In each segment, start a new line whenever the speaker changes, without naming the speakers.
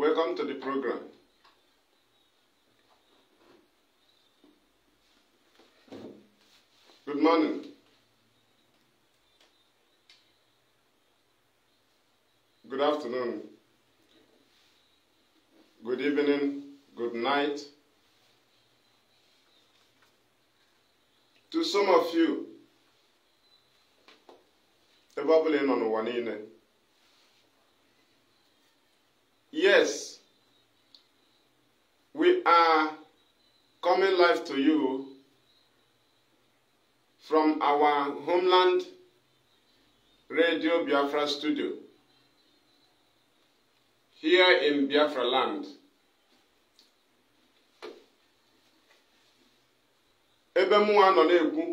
Welcome to the program. Good morning. Good afternoon. Good evening. Good night. To some of you, the ọ bụla ị nọ Yes, we are coming live to you from our homeland Radio Biafra studio here in Biafra land. Ebe mụnwa nọ na-ekwu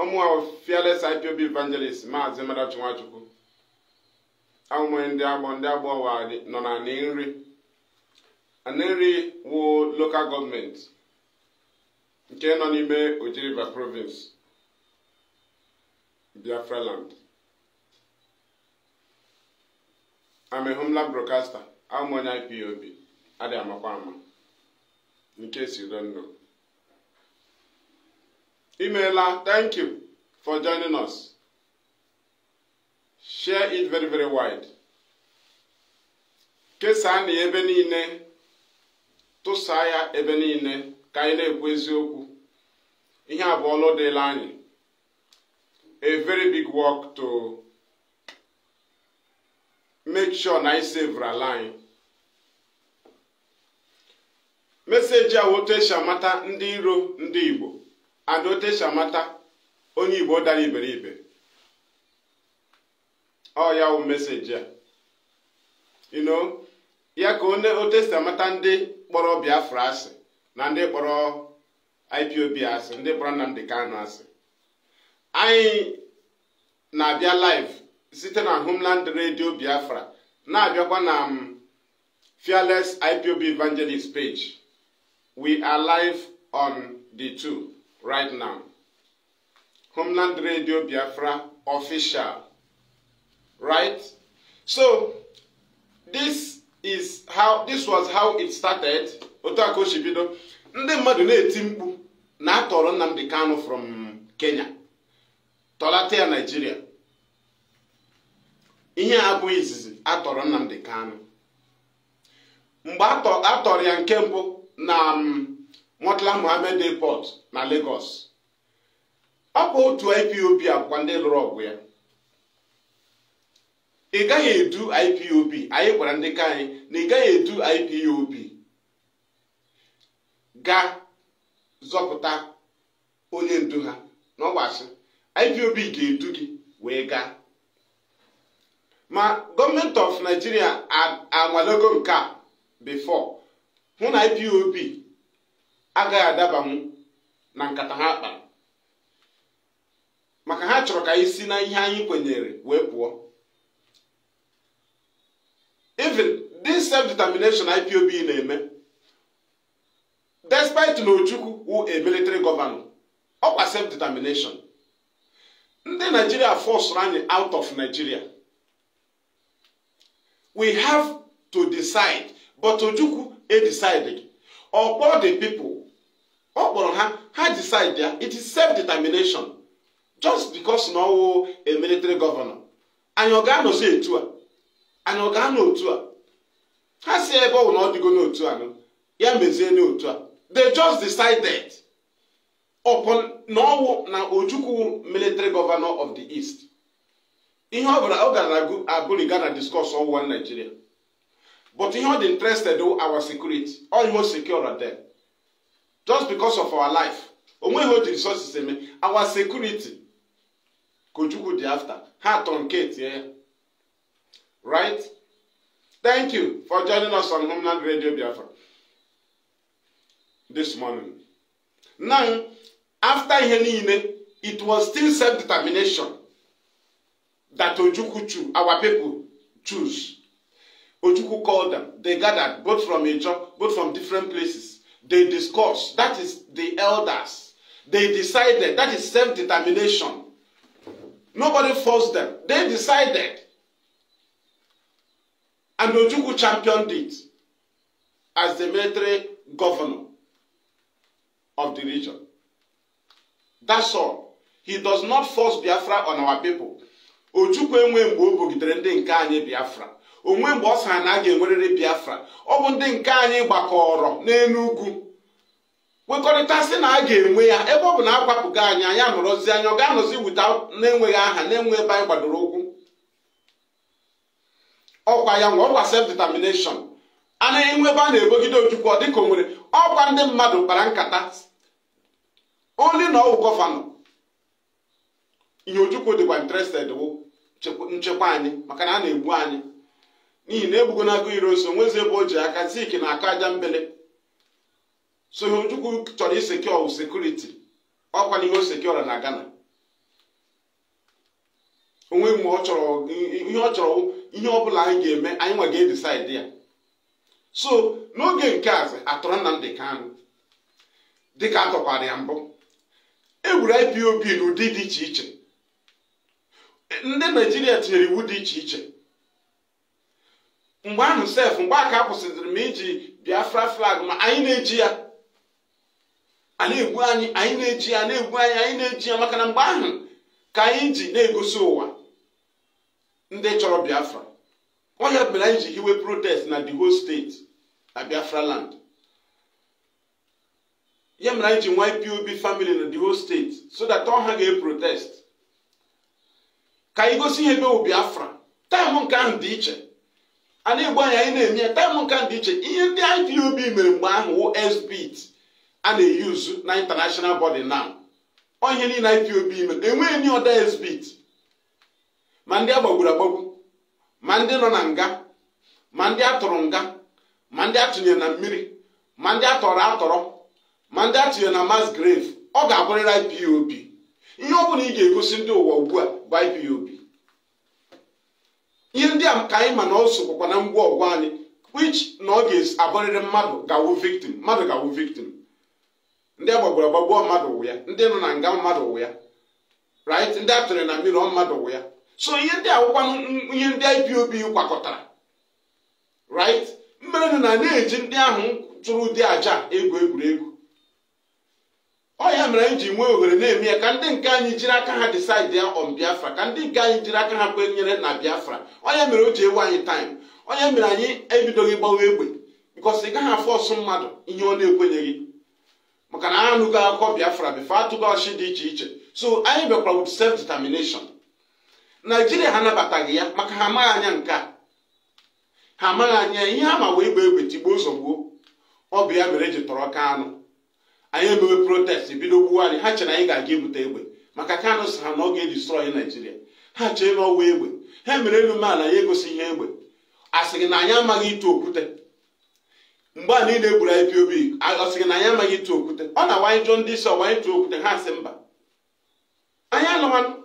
ọmụwa Fearless IPOB evangelist Maazị Mmadụ Chinwachukwu anwere ndị agbọ ndị agbọ nọ na nri anị nri wụ lokal gọọmenti nke nọ n'ime Oji provins province Biafra land amehumla broadcaster amụonye IPOB adị amakwa ama nke si ị imeela thank you for joining us. share it very very wide kesaa na ya ebe niile tụsaa ya ebe niile ka anyị na-ekwu eziokwu ihe abụọ bụ ọlụ dịla anyị a very big work to make sure na anyị anyị meseji a otu mata ndị iro ndị igbo and otesha mata onye igbo dara iberibe ọ ya wụ meseji a ino ya ka onye ote amata ndị kpọrọ Biafra asị na ndị kpọrọ IPOB asị ndị kpọrọ Nnamdi Kanu asị anyị na-abịa live site na Homeland Radio Biafra na-abịakwa na um, Fearless IPOB Evangelist page we are live on the two right now Homeland Radio Biafra official Right? So, this is how this was how it started otu a ka o si bido ndị mmadụ na-eti mkpu na atọrọ Nnamdi Kanu from Kenya tọlata ya ihe a bụ izizi atọrọ Nnamdi Kanu mgbe atọrọ ya nke mbụ na um, Murtala Mohammed Airport na Lagos ọ bụ otu IPOB abụkwa ndị lụrụ ọgụ ya ị gaghị edu IPOB anyị gwara ndị ka anyị na ị gaghị edu IPOB ga zọpụta onye ndu ha na IPOB ga-edu gị wee gaa ma gọọmenti of Nigeria anwalogo nke a bifo hụ na IPOB agaghị adabanwu na nkata ha kpara maka ha chọrọ ka anyị si na ihe anyị kwenyere wee pụọ even this self-determination ipob na-eme despite na Ojukwu wu a military governor ọkwa self-determination ndị Nigeria force anyị out of Nigeria we have to decide but Ojukwu edecided ọkpọ the people ọ kpọrọ ha ha decide ya it is self-determination just because na ọwụ a military governor anyị ọ ga-anọzi etu a ana ọ ga n'otu a ha si ebe ọ na ọ dịgo n'otu a ya mezie n'otu a they just decided upon na ọwụ na ojukwu military governor of the east ihe ọ bụla ọ gara abụrụ Ghana discuss ọwụwa Nigeria but ihe ọ dị interested our security ọ ihe o secure there just because of our life onweghị oji resources eme our security ka ojukwu dị after ha tọ nke ya Right? Thank you for joining us on Homeland Radio Biafra this morning. Now, after Henine, it was still self-determination that Ojukwu our people choose. Ojukwu called them. They gathered both from Ijo, both from different places. They discussed. That is the elders. They decided. That is self-determination. Nobody forced them. They decided. and Ojukwu championed it as the military governor of the region. That's all. He does not force Biafra on our people. Ojukwu enwe mgbe o bogidere ndị nke anyị Biafra onwe mgbe ọ sị na a ga-enwerịrị Biafra ọ bụ ndị nke anyị gbakọrọ n'elu ugwu kwekọrịta sị na a ga-enwe ya ebe ọ bụ na akwapụgo anyị anyị anọrọzi anya ọ ga-anọzi wita na-enweghị aha na-enwe ebe anyị gbadoro ụkwụ ọkwa ya nwa ọkwa self determination a na-enwe ebe a na-ebogide ojukwu ọ dịka onwere ọkwa ndị mmadụ kpara nkata oli na ọwụ gọvanọ ihe ojukwu dịkwa interested nchekwa anyị maka na a na-egbu anyị n'ihi na egbugo na iro so nwezi ebe o ji aka ziki na aka aja mbele so ihe ojukwu chọrọ isekọọ sekuriti ọkwa na ihe o na Ghana mgbe ọ chọrọ ihe ọ chọrọ ihe ọ bụla anyị ga-eme anyị nwa ga-edisaid ya so n'oge nke azi na Nnamdi Kanu dịka atọkwara ya mbụ egwuru IPOB n'ụdị dị iche iche ndị Naijiria tinyere iwu dị iche iche mgbe ahụ sef mgbe aka kwụsịrị m iji Biafra flag ma anyị na-eji ya na-egbu anyị anyị na-eji ya na egwu anyị anyị na-eji ya maka na mgbe ahụ ka anyị ji na-egosi ụwa ndị chọrọ biafra onye mere anyị ji hiwe protest na the whole steeti na biafra land ihe mere anyị ji nwa ipob family na the whole steeti so that ọ ha ga-eprotest ka anyị gosi ihe mewu biafra taịmụ nke ahụ dị iche a na-egbu anyị anyị na-eme ya taịmụ nke ahụ dị iche ihe ndị ipob mere mgbe ahụ wo exbit a na-eyuzu na international body now ọ ihe niile ipob mere enweghị ndị ọda exbit ma ndị agbagburu agbagbu ma ndị nọ na nga ma ndị atụrụ nga ma ndị atụnyere na mmiri ma ndị atọrọ atọrọ ma ndị atụnyere na mass grave ọ ga-abụrịrị ipop ihe ọ bụla ị ga-egosi ndị ụwa ugbu a bụ ipop ihe ndị a ka anyị ma na ọ sokwakwa na ngwa ọgwụ anyị which na ọ ga-abụrịrị mmadụ gawo victim mmadụ gawo victim ndị agbagburu agbagbu mmadụ wụ ya ndị nọ na nga mmadụ wụ ya right ndị atụnyere na mmiri ọ mmadụ wụ ya so ihe ndị awụkwanụ ihe ndị ipob kwakọtara right mmerenụ na na-eji ndị ahụ tụrụ ụdị aja egwu egwuregwu ọ ya mere anyị ji nwee ohere na-eme ya ka ndị nke anyị jiri aka ha decide ya on biafra ka ndị nke anyị jiri aka ha kwenyere na biafra ọ ya mere o ji ewe anyị taim ọ ya mere anyị ebidoghị gbawa egbe because ị gaghị afọ ọsụ mmadụ ihe ọ na-ekwenyeghị maka na anụghị akụkọ biafra bifo atụghị ọchị dị iche iche so anyị bịakwara with self determination naijiria ha nabataghị ya maka ha amaghị anya nke a ha amaghị anya ihe ha ma wee gba egbe tigbuo ụzọ gbuo ọ bụ ya mere eji tọrọ kanụ anyị emewe protest bido gbuo anyị ha chere anyị ga-aga ebute egbe maka kanụ sị ha na ọ ga-edistrọyị naijiria ha chee na egbe ha mere elu maala ya egosi ihe egbe asịghị na anyị amaghị itu okwute mgbe a niile gburu IPOB asị gị na anyị amaghị itu okwute ọ na-awanye jụọ ndị isi ọwanye tụọ okwute ha asị mba anyị anụmanụ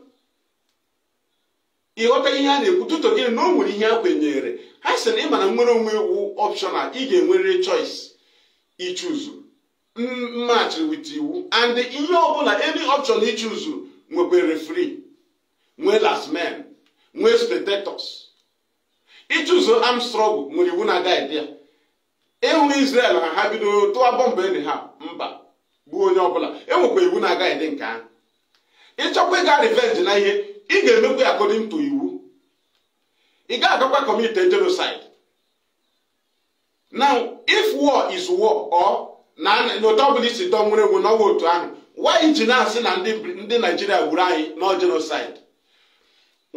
ịghọta ihe a na-ekwu tụtụ na o nwere ihe a kwenyere ha sị na ị mana nwere onwe iwu optional ị ga-enwerịrị choice ichuzu mmachi wit iwu and ihe ọbụla any option ichuzu nwekwa refri nwee lasmen nwee spectators ichuzu am struggle nwere iwu na guide ya ịhụ Israel ha ha bido tụwa bọmbụ eni ha mba gbuo onye ọbụla enwekwa iwu na guide nke ahụ ịchọkwa ịga revenge na ihe ị ga-emekwa ya according to iwu ị ga-agakwa commit genocide now if war is war or na n'otu ọbụla isi dọ nwere enwe n'ọnwa otu ahụ nwaanyị ji na-asị na ndị naijiria gburu anyị nọ genocide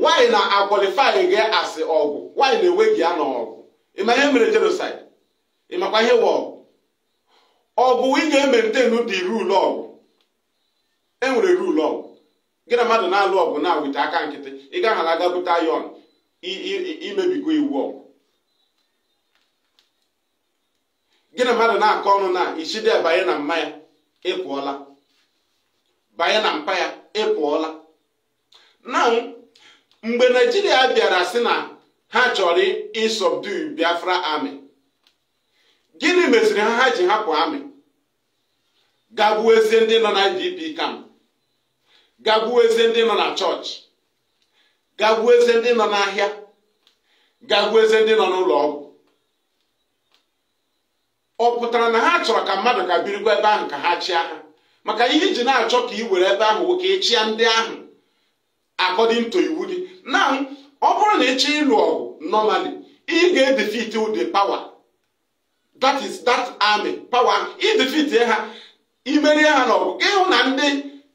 nwaanyị na-akwalifai gị asị ọgwụ nwaanyị na-enwe gị ya n'ọgwụ ịma ihe mere genocide ịmakwa ihe wa ọgwụ ọgwụ ị ga-ementenu dị rule ọgwụ enwere rule ọgwụ gị mmadụ na-alụ ọgụ na aka nkịtị ị gaghị aga bute ayọn imebigo iwu ọgụ gị na mmadụ na-akọ ọnụ na ichide banye na mma ya ịpụọla banye na mpa ya ịpụọla na mgbe naijiria bịara sị na ha chọrọ ịsọbdu biafra amị gịnị meziri ha ha ji hapụ amị gagbuo ezie ndị nọ na idp kamp gagbuo eze ndị nọ na chọọchị gagbuo eze ndị nọ n'ahịa gagbuo eze ndị nọ n'ụlọ ọgwụ ọ pụtara na ha chọrọ ka mmadụ ka birikwa ebe ahụ ka ha chịa ha maka ihe iji na-achọ ka i were ebe ahụ nwoke ịchịa ndị ahụ according iwu gị na ọ bụrụ na ịchọ ịlụ ọgụ normally ị ga-edefit ụdị pawa that is that army power idefit ha imerie ha n'ọgụ ịhụ na ndị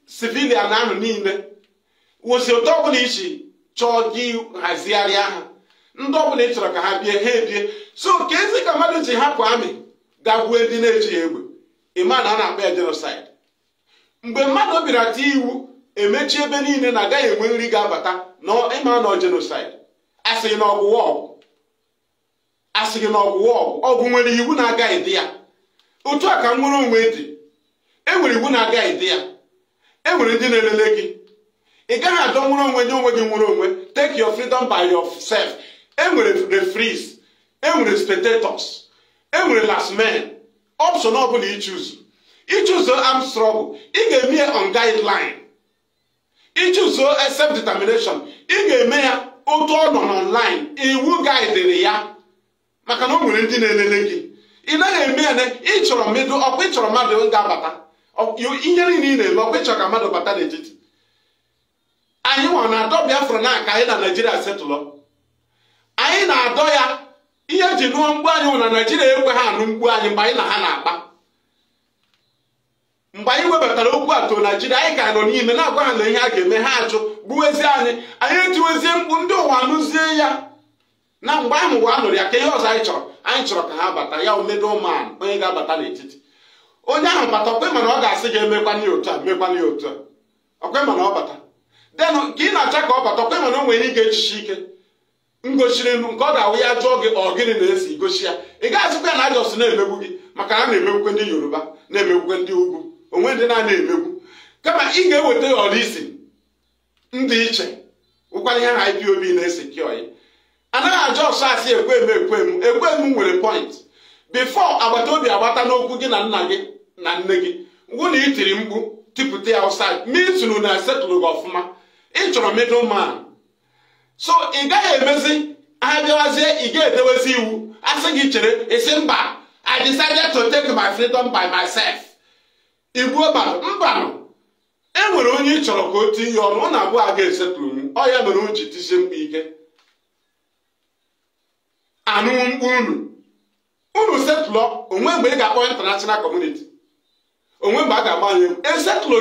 civilian ahụ niile wụsị ụtọ ọbụla isi chọọ gị hazigharịa ha ndị ọbụla ị chọrọ ka ha bie ha ebie so ka ezi ka mmadụ ji hapụ amị gagbuo ndị na-ejighị egbe ịma na a na-akpọ ya jenosaid mgbe mmadụ bịara tie iwu emechi ebe niile na agaghị enwe nri ga-abata na ịma na jenosaid asịghị na ọgụ ọgụ asịghị na ọgụ ọgụ nwere iwu na-agaghị dị ya otu a ka nnwere onwe dị e nwere iwu na-agaghị dị ya e nwere ndị na-elele gị ị gaghị achọ nwere onwe nye onwe gị nwere onwe take your freedom by yourself e nwere referees e nwere spectators e nwere last men option ọbụla ichuzu ichuzu arm struggle ị ga-eme ya on guideline ichuzu self determination ị ga-eme ya otu ọ nọ online iwu guidere ya maka na o nwere ndị na-elele gị ị naghị eme ya na ịchọrọ mmadụ ọkwa ịchọrọ mmadụ ga-abata ihe niile ị na-eme ọkwa ịchọ ka mmadụ bata n'etiti anyị nwa na-adọ Biafra na aka anyị na Naijiria setụlọ anyị na-adọ ya ihe eji nụọ mgbu anyị nwụ na Naijiria ekwe ha anụ mgbu anyị mgbe anyị na ha na-akpa mgbe anyị webatara okwu atọ Naijiria anyị ga-anọ n'ime na-agwa ha na ihe a ga-eme ha achụ gbuwezie anyị anyị etiwezie mkpu ndị ụwa anụzie ya na mgbe ahụ ụwa anụrụ ya ka ihe ọzọ anyị chọrọ anyị chọrọ ka ha bata ya omedo man onye ga-abata n'etiti onye ahụ bata okwe mana ọ ga-asị gị emekwana ya otu a mekwana ya otu a okwe mana ọ bata denụ ka ị na-acha ka ọ bata okwe mana o nwere ihe ga-echichi ike ngochiri nụ nke ọ ga-awụ ya jụọ gị ọ gịnị na-esi gosi ya ị ga ya na ajọs na-emegbu gị maka na a na-emegbukwe ndị yoruba na-emegbukwe ndị ugwu onwe ndị na-ana emegbu kama ị ga-eweta ya isi ndị iche ụkwara ihe ha ipob na-esekio ya anaghị ajọ ọsọ asị ekwe ekwe m ekwe m nwere point bifo agbata obi agbata n'okwu gị na nna gị na nne gị ngwụ na itiri mkpu tipụta ya outside mitulu na setụlụ gị ọfụma ị chọrọ man so ị gaghị emezi abịawazie ị ga-edewezi iwu asị gị chere isi mba I decided to take my freedom by myself igbuo bara mba e nwere onye ị chọrọ ka o tinye ya ọnụ na-abụ aga esetụlụ ọ ya mere o ji tisie mkpu ike anụ mkpu unu unu setụlọ onwe mgbe ị ga-akpọ international community onwe mgbe a ga-agba anyị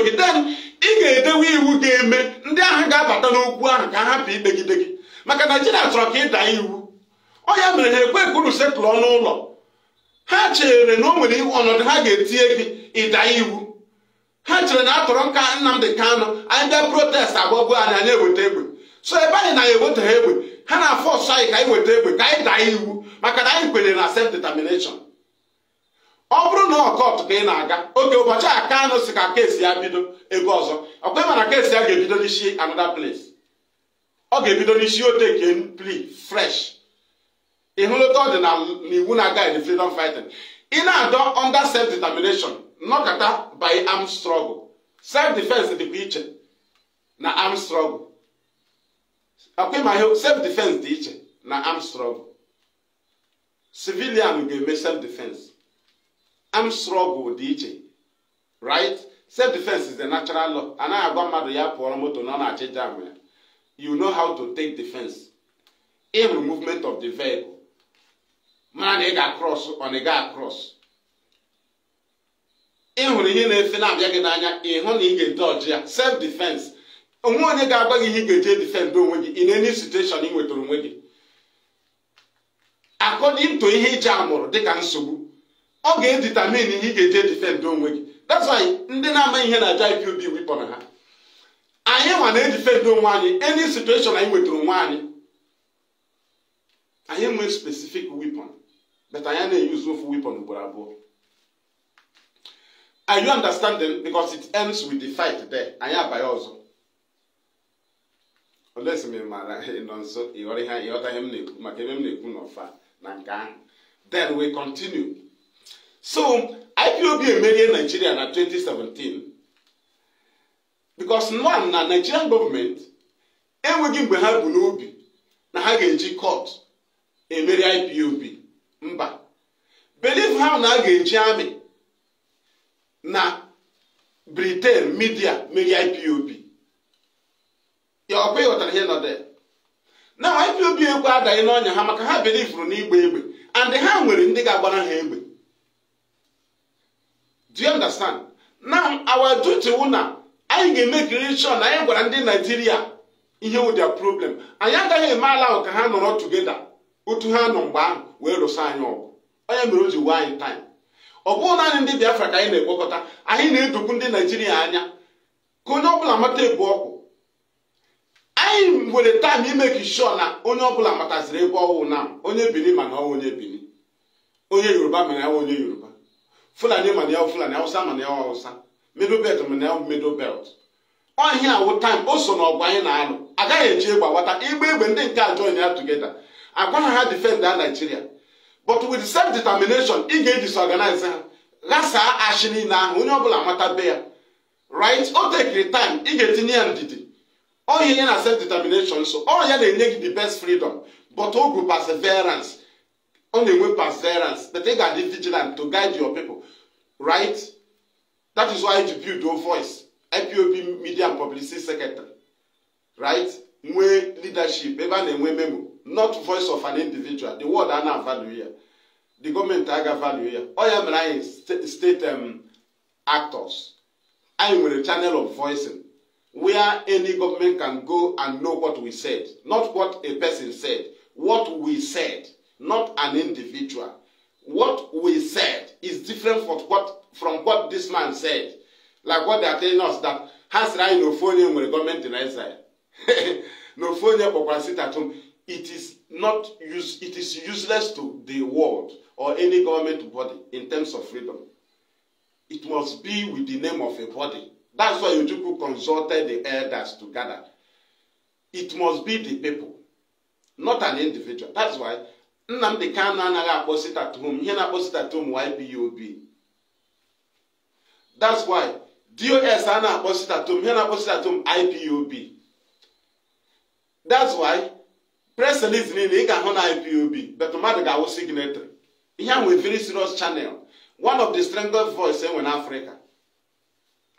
gị den ị ga-edewe iwu ga-eme ndị ahụ ga-abata n'okwu ahụ ka ha hapụ ikpegide gị maka naijiria chọrọ ka ịda iwu ọ ya mere ha ekwe ka unu setụlụ ọnụ ụlọ ha chere na o nwere ọnọdụ ha ga-etinye gị ịda iwu ha chere na atọrọ nka Nnamdi Kanu anyị bịa protest agbọgbu anyị anya eweta egbe so ebe anyị na-ewetaghị egbe ha na-afọ ọsọ anyị ka anyị weta egbe ka anyị daa iwu maka na anyị kwenyere na self determination ọ bụrụ na ọkọt ka ị na-aga oge ụbọchị aka Kanu si ka kesi ya bido ego ọzọ ọkwa ịma na kesi ya ga-ebido n'isi anoda place ọ ga-ebido n'isi oteke pli fresh ịhụlụta ọ dị na iwu na-aga the freedom fighting ị na-adọ under self determination nọkọta by arm struggle self defense dịkwa iche na arm struggle ọkwa ịma ihe self defense dị iche na arm struggle civilian ga-eme self defense armed struggle dị iche right self defense is the natural law anaghị agwa mmadụ ya pụọrọ moto na ọ na-achị jam ya you know how to take defense ịhụrụ movement of the vehicle mara na ị ga akros ọ na ị ga-across ịhụrụ ihe na-efe na-abịa gị n'anya ịhụ na ị ga-edoji ya self defense onwe onye ga-agwa gị ihe ị ga eje defend onwe gị in any situation ị nwetara onwe gị according to ihe ije amụrụ dịka nsogbu ọ ga-editamin ihe ị ga-eje difend onwe gị that's why ndị na-amaghị ihe na-aja IPOB wepọn ha anyị nwa na-edifend onwe anyị any situation anyị wetara onwe anyị anyị enwe specific weapon but anyị na-eyuzu ofu weapon ugboro abụọ are you understanding because it ends with the fight there anyị abanye ọzọ olesi m mara nọ nso ịghọta ihe m na-ekwu maka ebe m na-ekwu n'ọfa na nke ahụ then we continue so ipob emerie naijiria na 2017 because one na nigerian gọọmenti enweghị mgbe ha bụ n'obi na ha ga-eji kọt emeri ipob mba believe ha na a ga-eji amị na britain midia meri ipob ya ọkwa ịghọtara ihe nọde na ipob ekwe adaghị n'ọnya ha maka ha belivuru igbe egbe and ha nwere ndị ga-agbara ha egbe do you understand now our duty wụ na anyị ga eme sure na anyị gwara ndị naijiria ihe wụ their problem anyị agaghị eme ala ahụ ka ha nọrọ tugeda otu ha nọ mgbe ahụ wee lụsa anyị ọgụ onye mere o ji wee anyị taịm ọ bụghị naanị ndị biafra ka anyị na-ekpokọta anyị na-edokwu ndị naijiria anya ka onye ọbụla mata ebu ọgwụ anyị were ime ka sure na onye ọbụla mataziri ebe ọwụ na onye bini mana ọwụ onye bini onye yoruba mana ọwụ onye yoruba fulani mana ya fulani awụsa mana ya awụsa middle belt mana ya middle belt ọhịa awụ time o so n'ọgụ anyị na-alụ agaghị eji egbe agbata igba egbe ndị nke a join ya together agwara ha defend a Nigeria but with self determination ị ga-eji organize ha ghasaa ashị niile ahụ onye ọbụla amata be ya right o tekiri time ị ga-etinye ya ndidi ọhịa ya na self determination so ọrụ ya na-enye gị the best freedom but o gwu perseverance ọ na-enwe perseverance the thing that is vigilant to guide your people right that is why you build your voice ipob media and publicity secretary right nwee leadership ebe a na-enwe memo not voice of an individual the word a na value ya the gọọmenti aga value ya ọ ya mere anyị state um, actors anyị nwere channel of voicing where any government can go and know what we said not what a person said what we said not an individual. What we said is different from what, from what this man said. Like what they are telling us that no phone him when the government denies phone him Pokwara sit at home. It is not use, it is useless to the world or any government body in terms of freedom. It must be with the name of a body. That's why Ujuku consulted the elders together. It must be the people, not an individual. That's why nnamdị kanu anaghị akpọ sitatom ihe na-akpọ sitatom ypob that's why dos a na-akpọ sitatom ihe na-akpọ sitatom IPUB. that's why press release niile ị ga-ahụ na ipob but mmadụ ga-awụ signatory ihe ahụ very serious channel one of the strongest voice enwe Africa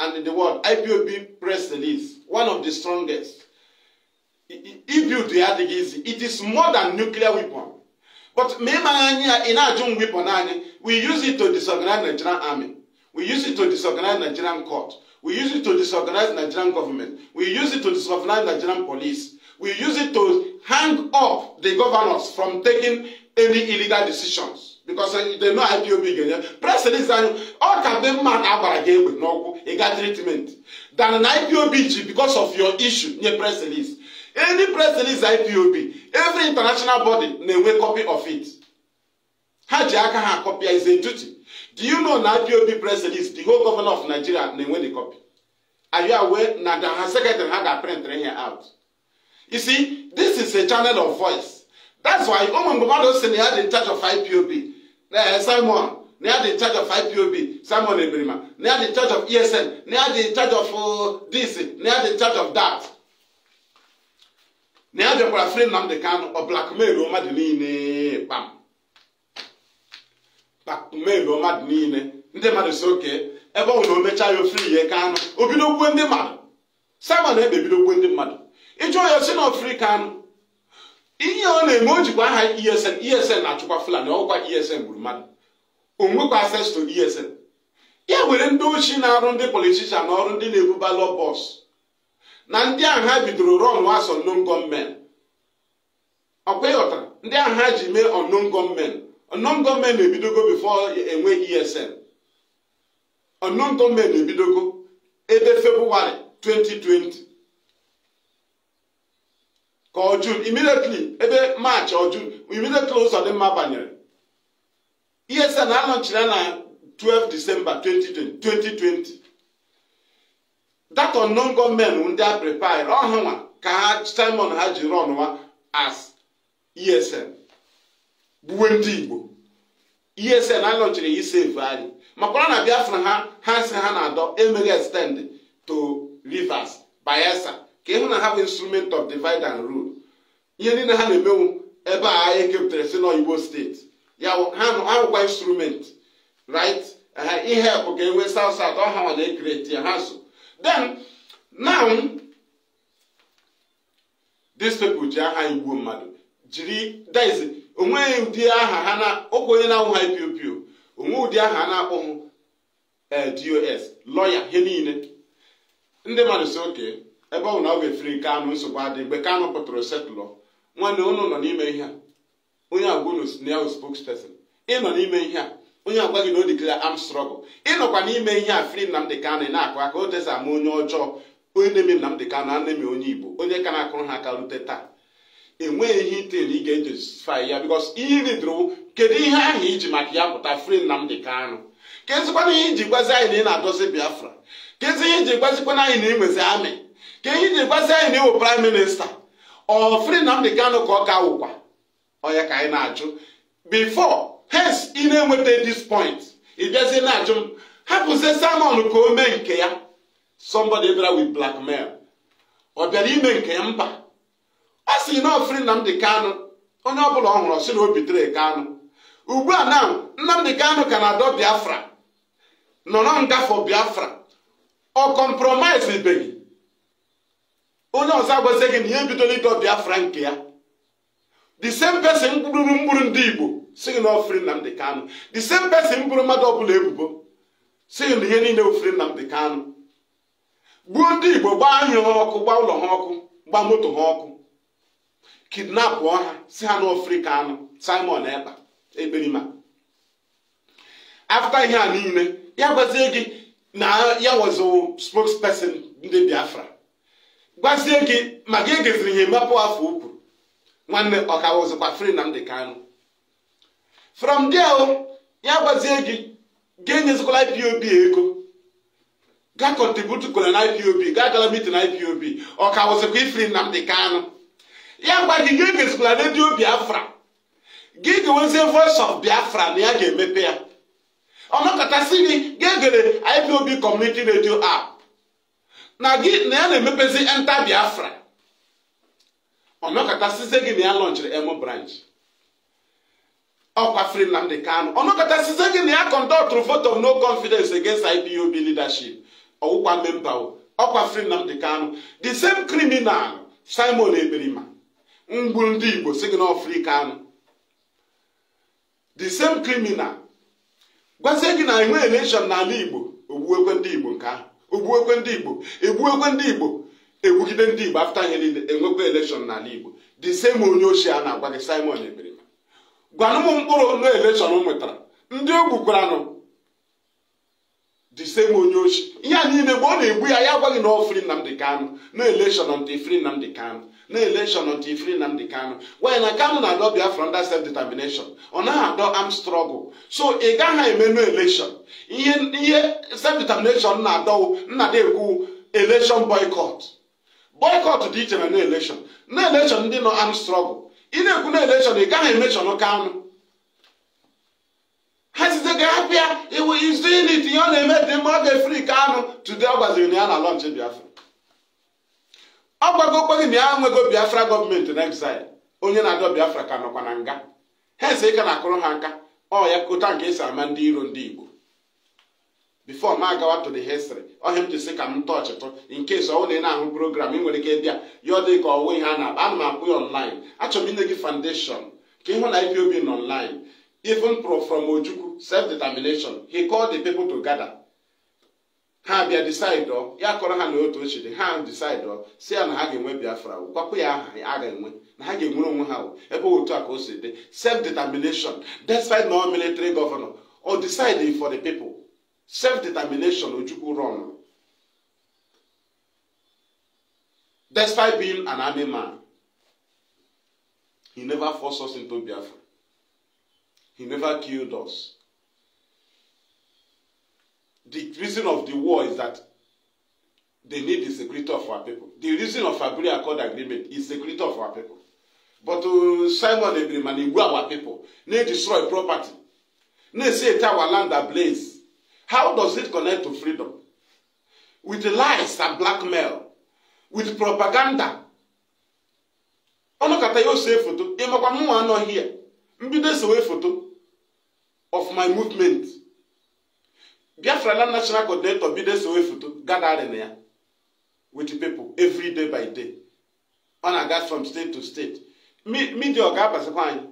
and in the world ipob press release one of the strongest ibuild ya adịghị easy it is more than nuclear weapon But me anyị ina ajụ mwepụ naanị we use it to disorganize Nigerian army. We use it to disorganize Nigerian court. We use it to disorganize Nigerian government. We use it to disorganize Nigerian police. We use it to hang up the governors from taking any illegal decisions. Because uh, they know IPOB ga-enye. President uh, anyị ọ ka be mma na agbara gị egbe n'ọkwụ ịga treatment than an IPOB ji because of your issue nye president any press release ipob every international body na-enwe copy of it ha ji aka ha kọpịa is a duty do you know na ipob press release the whole governor of nigeria na-enwe the copy are you aware na the ha secretary ha ga-print here out you see this is a channel of voice that's why ụmụ mgbe mmadụ si na ya dị in charge of ipob na simon na ya dị in charge of ipob simon eberima na ya dị in charge of esn na ya dị in charge of uh, this na ya dị in charge of that na ya bịakwara free Nnamdi Kanu ọ blackmail mmadụ niile kpam blackmail mmadụ niile ndị mmadụ si oke ebe ọ na o ya ofri ya Kanu o bido ndị mmadụ Simon Ekpa ebido ogbuo ndị mmadụ ịjụọ ya si na ofri Kanu ihe ọ na-eme o jikwa aha ESN ESN na-achụkwa Fulani ọkwa ESN gburu mmadụ o ases access to ESN ya were ndị ochie na-arụ ndị politishan na ọrụ ndị na-ebuba lọ bọs na ndị ahụ ha bidoro run was unknown gunmen ọkwa ịghọtara ndị ahụ ha ji mee unknown gunmen unknown gunmen na-ebidogo before e enweghị esn unknown gunmen na-ebidogo ebe febụwarị 2020 ka ọjun immediately ebe maachị ọjun immediately ụzọ dị mma banyere esn anọchiri na 12 disemba 2020 that unknown gọọmenti ndị a prepare ọhụwa oh, ka ha simon ha ji rọnwa as esn buwe ndị igbo esn alọchiri ya isave anyị maka na biafra ha ha si ha na-adọ emeghị extend to rivers bayelsa ka ịhụ na ha bụ instrument of divide and rule ihe niile ha na-emenwu ebe a ekepụtara si n'oyibo steeti ya ha nwekwa instrument right ihe bụ ka e nwee south south ọha nwa na-ekreti ya ha so then now these people ji aha igbo mmadụ jiri daizi onweghị ụdị aha ha na ụkwụ onye na-awụ ha ipiopio onwe ụdị aha ha na-akpọ hụ eh, dos lọya ihe niile ndị mmadụ si oke ebe ọ bụ na ọ ga-efere anụ nsogbu adị mgbe anụ pụtara setụlọ nwanne ụnụ nọ n'ime ihe a onye agwa unu na ya spokesperson ị nọ n'ime ihe a onye agwa gị na o dikla am strọgụl ịnọkwa n'ime ihe a fri Nnamdi Kanu na-akụ aka o tesa ma onye ọjọọ onye na-eme Nnamdi Kanu a na-eme onye Igbo onye ka na-akụrụ ha aka rute taa enweghị ihe iteli ị ga-eji justify ya bikos ihe ridoro kedu ihe ahụ iji maka ya pụta fri Nnamdi Kanu kezikwana ihe iji gwazi anyị na ị na-adọzi Biafra ezi ihe iji gwazikwana anyị na ịnwezi amị ka ihe iji gwazi anyị na ịwụ praịm minista ọ fri Nnamdi Kanu ka ọ ka wụkwa ọ ya ka anyị na-ajụ bifo hence ị na-enweta this point ị bịazie na-ajụ m hapụzie Simon ka o mee nke ya somebody bịara blak blackmail ọ bịara ime nke ya mba ọ si na ofri Nnamdi onye ọbụla ọ hụrụ ọ na o bitere Kanu ugbu a na nnamdị Kanu ka na-adọ Biafra nọrọ nga for Biafra ọ compromise ibeghị onye ọzọ agwazie gị na ihe bidoro ịdọ Biafra nke ya the same person kwururu mkpụrụ ndị igbo si gị na ofiri Nnamdi Kanu the same person bụrụ mmadụ ọbụla ebubo si gị na ihe niile ofiri Nnamdi Kanu gbuo ndị igbo gbaa ahịa ha ọkụ gbaa ụlọ ha ọkụ gbaa moto ha ọkụ kidnap ọha si ha na ofiri Kanu Simon Ekpa Ekperima afta ihe a niile ya gwazie gị na ya wazụ spokesperson ndị Biafra gwazie gị ma gị egeziri ihe emepụ afọ ukwu nwanne ọkawụzikwa fri Nnamdi Kanu from there ya gbazie gị ga-enyezikwala IPOB ego ga kọntributu kwere na IPOB ga agala mitin na IPOB ọkawụzikwa ifri Nnamdi Kanu ya gba gị ga-egezikwala redio Biafra gị ga-enwezie voice of Biafra na ya ga-emepe ya ọnọkọtasị gị ga-egere IPOB community radio app na gị na ya na-emepezi enta Biafra ọ nọkọtasize gị na ya lọnchiri emo branch ọkwa free Nnamdi Kanu ọ nọkọtasize gị na ya kọndọtụrụ vote of no confidence against IPOB leadership ọwụkwa memba ọkwa free Nnamdi Kanu the same criminal Simon Eberima mgbu ndị Igbo si gị na ọfri Kanu the same criminal gwazie gị na enwe election n'ala Igbo ogbuekwe ndị Igbo nke ahụ ogbuekwe ndị Igbo egbuekwe ndị Igbo ewugide ndị igbo afta ihe niile enwekwa elekshọn n'ala igbo the same onye ochie a na-agwa gị simon eberima gwanụ m mkpụrụ na elekshọn nwetara ndị egwu gwaranụ the same onye ochie ihe a niile mgbe ọ na-egbu ya ya agwaghị na ọ fri Nnamdi Kanu na elekshọn ntị fri Nnamdi Kanu na elekshọn ntị fri Nnamdi Kanu nwanyị na Kanu na-adọ Biafra under self determination ọ naghị adọ armed struggle so ị gaghị eme no elekshọn ihe self determination na-adọwụ nna dị ekwu elekshọn boycott boycott dị iche na na elekshọn na elekshọn ndị nọ anụ strọgụl ị na-ekwu na elekshọn ị gaghị emeshọn ụka anụ ha site ga-apụ ya izu ili tinye ọ na-eme dị mma ọ ga-eferi ka anụ tude ọ gbaziri na ya na lọnchi biafra ọ gbago okpegị na ya nwego biafra gọọmenti na exile onye na-adọ biafra ka nọkwa na nga ha hensi ịka na-akụrụ ha nka ọ ya kụta nke esi ama ndị iro ndị igbo before m agawa to the history ọhịa m ji sị ka m tọọ ọchịtụ in case ọ na ị na-ahụ program ị nwere ike bịa yọọ dị ka ọwụ ihe a na-akpa ana m akpụ ya online achọrọ m inye gị foundation ka ịhụ na IPOB nọ online even from Ojukwu self determination he called the people to gather ha bịa decide ya kọrọ ha na otu ochi dị ha decide si ya na ha ga-enwe biafra gwakwa ya aha a ga-enwe na ha ga-enwere onwe ha ebe otu a ka o si dị self determination despite no military governor or decide for the people self-determination Ojukwu run despite being an army man he never forced us into Biafra he never killed us the reason of the war is that they need the security of our people the reason of Aburi Accord agreement is security of our people but uh, Simon Ebirima na-egbu our people na-destroy property na-esi ete our land ablaze How does it connect to freedom? With lies and blackmail, with propaganda. ọnọkọta ya ose foto ịmakwa mụnwa anọghị ya mbido esowe foto of my movement biafra land national coordinator bido sowe foto gathering ya with people every day by day ọ na-aga from state to state media ọ ga-abazikwa anyị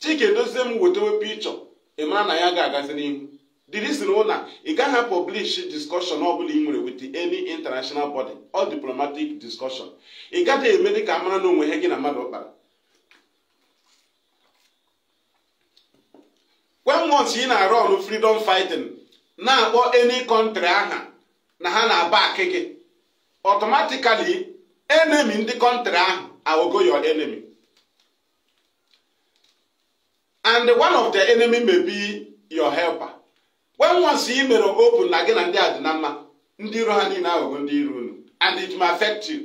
chike edozie m wetewe pichọ ị mara na ya ga-agazi n'ihu the reason ụna ị gaghị publish discussion ọbụla ị nwere with eny international body or diplomatic discussion ị gaghị eme dị ka mara na onwe ha gị na mmadụ kpara kwe ị na-arụ ọrụ freedom fighting na-akpọ eny kọntrị aha na ha na-aba akị gị enemi enemy ndị kọntrị ahụ awogo your enemy and one of the enemy may be your helper nwanwansị i mere open na gị na ndị a dị mma ndị iro ha niile aghọgo ndị iro unu and it may affect you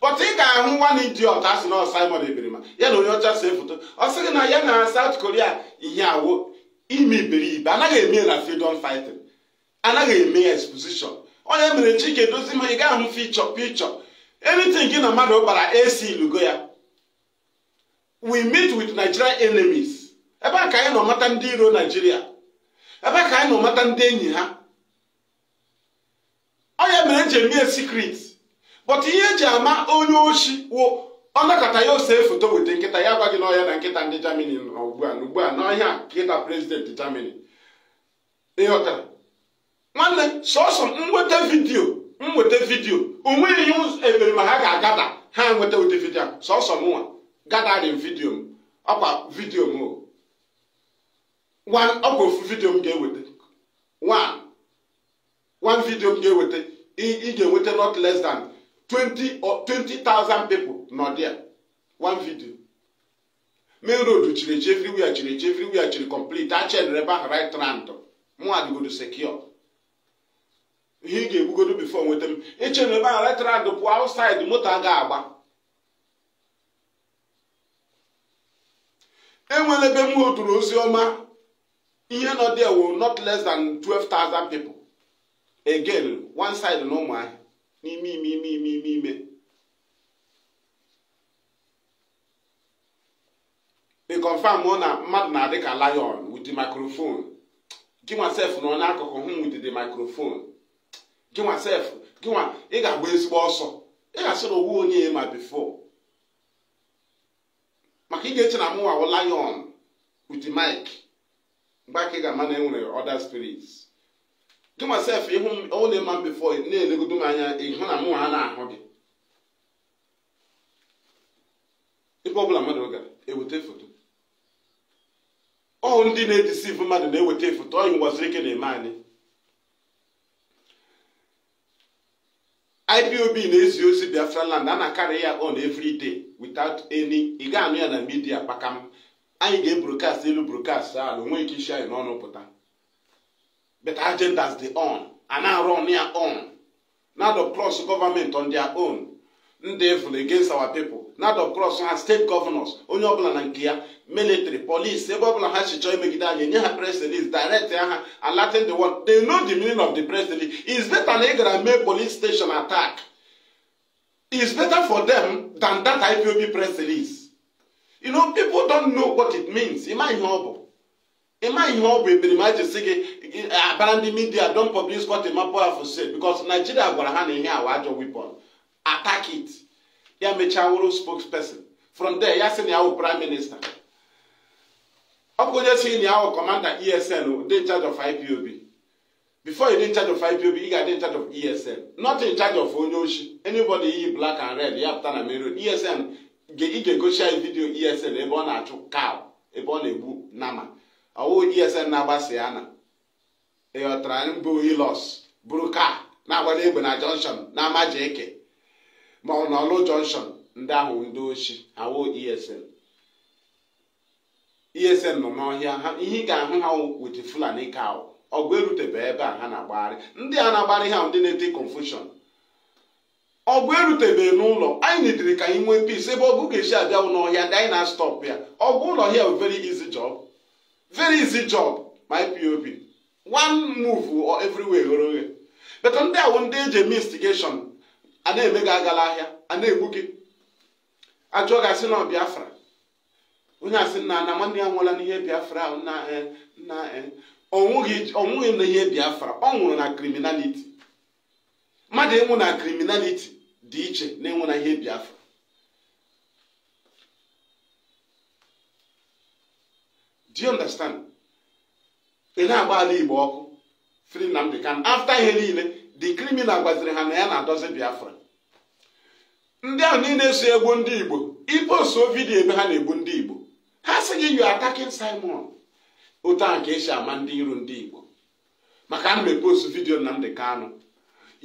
but ị ga-ahụ nwa na idiot asị na Simon Ebirima ya na onye ọcha see foto ọ sịghị na ya na South Korea ihe awo ime iberibe anaghị eme na freedom fighting anaghị eme exposition onye mere Chike Edozie ma ị gaghị ahụ fichọ pichọ anything gị na mmadụ gbara esi lugo ya we meet with Nigerian enemies ebe a ka anyị nọ amata ndị iro Nigeria ebe ka anyị nọ mata ndị enyi ha ọ ya mere eji eme sikret bọt ihe eji ama onye ochi wụ ọ nakọta ya ose foto weta nkịta ya gwa gị n'ọhịa na nkịta ndị Germany nọ ugbua n'ugbua n'ọhịa nkịta prezidenti Germany ịghọtara nwanne sọsọ nweta vidiyo nweta vidiyo onweghị ihe emere ma ha ga-agada ha nweta weta vidiyo sọsọ mụnwa gadarị vidio m ọkwa vidiyo m o ọ bụ ofu vidio m ga-eweta one vidio m ga-eweta ị ga-enweta not less than 20 or 20,000 people nọ there one video main road chiri echi everywhere chiri echi everywhere chiri complete a chenere ebe ahụ right round mụa dịgodo secure ihe ị ga-egbugodo before nweta m echere ebe ahụ right round pụọ outside moto a ga-agba enwere ebe m oturu ozi ọma ihe nọ dị will not less than 12,000 people again one side na ụmụahịa n'ime ime ime ime ime ime e confirm na mmadụ na-adị ka lion with the microphone gịnwa sef nọ n'akụkụ hụ with the microphone gịnwa sef gịnwa ị ga-agba ezigbo ọsọ ị ga-asị na owu onye ma before maka ị ga-eche na mụnwa lion with the mic mgbe aka ị ga-ama na enwere ọda spirits gị masef ịhụ na-ema m na-elegodo m anya ịhụ na mụnwa ha na-ahụ gị ebe ọbụla mmadụ gara eweta foto ọhụ ndị na-edisivu mmadụ na-eweta foto ọyị ngwaziri ike na-eme anyị ipob na-ezi ozi biafra land a na-akarị ya on every day eny any ị ga-anụ ya na midia kpakam anyị ga-ebrokast elu brokast ahụ onwe ike isi anyị n'ọnụ pụta but agendas dị on a na-arụ ọnụ ya on nod cross government on their own ndị evil against our people nod cross ha steeti gọvanọs onye ọbụla na nke ya military police ebe ọbụla ha si chọọ imegide anyị enye ha press release direct ya ha and the word they know the meaning of the press release is better na ị gara mee police station attack is better for them than that IPOB press release you know people don't know what it means ịma ihe ọ bụ ịma ihe ọ bụ ekpere ma e ji si gị abara ndị midia don publish what a map for say because nigeria gwara ha na ihe awa ajọ weapon attack it ya mechaa wụrụ spokesperson from there ya sị na ya wụ prime minister ọ bụ onye si na ya wụ commander esn dị in charge of ipob before you dey in charge of ipob ị ga-adị in charge of esn not in charge of onye oshi anybody yi black and red ya pụta na main road esn nke ga-egosi anyị vidiyo esn ebe ọ na-achụ kaw ebe ọ na-egbu nama ọwụ esn na-agbasa ya na ịghọtara mbụ hilos bụrụ ka na-agbara egbe na jọnshọn na amaji eke ma ọ n'ọlụ jọnshọn ndị ahụ ndị ochi awụ esn esn nọ n'ọhịa ihe ị ga-ahụ ha wit fulani kaw ọgụ erutebe ebe a ha na-agbagharị ndị a na-agbara ihe ahụ ndị na ete konfushọn ọgụ erutebeghị n'ụlọ anyị nidiri ka anyị nwee peace ebe ọgụ ga-esi abịanwụ n'ọhịa ndị anyị na-astọpụ ya ọgụ ụlọ here very easy job very easy job my pop one move or everywhere ghere oghe beta ndị awụ ndị eji eme instigation a na-eme gị agala ahịa a na-egbu gị ajụọ gị asị na biafra onye asị na na nwanne ya nwụọla n'ihe biafra ọnwụghị na eh, eh. ihe biafra ọ nwụrụ na kriminaliti mmadụ ịnwụ na kriminaliti dị iche na-enwe na ihe biafra do you understand ị na-agba ala igbo ọkụ free Nnamdi Kanu afta ihe niile the criminal gwaziri ha na ya na-adọzi biafra ndị ahụ niile so egbu ndị igbo ipo so ebe ha na-egbu ndị igbo ha sị gị you attacking Simon otu ahụ ka esi ama ndị iru ndị igbo maka ana m epost vidiyo Nnamdi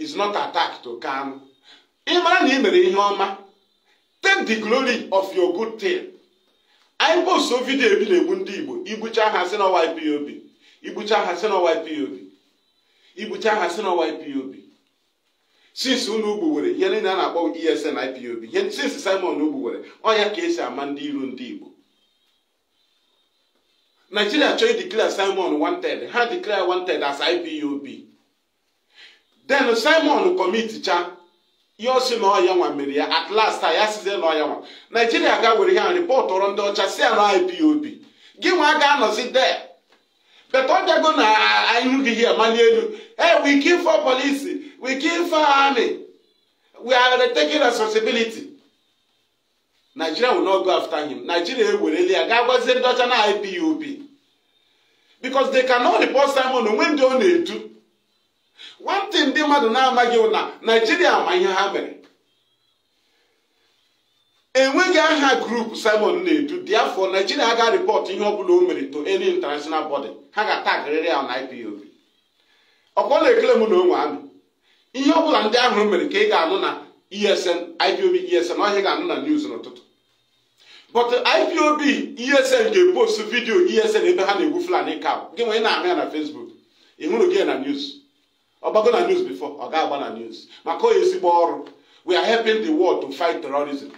is not attack to ị mara na ị mere ihe ọma take the glory of your good thing anyị posto vidio ebi na-egbu ndị igbo igbucha ha si na YPOB igbucha ha si na YPOB igbucha ha si na YPOB since unu ugbuwere ihe niile a na-akpọ ESN IPOB ihe since Simon ugbuwere ọ ya ka esi ama ndị iru ndị igbo Nigeria chọrọ declare Simon wanted ha declare wanted as IPOB den Simon commit ihe osi na ọya nwa mere ya at last ya sizie na ọya nwa naijiria ga were ihe a rịpọtụrụ ndị ọcha si ya na ipob gị nwa ga-anọzi de beta ọbịago na ihu gị hie mali elu e we kill for police we kill for army we are taking responsibility nigeria will not go after him nigeria ewerele ya gaa gwazie ndị ọcha na ipob because they cannot report simon onwe ndị ọ na-edu one ndị mmadụ na-amaghị na naijiria ma ihe ha mere enweghị aha grupu simon na-edu dị afọ naijiria aga rịpọt ihe ọbụla o mere to any international body ha ga-atagịrịrị ya na ipob ọkwa na-ekele m na onwe amị ihe ọbụla ndị ahụ mere ka ị ga-anụ na esn ipob esn ọhịa ga-anụ na news n'ụtụtụ but ipob esn ga-epost vidiyo esn ebe ha na-egwu fulani kaw gị nwe ị na-ahụ ya na facebook ị hụrụ gị na news ọgbago na news before ọ ga-agba na news maka onye ezigbo ọrụ we are helping the world to fight terrorism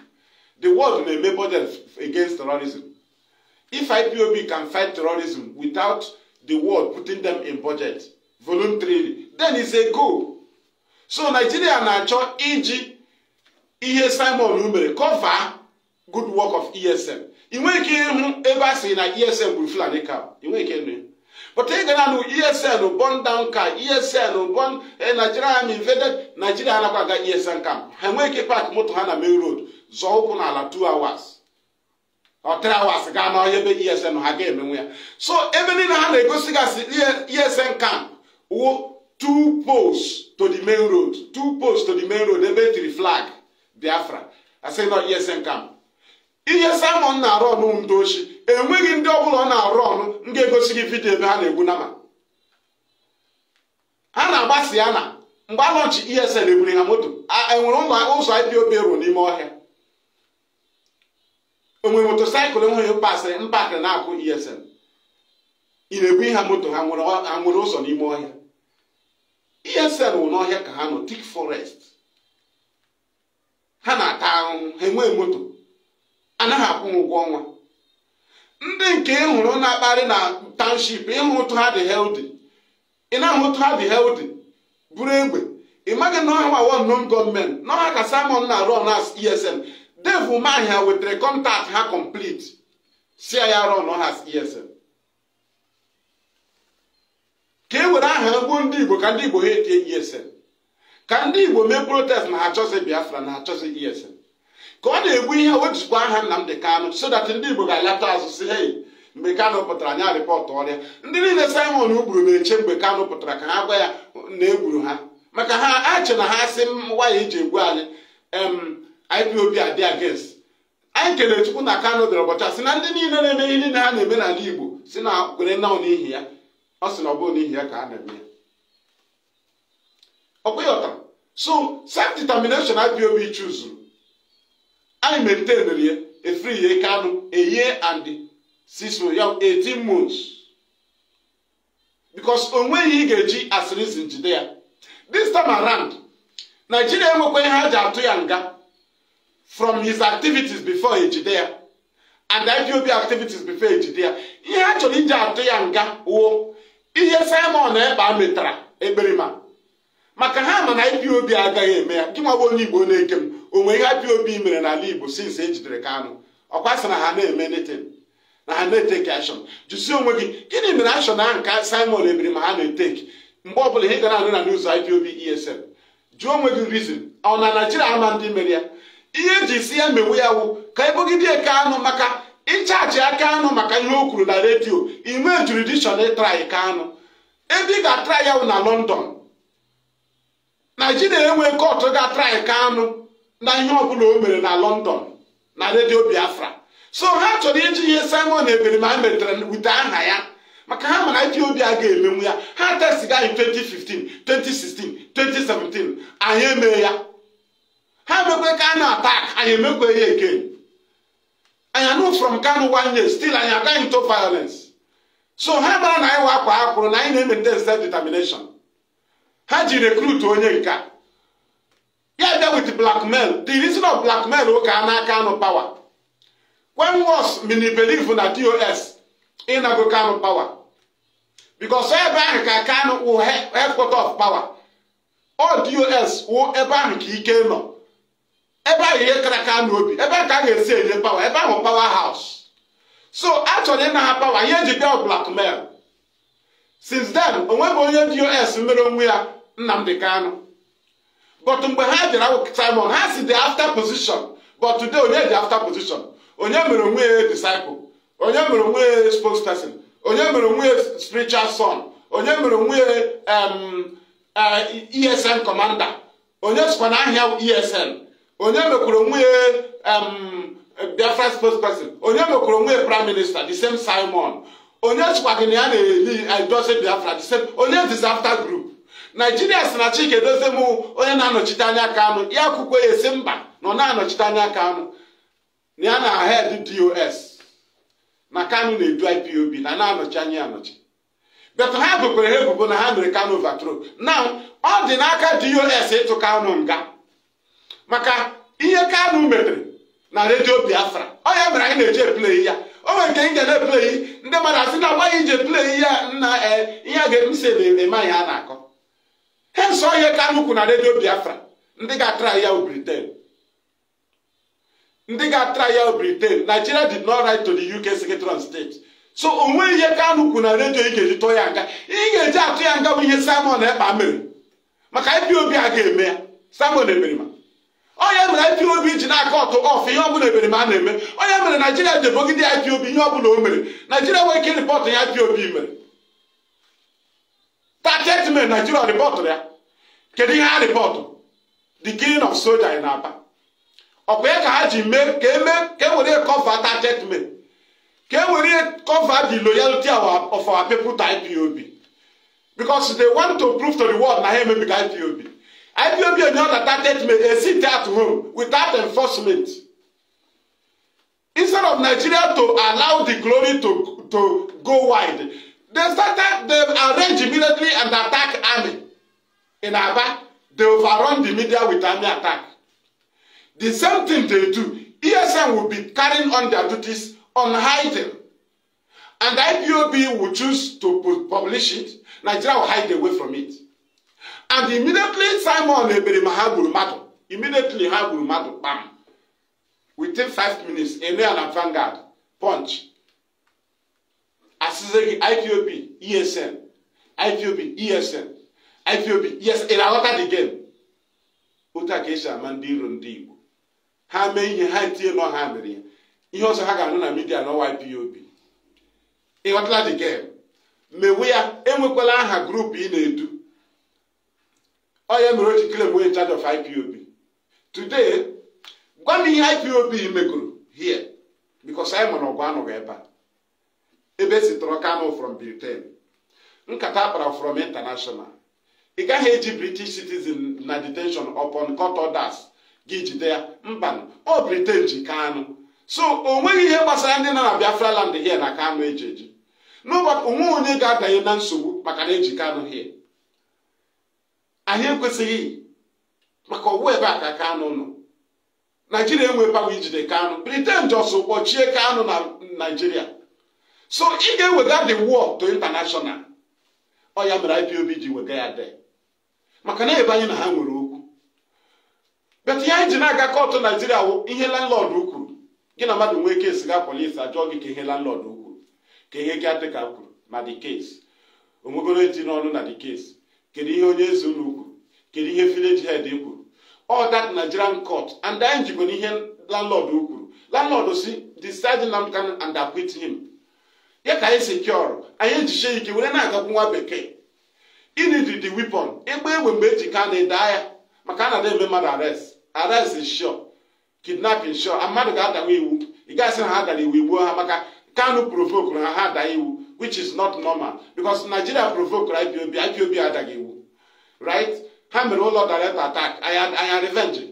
the world na-eme budget against terrorism if ipob can fight terrorism without the world putting them in budget voluntarily then it's a go. so nigeria na-achọ iji ihe simon mere cover good work of esm ị nwere ike ịhụ ebe a na esm will fill cap ị nwere ike ịnụ ya but ị gara na esl bond down ka esl bond eh, naijiria am invaded nigeria anakwa aga esl camp ha enwee ike pak moto ha na main road zọọ ụkwụ n'ala 2 hours ọtịrị awas gaa na ebe esn ha ga-emenwe ya so ebe niile ha na-egosigasị esn camp wo two posts to the main road two posts to the main road ebe tiri flag biafra asị nọ esn camp ihe samon na-arụ ọnụ ndị ochi enweghị ndị ọbụla ọ na-arụ ọnụ m ga-egosi gị vidio ebe ha na-egwu nama ha na-agbasi ya na mgbe anọchi esl eburi ha moto enwere ụzọ ipob ruo n'ime ọhịa onwere motosaịkụl enweghị mkpasị mpakịrị na-akụ esl ị na-ebu ihe moto ha nwere ụzọ n'ime ọhịa esl wụ n'ọhịa ka ha nọ tik forest ha na-ata ahụhụ ha enweghị moto anaghị akwụ m ụgwọ ọnwa ndị nke ịhụrụ hụrụ na-akparị na township ịhụ ha dị healthy ị na ahụtụ ha dị healthy buru egbe ị maghị na ọha wawo non gọọmenti na ka Simon na-arụ as ESN devu mahia wetara kọntaktị ha complete si ya rụọ na ESN ka e were aha gbuo ndị Igbo ka ndị Igbo ha etie ESN ka ndị Igbo mee protest na ha achọzi Biafra na achọzi ESN ka ọ na-egbu ihe wepụzikwa aha Nnamdị Kanụ so that ndị Igbo ga-alata azụ si hei mgbe Kanụ pụtara anya rịpọtụ ọrịa ndị niile Simon gburu na-eche mgbe Kanụ pụtara ka ha gwa ya na egburu ha maka ha achị na ha sị waya iji egbu anyị IPOB adị against anyị kelere Chukwu na Kanụ dịrị ụbọchị a sị na ndị niile na-eme ihe niile ha na-eme n'ala Igbo si na kwere nnaọ n'ihi ya ọ sị na ọ bụrụ n'ihi ya ka ha na-eme ya ọ bụghị ọtara so self determination IPOB chuzuru anyị maintain ya efiri ya Kanu a year and six months ya 18 months because onweghị ị ga-eji as reason jide ya this time around Nigeria enwekwa ihe a ji atụ ya nga from his activities before jide ya and IPOB activities before jide ya ihe a chọrọ iji atụ ya nga wo ihe Simon Ekpa metara Ekperima maka ha ma na ipob agaghị eme ya gị nwa bụ onye igbo na-eke m onwe ihe ipob mere n'ala igbo sins e jidere kanụ ọkwa sị na ha na-eme netin na ha na-eteki ashọn jụzie onwe gị gịnị mere ashọn na nka simon emere ma ha na-eteki mgbe ọbụla ihe gara anụ na n'ụzọ ipob esm jụọ onwe gị rizin ọ na naijiria ama ndị mere ya ihe eji si ya mewe ya wụ ka eke anụ maka ịchaji aka anụ maka ihe o kwuru na redio inwe juridikshọn ịtraị kanụ ebe ị ga-atra ya wụ na london naijiria enwe kọtụ ga-atrai Kanu na ihe ọbụla o mere na lọndọn na redio Biafra so ha chọrọ iji ihe Simon Eberima metere wute aha ya maka ha mana iji obi a ga-emenwu ya ha tesiga anyị 2015 2016 2017 anyị emee ya ha emekwe ka anyị na-atak anyị emekwe ya again anyị anụ from Kanu one year still anyị agaghị to violence so ha mara na anyị wakwa akwụrụ na anyị na-emete self determination ha ji rekrutu onye nka. ya bịa with blakmel the reason of blakmel ụka n'aka anụ pawa Wen was mini believe na dos ịnago kanụ pawa because ebe ahụ ka kanụ wụ headquarter of power o dos wụ ebe ahụ ka ike nọ ebe ahụ ihe kara kanụ obi ebe ahụ ka a ga-esi enye pawa ebe ahụ power haus. so a chọrọ ịna ha pawa ihe ji bịa blackmail since then onwebe onye dos mere onwe ya Nnamdi Kanu but mgbe ha bịara Simon ha si the after position but today onye dị after position onye mere onwe ya disciple onye mere onwe ya spokesperson onye mere onwe ya spiritual son onye mere onwe ya um, uh, ESN commander onye sikwa na ahịa ESN onye mekwara onwe ya um, Biafra spokesperson onye mekwara onwe ya prime minister the same Simon onye sikwa gị na ya na-eli idosi uh, Biafra the same onye disaster group naijiria si na chike dozie m onye na-anọchite anya kanụ ya kwukwe ya esi mba na ọ na-anọchite anya kanụ ya na head dos na kanụ na-edu ipob na na-anọchi anya anọchi bet ha bụkwara ha ebubo na ha mere kanụ vatro na ọ dị n'aka dos ịtụ kanụ nga maka ihe kanụ mepere na redio biafra ọ ya mere anyị na-eji eplei ya o nwere nke m ga na ndị mmadụ asị na agbaghị ije plei ya nna eh, ihe a ga-emesi eme anyị a na-akọ ha ihe ka nukwu na redio biafra ndị ga-atra ya Britain ndị ga-atra ya Britain Nigeria did not write to the UK Secretary of State so onwe ihe Kanu kwu na redio ị ga-eji tụọ ya nga ị ga-eji atụ ya nga bụ ihe Simon Ekpa mere maka IPOB a ga-eme ya Simon Eberima onye mere IPOB ji na-aka ọtụ ọf ihe ọbụla Eberima a na-eme onye mere Naijiria ji ebogide IPOB ihe ọbụla o mere Naijiria nwere ike rịpọtụ ya IPOB mere target men Nigeria report there. kedu ihe ha report the killing of soldier in Aba ọkwa ya ka ha ji mee ka emee ka ewere cover target men ka ewere cover the loyalty of our people to IPOB because they want to prove to the world na ha emebiga IPOB IPOB enye ọda target men a sit at home without enforcement instead of Nigeria to allow the glory to to go wide They started, they arrange immediately an attack army in Aba. They overrun the media with army attack. The same thing they do. ESN will be carrying on their duties on hiding. And IPOB will choose to publish it. Nigeria will hide away from it. And immediately Simon Eberima ha gburu mmadụ. Immediately ha gburu mmadụ kpam. Within five minutes, Enea na Vanguard punch asịzie gị IPOB ESN IPOB ESN IPOB ESN ị na-aghọta the game otu a ka esi ama ndị iro ndị Igbo ha mee ihe ha etinye nọ mere ya ihe ọzọ ha ga-anụ na midia n'ọwa IPOB ịghọtala the game mewe ya enwekwala aha grupu ị na-edu onye mere o ji claim onye charge of IPOB today gwa m ihe IPOB megoro here because Simon Ogwu anọghị ebe a ebe e si tọrọ kano from Britain nkata akpara from international ị gaghị eji british citizen na detention upon court orders gị jide ya mba ọ Britain ji kano so o nweghị ihe gbasara ndị na Biafra land hie na kano eji eji n'ụbọchị onwe onye ga-adanye na nsogbu maka na eji Kanu hie anyị ekwesịghị maka ọwụ ebe a ka Kanu nọ Naijiria enwekwaghị ijide Kanu Britain ji ọsọ kpọchie Kanu na Naijiria so ị ga-ewega the war to international ọ mere IPOB ji wega ya de maka na ebe anyị na ha nwere okwu bet ihe anyị ji na-aga kọtụ naijiria wụ ihe landlord kwuru gị na mmadụ nwee kesi ga polisi ajụọ gị ka ihe landlord kwuru ka ihe ka kwuru e na dị kesi onwegoro eti n'ọnụ na dị kesi kedu ihe onye eze ụlọ kwuru kedu ihe village head kwuru ọdat nigerian court and anyị jikwana ihe landlord kwuru landlord si decide Nnamdi and acquit ya ka anyị ọrụ anyị ejiche ike were na-agakwu nwa bekee inidi the weapon egbe mgbe eji ka na-eda ya maka a na eme mmadụ ares ares is sure kidnapping mmadụ ga iwu ị gasị na ha dara iwu igbuo ha maka kanu provoke na ha ada iwu which is not normal because nigeria provoke ipob ipob adaghị iwu right ha mere ụlọ direct attack anya revenge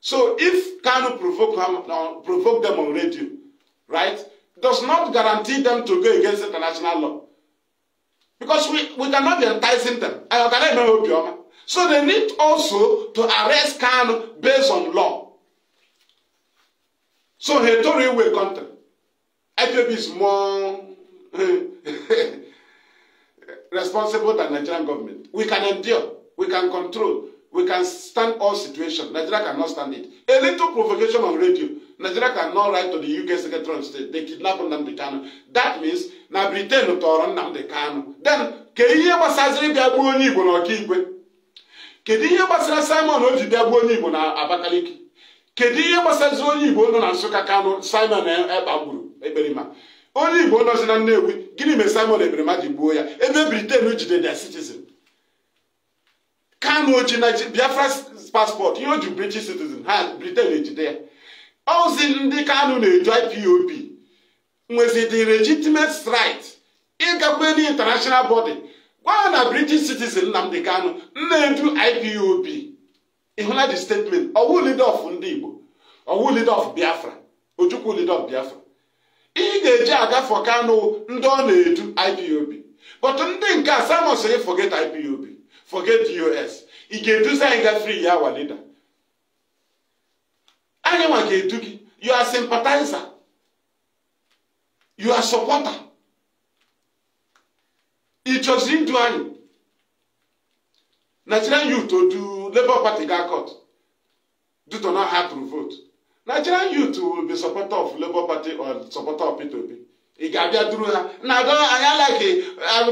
so if kanu provoke them on radio right does not guarantee them to go against international law. Because we, we cannot be enticing them. And you So they need also to arrest Kanu based on law. So Hetori will counter. IPOB is more responsible than Nigerian government. We can endure. We can control. We can stand all situations. Nigeria cannot stand it. A little provocation on radio. Nigeria cannot write to the UK Secretary of State. They kidnap Nnamdi Kanu. That means na Britain tọrọ Nnamdi Kanu. Then ke ihe gbasaziri bịa gbuo onye Igbo na Ọkaigwe. Kedu ihe gbasara Simon Oji bịa gbuo onye Igbo na Abakaliki? Kedu ihe gbasaziri onye Igbo nọ na Nsụka Kanu Simon Ekpa e gburu Ekperima? Onye Igbo nọzi na Nnewi, gịnị mere Simon Ekperima ji gbuo ya? Ebe Britain jide their citizen. kanu oji na biafra paspọtụ ihe o ji british citizen ha britain ejide ya ozi ndị kanu na-eju ipob nwezidi legitimate right ịgakwe n'international body gwa na british citizen nnamdị kanu na edu ipob ịhụla the statement ọwụ lidof ndị igbo ọwụ lidof biafra ojukwu lidof biafra ihe ga-eji agafe kanu ndị ọ na-edu ipob but ndị nke a sanosịrị forget ipob forget us ị ga-edu anyị gafere ya awa leda anyị nwa ga-edu gị you are sympathizer you are supporter ị chọziri idu anyị nigerian youth odu labour party ga court duto not hapụ vote nigerian youth will be supporter of labour party or supporter of peter obi ị ga-abịa duru ha na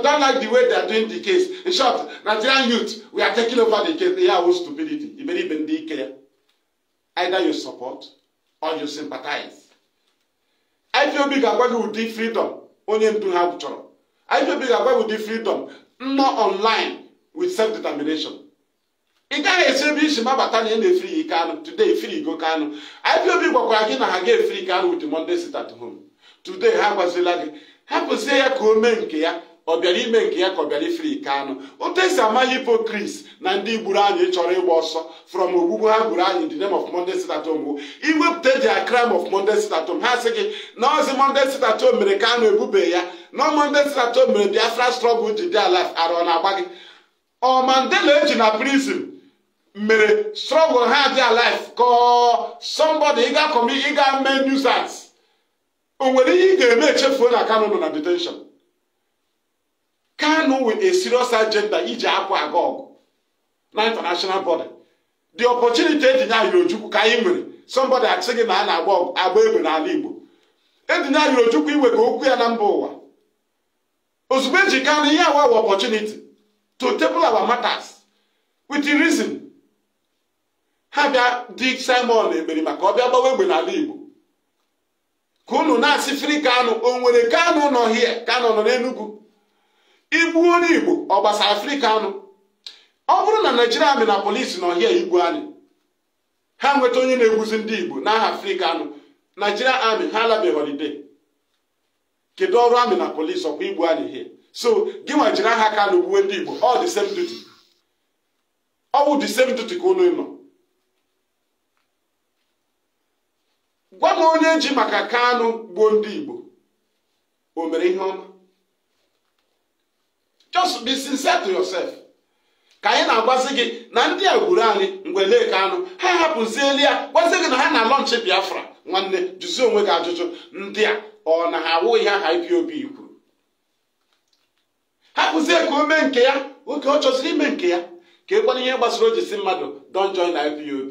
don't like the way they are doing the case in short Nigerian youth we are taking over the case ya wụ stupidity iberibe ndị ike ya either you support or you sympathize IPOB ga-agwa gị ụdị freedom onye ndu ha chọrọ IPOB ga-agwa gị ụdị freedom nọ online with self determination ị gaghị esi ebe isi mabata na ị na-efiri ya ike anụ today efiri go Kanu IPOB gwakwara gị na ha ga-efiri Kanu with Monday sit at home today ha gbazila gị hapụzie ya ka o mee nke ya ọ bịara ime nke ya ka ọ bịara ifere ike anụ otu esi ama hipokris na ndị gburu anyị chọrọ ịgba ọsọ from ogbugbu ha gburu anyị the name of Monday sit bụ iwepụta their akram of Monday sit ha sị gị na ozi Monday sit mere ka a na-ebube ya na Monday sit mere Biafra struggle ji dia life ara ọ na-agba gị ọ Mandela eji na prison mere struggle ha dị alive ka somebody ịga kọmi ịga mee nuisance o nwere ihe ị ga-eme echefuo na kano nọ na detention Kanu wi a serious agenda iji apụ aga ọgụ na international body the opportunity edinye Ahirochukwu ka anyị nwere somebody achị gị na a na-agba agba egbe n'ala Igbo edinye Ahirochukwu iwe ka okwu ya na mba ụwa ozugbo eji Kanu ihe awa opportunity to table our matters with reason ha bịa di Simon ekpere maka ọbịa gbawa egbe n'ala Igbo ka unu na-asị fri Kanu o nwere Kanu nọ hie nọ n'Enugu igbu onye Igbo ọ gbasara afrika anụ. ọ bụrụ na naijiria amị na polisi nọ hie igbu anyị ha nweta onye na-egbuzi ndị Igbo n'aha fri anụ Naịjirịa amị ha alabeghị holide kedu ọrụ amị na polisi ọkwa igbu anyị hie so gị nwa jiri aha Kanu gbuo ndị Igbo ọ dị same duty ọ bụ dị same duty ka unu nọ gwa m onye ji maka kanụ gbuo ndị igbo o mere ihe ọma just be sincere to yourself ka anyị na-agwazi gị na ndị a gburu anyị mgbe lee kanụ ha hapụzieli ya gwazi gị na ha na lọnchi biafra nwanne jụzi onwe gị ajụjụ ndị a ọ na ha awụ ihe aha ipob kwuru hapụzie ka o mee nke ya oge ọ chọsiri ime nke ya ka e gbara ihe gbasara o ji si mmadụ don join ipob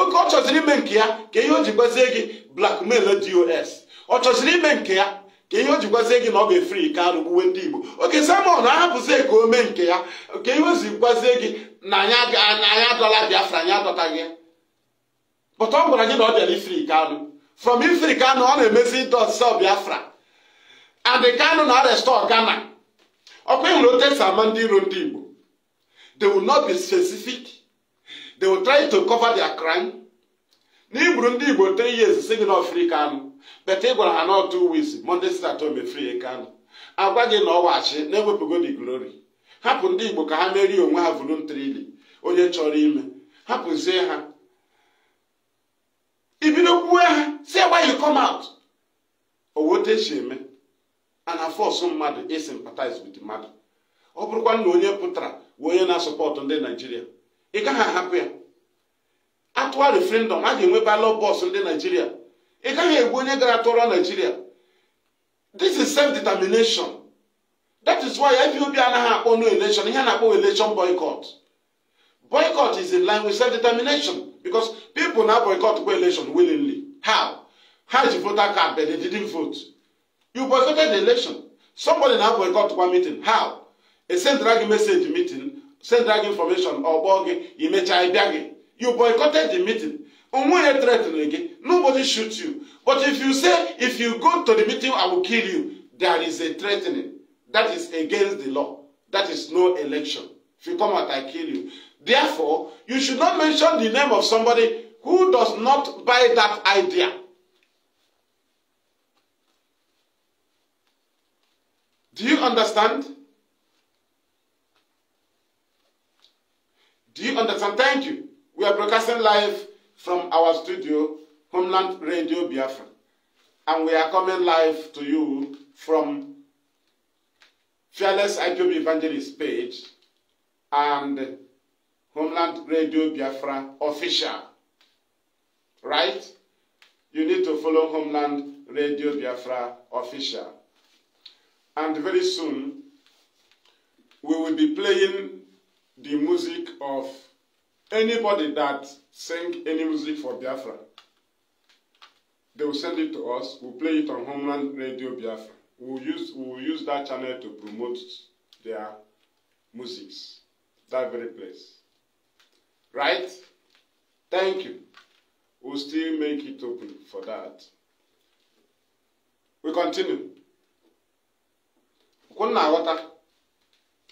oke ọ chọziri ime nke ya ka ihe o ji gbazie gị blackmail dos ọ chọziri ime nke ya ka ihe o ji gwazie gị na ọ ga-efri ka arụgbuwe ndị igbo oke samon ahapụzie ka o mee nke ya ka ihe o gwazie gị na anyị adọla biafra anyị adọtaghị pụta ọ gwara gị na ọ bịara ifri kanụ from ifri kanụ ọ na-emezi ịdọ ọsịsa biafra adị kanụ na arestọ gana ọkwa ịhụrụ otesa ama ndị iro ndị igbo they will not be specific they will try to cover their crime na igburu ndị igbo te years si gị na ofri kanụ beta ị gwara ha na otu wiz monde ato mefrie kanụ agwa gị na ọwachi na-ewepụgo the glory hapụ ndị igbo ka ha merie onwe ha voluntarily onye chọrọ ime hapụzie ha ibido kwuo ha si why you come out owote si eme ana fọsụ mmadụ i with mmadụ ọ bụrụkwa na onye pụtara wee onye na-asọpọtụ ndị naijiria ị gaghị ahapụ ya atụwa refrendọm a ga-enwe ballot box ndị naijiria ị gaghị egbu onye gara tụọrọ naijiria this is self determination that is why IPOB anaghị akpọ no election ihe na-akpọ election boycott boycott is in line with self determination because people na boycott kwa election willingly how ha ji voter card but they didn't vote you boycotted the election somebody na boycott kwa meeting how a sendra gị message meeting send that information ọ gbọọ gị imecha ịbịa gị you boycotted the meeting onweghị threatening gị nobody shoot you but if you say if you go to the meeting i will kill you there is a threatening that is against the law that is no election if you come out i kill you therefore you should not mention the name of somebody who does not buy that idea do you understand. Do you understand? Thank you. We are broadcasting live from our studio, Homeland Radio Biafra. And we are coming live to you from Fearless IPOB Evangelist page and Homeland Radio Biafra official. Right? You need to follow Homeland Radio Biafra official. And very soon, we will be playing the music of anybody that sing any music for Biafra. They will send it to us. We'll play it on Homeland Radio Biafra. We'll use, we'll use that channel to promote their musics. That very place. Right? Thank you. We'll still make it open for that. We continue. Kuna water.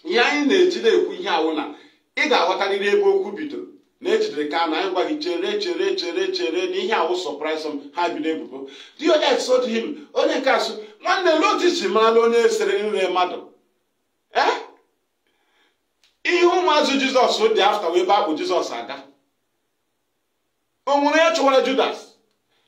ihe anyị na-eji na-ekwu ihe awụ na ị ga-aghọtarịrị n'ebe okwu bidoro na ejidere Kanu anyị gwaghị chere chere chere chere na ihe awụ m ha bido ebubo dos sold him onye nke asụ nwanne lotichi marala onye sere nri mmadụ ee eh? ihe ụmụazụ jizọs dị afta wee bakpụ jizọs aga o nwere ya chụwara judas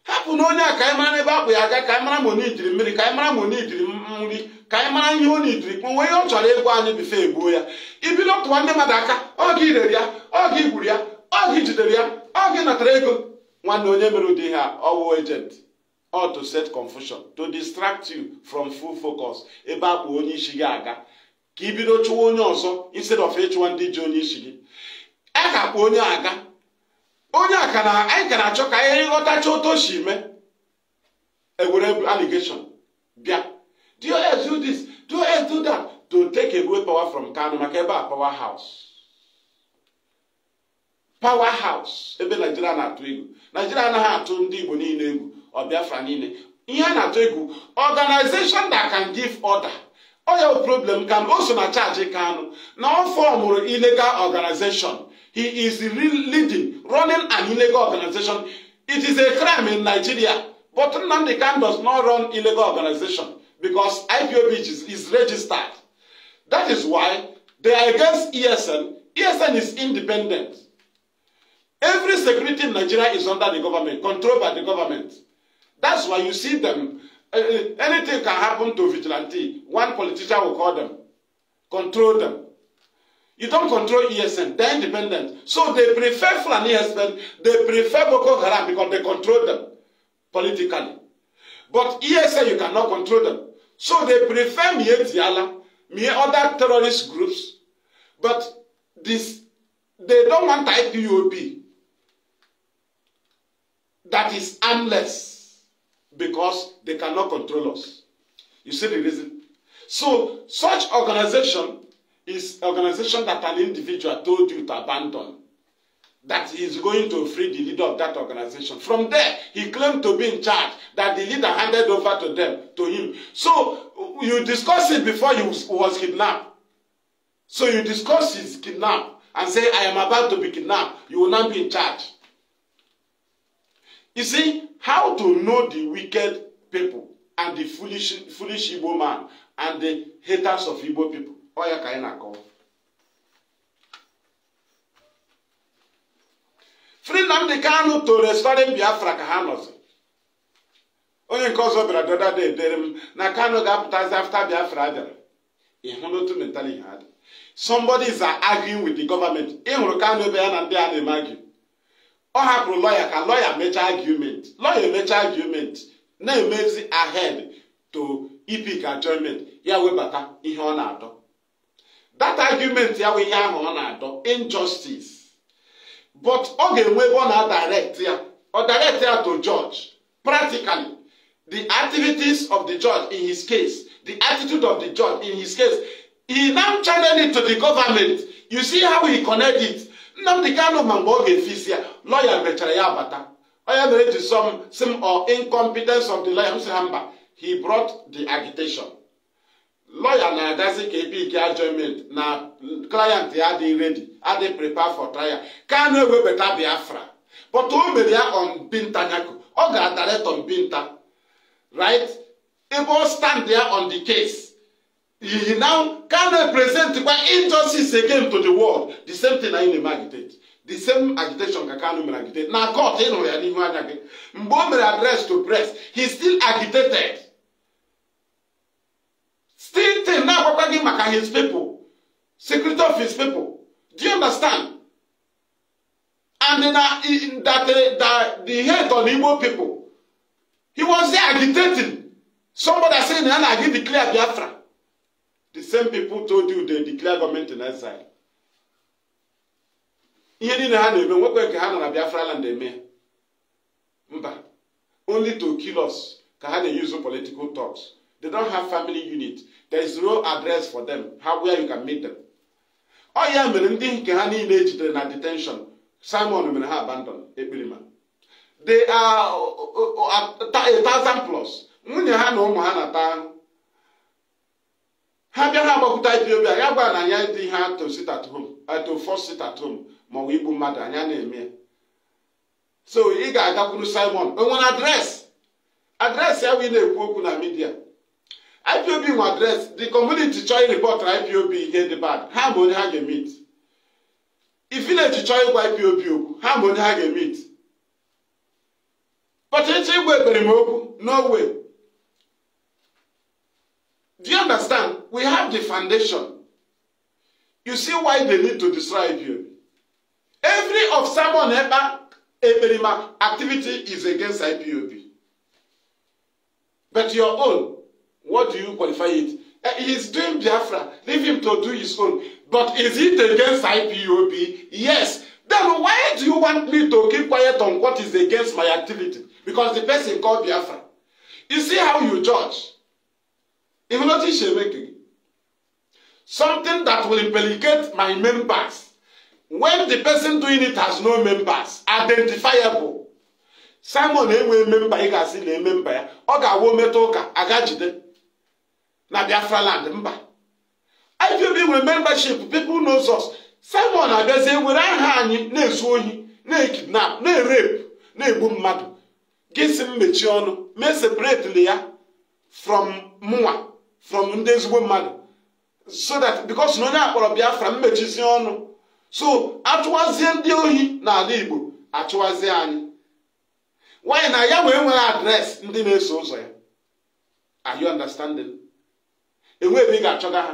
hapụ na onye a ka anyị mara n'ebe akpụ ya aga ka anyị mara ma onye ijiri mmiri ka anyị mara ma onye ijiri nri ka anyị mara ihe onye ijiri kpụnwe ihe ọ chọrọ ego anyị bife egbuo ya ibido tụwa ndị mmadụ aka oge irere ya oge igwuru ya oge ijidere ya oge natara ego nwanne onye mere ụdị ihe a ọwụ agent or to set confusion to distract you from full focus ebe akpụ onye isi gị aga ka ibido chụwa onye ọzọ instead of ịchụwa ndị ji onye isi gị a ga-akpụ onye aga onye a ka na anyị ka na-achọ ka anyị ghọtacha otu o si mee ewere allegation bịa do us do this do us do that to take away power from Kanu maka ebe a power house power house ebe naijiria na-atụ egwu naijiria anaghị atụ ndị igbo niile egwu ọ biafra niile ihe a na-atụ egwu organization that can give order oya problem ka o so na chaji Kanu na ọ fọmụrụ ilegal organization he is leading, running an illegal organization. It is a crime in Nigeria. But Nnamdi Kan does not run illegal organization because IPOB is, is registered. That is why they are against ESN. ESN is independent. Every security in Nigeria is under the government, controlled by the government. That's why you see them. Uh, uh anything can happen to vigilante. One politician will call them, control them. You don't control ESN. They're independent. So they prefer Fulani husband. They prefer Boko Haram because they control them politically. But ESN, you cannot control them. So they prefer Mie Diala, Mie other terrorist groups. But this, they don't want IPOB that is harmless because they cannot control us. You see the reason? So such organization is organization that an individual told you to abandon. That he is going to free the leader of that organization. From there, he claimed to be in charge, that the leader handed over to them, to him. So you discuss it before you was kidnapped. So you discuss his kidnap and say, I am about to be kidnapped. You will not be in charge. You see, how to know the wicked people and the foolish, foolish Igbo man and the haters of Igbo people? ọ ya ka anyị na-akọwa Free Nnamdi toro to Biafra ka ha nọzi onye nke ọzọ bịara doda da edere m na Kanu ga-apụtazi afta Biafra bịara ịhụ n'otu mentali ha dị somebody is arguing with the government ịhụrụ ebe ya na ndị a na-eme argue ọ hapụrụ lọya ka lọya mechaa agument lọya emechaa argument na-emezi ahed to ipik e ajoiment ya webata ihe ọ na-atọ that argument ya bụ ihe ahụ ọ na-adọ injustice but ọ ga-enwe ebe ọ na-direct ya ọ direct ya to judge practically the activities of the judge in his case the attitude of the judge in his case he now channel it to the government you see how he connect it nnamdị kanu ma mgbe ọ ga-efisi ya lawyer mechara ya bata onye mere ji some some or incompetence of the lawyer m sị ha mba he brought the agitation lawyer na-agasi ka epik adjoment na client ya adịghị ready adịghị prepare for trial ka a na-ewebata biafra but o mere ya ọmbinta nyako ọ ga-adarịta ọmbinta right ebe o stand ya on the case he now can represent kwa injustice again to the world the same thing anyị na-eme agitate the same agitation ka Kanu mere agitate na court ị nụrụ ya n'ihu anya gị mgbe o mere address to press he still agitated stitin na-agbakwa gị maka his people security of his people do you understand and na uh, that, uh, that the hate on Igbo people he was there agitating somebody say na na-agị declare Biafra the same people told you they declare government in exile ihe niile ha na-eme nwekwa nke ha nọ na Biafra land eme mba only to kill us ka ha na-use political talks they don't have family unit there is no address for them how where you can meet them ọ ya mere ndị nke ha niile ejidere na detention simon mere ha abandon ekpirima they are a plus nwunye ha na ụmụ ha na-ata ha bịa ha agbakwute a, ya agwa na anya dị ha to sit at home eh, to force sit at home ma igbu mmadụ anya na-eme so ị ga-agakwuru simon o nwere adreesị ya ị na-ekwu okwu na midia ipob nwe adreesị the community chọọ ịrịpọtụ ipob ihe dị bad ha ma onye ha ga-emit if village chọọ ịgwa ipob okwu ha ma onye ha ga-emit pọchịchị ịgwa ekpere m okwu no way do you understand we have the foundation you see why they need to destroy ipob every of sermon ekpa ekperima activity is against ipob but your own What do you qualify it? Uh, he's doing Biafra. Leave him to do his own. But is it against IPOB? Yes. Then why do you want me to keep quiet on what is against my activity? Because the person called Biafra. You see how you judge. If not making something that will implicate my members. When the person doing it has no members, identifiable. Simon enwe member ị ga-asị na-eme mba ya, ọ ga-awụ na biafra land mba ipob nwere membership people know us simon abiazie were aha anyị na-ezu ohi na-ekidnap na-erep na-egbu mmadụ gị si mmechi ọnụ mee separately ya from mụnwa from ndị ezigbo mmadụ so that because na onye akpọrọ biafra mmechizi ọnụ so achụwazie ndị ohi n'ala igbo achụwazie anyị nwanyị na ya wee nwere adreesị ndị na-eso ụzọ ya are you understanding enwe ebe ị ga-achọga ha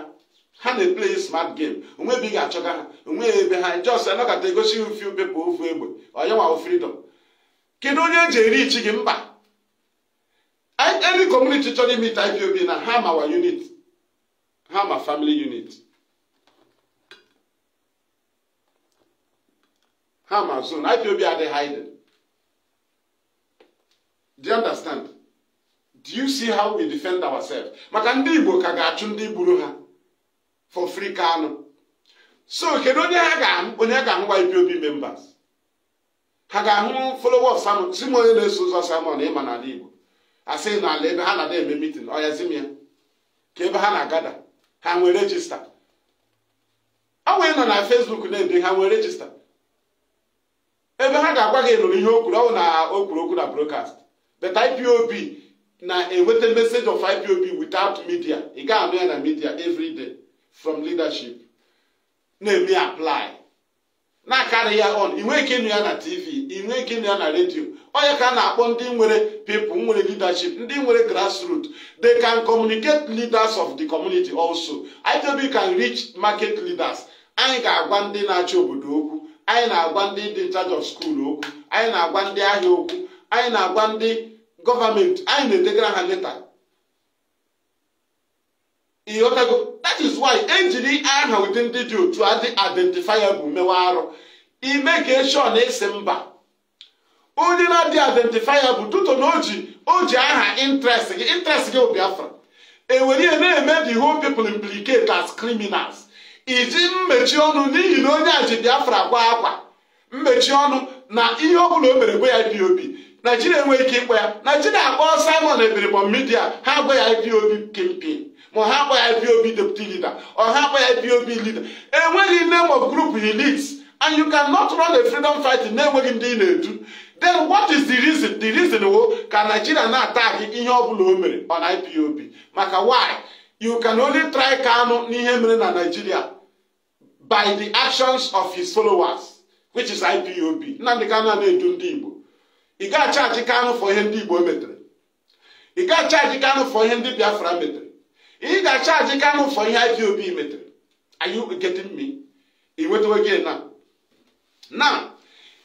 ha na-eplay smart game onwe ebe ị ga-achọga ha onwe ebe ha just anọkata egosi few people ofu egbe onyenwa freedom kedu onye eji eri ichi gị mba any community chọrọ imit ipob na ha ma unit ha ma family unit ha ma zone ipob adịghị hidden dị understand do you see how we defend ourselves maka ndị igbo ka ga-achụ ndị gburu ha for free Kanu so kedu onye ha ga onye ga-ahụ YPOB members ha ga-ahụ followers Simon si m onye na-eso ụzọ Simon ịma n'ala igbo asịghị n'ala ebe ha na-ada eme meeting ọyazim ya ka ebe ha na-agada ha nwee rejista ọ nwee nọ na fesbuk na-ede ha nwee rejista ebe ha ga-agwa gị nụrụ ihe o ọ na okwuru okwu na broadcast but IPOB na-enweta message of ipob without media ị ga-anụ ya na media everyday day from leadership na-eme apply na-akarị ya on ị ike ịnụ ya na tv inwe nwee ike ịnụ ya na redio onye ka a na-akpọ ndị nwere people nwere leadership ndị nwere root they can communicate leaders of the community also ipob can reach market leaders anyị ga-agwa ndị na-achị obodo okwu anyị na-agwa ndị dị of school okwu anyị na-agwa ndị ahịa okwu anyị na-agwa ndị gọọmenti anyị na-edegara ha leta ịghọtago that is why enjiri aha ụdị ndị dị otu adị identifiable mewe arụ ime ka e eshọn isi mba onye na-adị identifiable tụtụ na o ji aha interest gị interest gị Biafra ewere ihe na-eme the whole people implicate as criminals iji mmechi ọnụ n'ihi na onye a ji Biafra gwa akwa mmechi ọnụ na ihe ọ bụla o mere bụ ya dị obi naijiria enweghị ike ịkpọ ya nigeria akpọọ simon ebiribọ midia ha agba ya ibob kempin ma ha agba ya ibob deputy leader or ha agba ya ibob leader enweghị name of group elites and you not run a freedom fighting na-enweghị ndị ị na-edu then what is the reason the reason wo ka nigeria na-atagị ihe ọbụla o mere on ipob maka why you can only try kanu n'ihe mere na nigeria by the actions of his followers which is ipob nnamdị kanu na-edu ndị igbo ị ga achajị kanụ fọ ihe ndị igbo metere ị ga achajị kanụ fọ ihe ndị biafra metere ị ga-achajị kanụ fọ ihe ipob metere anyị nketị mmi inwetawo gị na na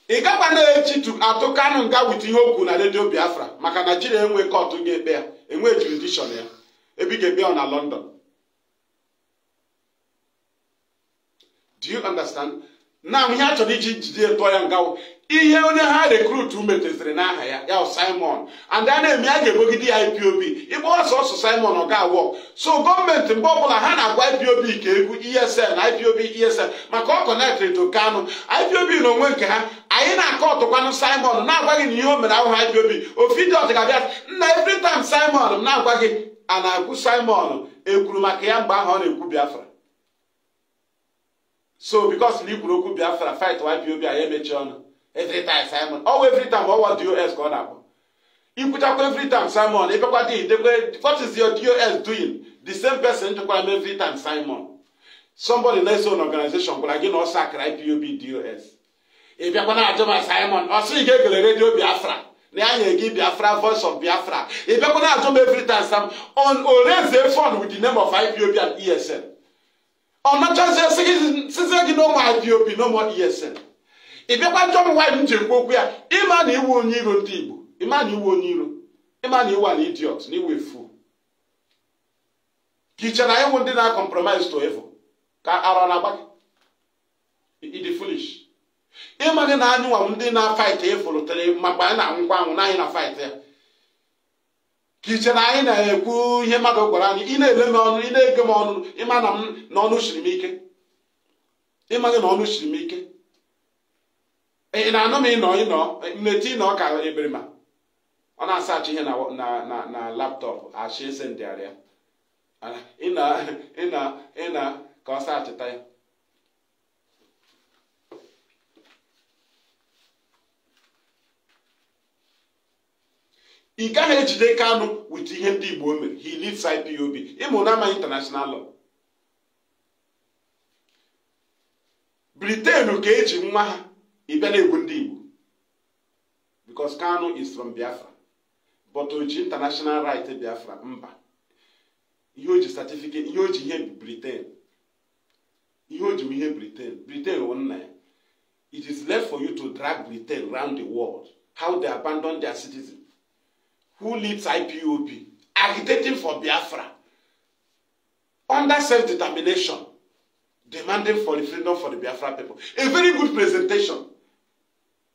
ị gaba na-eji atụ kanụ nga wit ihe okwu na redio biafra maka naijiria enwe kọtụ ga-ekpe ya enwe jurisdikshọn ya ebe ị ga-ekpe ya na london do you understand na ihe a chọrọ iji jide tụọ ya ngawo ihe onye ha rekrut metụtara n'aha ya ya simon and a na-eme a ga-emegide ya ipob ịgba ọsọ ọsọ simon ọ ga-awọ so gọọmenti mgbe ọbụla ha na-agwa ipob ka egwu esl na ipob esl maka ọ kọnektịrị to kanụ ipob na onwe nke ha anyị na-akọ ọtụkwanụ simon na-agwaghị na ihe o mere ahụhụ ipob ofi ọdịgabịa nna every simon m na-agwa gị a na-agwụ simon ekwuru maka ya mgbe ahụ ọ na-ekwu biafra so because na ikwuru okwu biafra fight ipob ya emechi ọnụ every time simon All oh, every time what was DOS you else call am ikwuchakwa every time simon ịbịakwa dị idekwe what is your dos doing the same person njekwara m every time simon somebody na-eso an organization gwara gị na ọsọ akara ipob dos ịbịakwa na-ajụ ma simon ọ sị ga-egere redio biafra na ya nye gị biafra voice of biafra ịbịakwa na-ajụ m every time Simon. on oreze fund with the name of ipob and esn ọ nachazie sizie gị no more ipob no more esn ị bịakwa njọ m nwaanyị m ji ekwu okwu ya ịma na iwu onye iro ndị Igbo ịma na iwu onye iro ịma na iwu an idiot na iwu efu ka iche na ịwụ ndị na-akọmpromise to evo ka ara na-agba gị ịdị foolish ịmaghị na anyị nwa ndị na-afaịtị ịfụlụtere maka anyị na-anwụkwa anwụ na anyị na-afaịtị ya ka iche na anyị na-ekwu ihe mmadụ gwara anyị ị na-ele m ọnụ ị na-ege m ọnụ ịma na m ọnụ siri m ike ịmaghị na ọnụ siri m ike ị na-anụ m ịnọ ịnọ nnechi ịnọ ka eberima ọ na-asachi ihe na na laptọpụ achi sendịarịa ịna ịna ịna ka ọ sachịta ya ị gaghị ejide kanụ wit ihe ndị igbo mere he leads ipob ịmụ na ama international law briten ka eji nwa ha ị bịa na-egbu ndị igbo because kanu is from biafra but oji international right biafra mba ihe o ji certificate ihe o ji ihe britain ihe o ji ihe britain britain wụ nna ya it is left for you to drag britain round the world how they abandon their citizen who leads ipob agitating for biafra under self-determination demanding for the freedom for the biafra people a very good presentation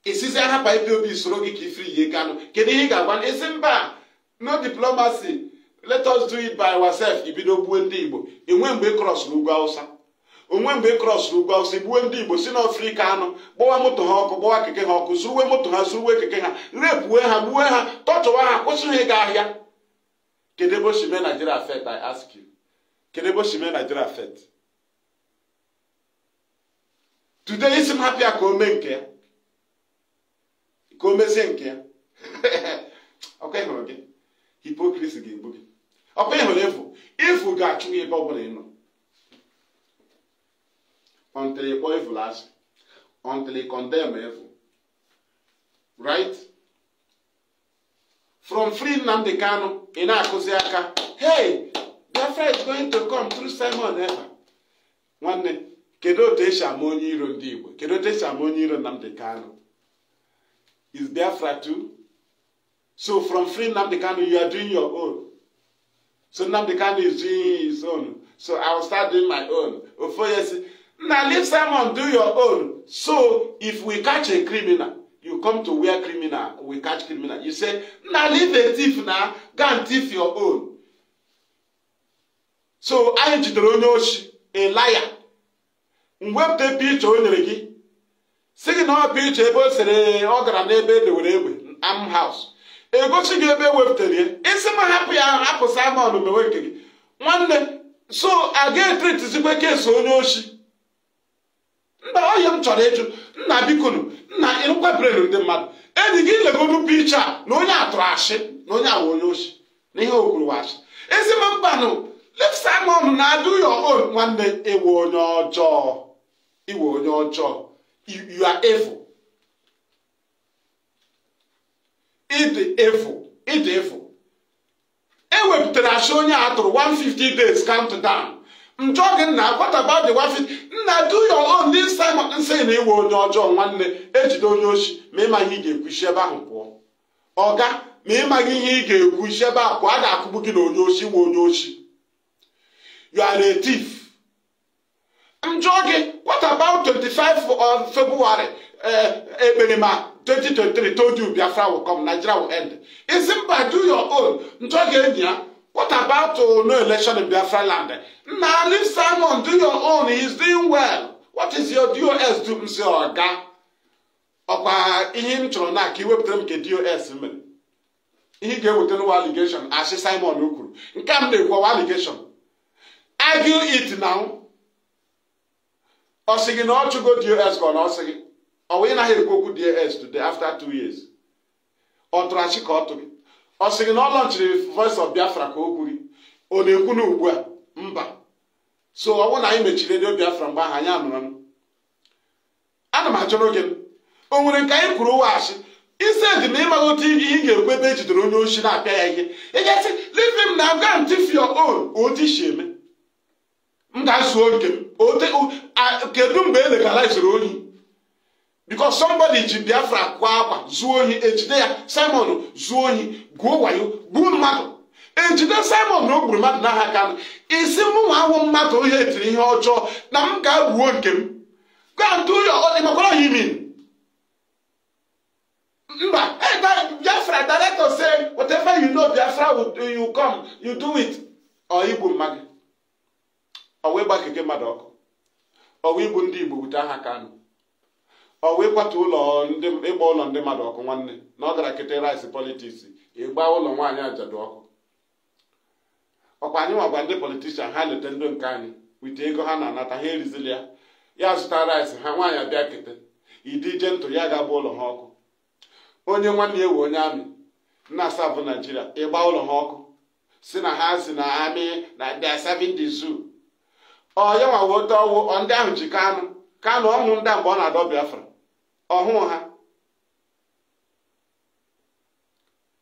isizi ahapa ipe obi soro gị ka ifiri ya ego anụ kedu ihe ị ga-agwa isi mba no diplomacy let us do it by ourselves ibido gbuo ndị igbo enwe mgbe krọs na awụsa onwe mgbe krọs na ugwu awụsa igbuo ndị igbo si n'afrika anụ gbawa moto ha ọkụ gbawa keke ha ọkụ zuruwe moto ha zuruwe keke ha repue ha gbuwe ha tọtụwa ha kwụsị ha ịga ahịa kedu ebe oshime i ask you kedu ebe oshime today isi m hapịa ka o mee nke ya ka o mezie nke ya ọkwa ịhụrụ gị hipokrisi ga-egbu gị ọkwa ịhụrụ efu efu ga-achụ gị ebe ọ bụla ịnọ nọ until you call evil as until you condemn evil right from free Nnamdi Kanu ị na-akụzi aka hey Biafra is going to come through Simon Ekpa nwanne kedu otu esi ama onye iro ndị Igbo kedu otu esi ama onye iro Nnamdi Kanu is there for too. So from free Nnamdi Kanu, you are doing your own. So Nnamdi Kanu is doing his own. So I will start doing my own. Ofoye say, now leave someone do your own. So if we catch a criminal, you come to where criminal, we catch criminal. You say, now leave a thief now, go and thief your own. So anyị jidere onye a liar. M wepụta picha o nyere gị si gị na ọ bụ ije ebe o sere ọ gara n'ebe edewere egbe am haus egosi gị ebe e wepụtara ya isi m hapụ ya ahụ hapụ simon mewe nke gị nwanne so a ga-etritizikwa onye oshi mba oyi m chọrọ ịjụ nna bikonu nna ịrụkwabere ndị mmadụ enyi gị legodu picha na onye atụrụ ashị na onye awa onye oshi na ihe okwuru washi ezi m simon na adụ ya nwanne iwe onye ọjọọ iwe onye ọjọọ you, are evil. Ịdị evil. Ịdị evil. E wepụtara asị onye a tụrụ 150 days count down. njọ gị nna what dị the 150 nna do your own this time nsị na iwe onye ọjọọ nwanne ejide onye ochi ma ihe ị ga-ekwu ebe ahụ pụọ ọga ma ịmaghị ihe ị ga-ekwu ebe ahụ pụọ a ga-akụgbu gị na onye ochi nwe onye ochi njụọ gị what about 25 of uh, February uh, ekperima 2023 told you Biafra will come Nigeria will end isi mba do your own njọ gị enyi ya what about uh, no election in Biafra land nna leave Simon do your own he is doing well what is your dos do m si ọga ọkwa ihe m chọrọ na ka iwepụtara m nke dos mere ihe ga-eweta n'ụwa allegation asị Simon kwuru nke a m na-ekwu ọwa allegation argue it now ọ sị gị na ọ chụgo dos ka ọ na ọsị gị ọ wee naghị ekwu okwu dos today after two years ọ tụrụ achị ka ọ tụ gị ọ sị gị na ọ lọnchiri voice of biafra ka o kwuru ọ na-ekwu na ugbu a mba so ọ bụrụ na anyị mechiri redio biafra mgbe ahụ anyị anụrụ m ana m achọ n'oge m o nwere nke anyị kwuru weghachi isedi na ịmaghị otu ihe ị ga-ekwu ebe e jidere onye osi na-apịa ya ihe ị gasị leave na I'm going to otu isi eme m ga-azụ oge kedu mgbe e legaliziri ohi because somebody ji biafra kwa akwa zuo ohi ejide ya simon zuo ohi guo wayo gbuo mmadụ ejide simon na o mmadụ n'aha aka isi mụnwa ahụ mmadụ ohi etiri ihe ọjọọ na m ga-agbuo nke m gandụmakwara ya imin mba biafra director say whatever you know biafra you come you do it ọ igbu mmadụ ọwa ịgba keke mmadụ ọkụ ọwa igbu ndị igbo bute aha kanụ ọwa ịkwatu ụlọ ịgba ụlọ ndị mmadụ ọkụ nwanne na ọ gara kete rice politiks ịgba ụlọ nwaanyị ajadu ọkụ ọkwa anyị nwagwa ndị politishan ha leta ndụ nke anyị wite ego ha na-anata ha erizili ya ya zụta rice ha nwaanyị abịa kete ịdị ije ntụ ya ga-abụ ụlọ ha ọkụ onye nwanne ewu onye amị nna asaa bụ naijiria ịgba ụlọ ha ọkụ si na ha si na amị na they are ọ ya nwa wote ọwụ ndị ahụ ji kanụ kanụ ọhụ ndị mgbe ọ na-adọ biafra ọhụụ ha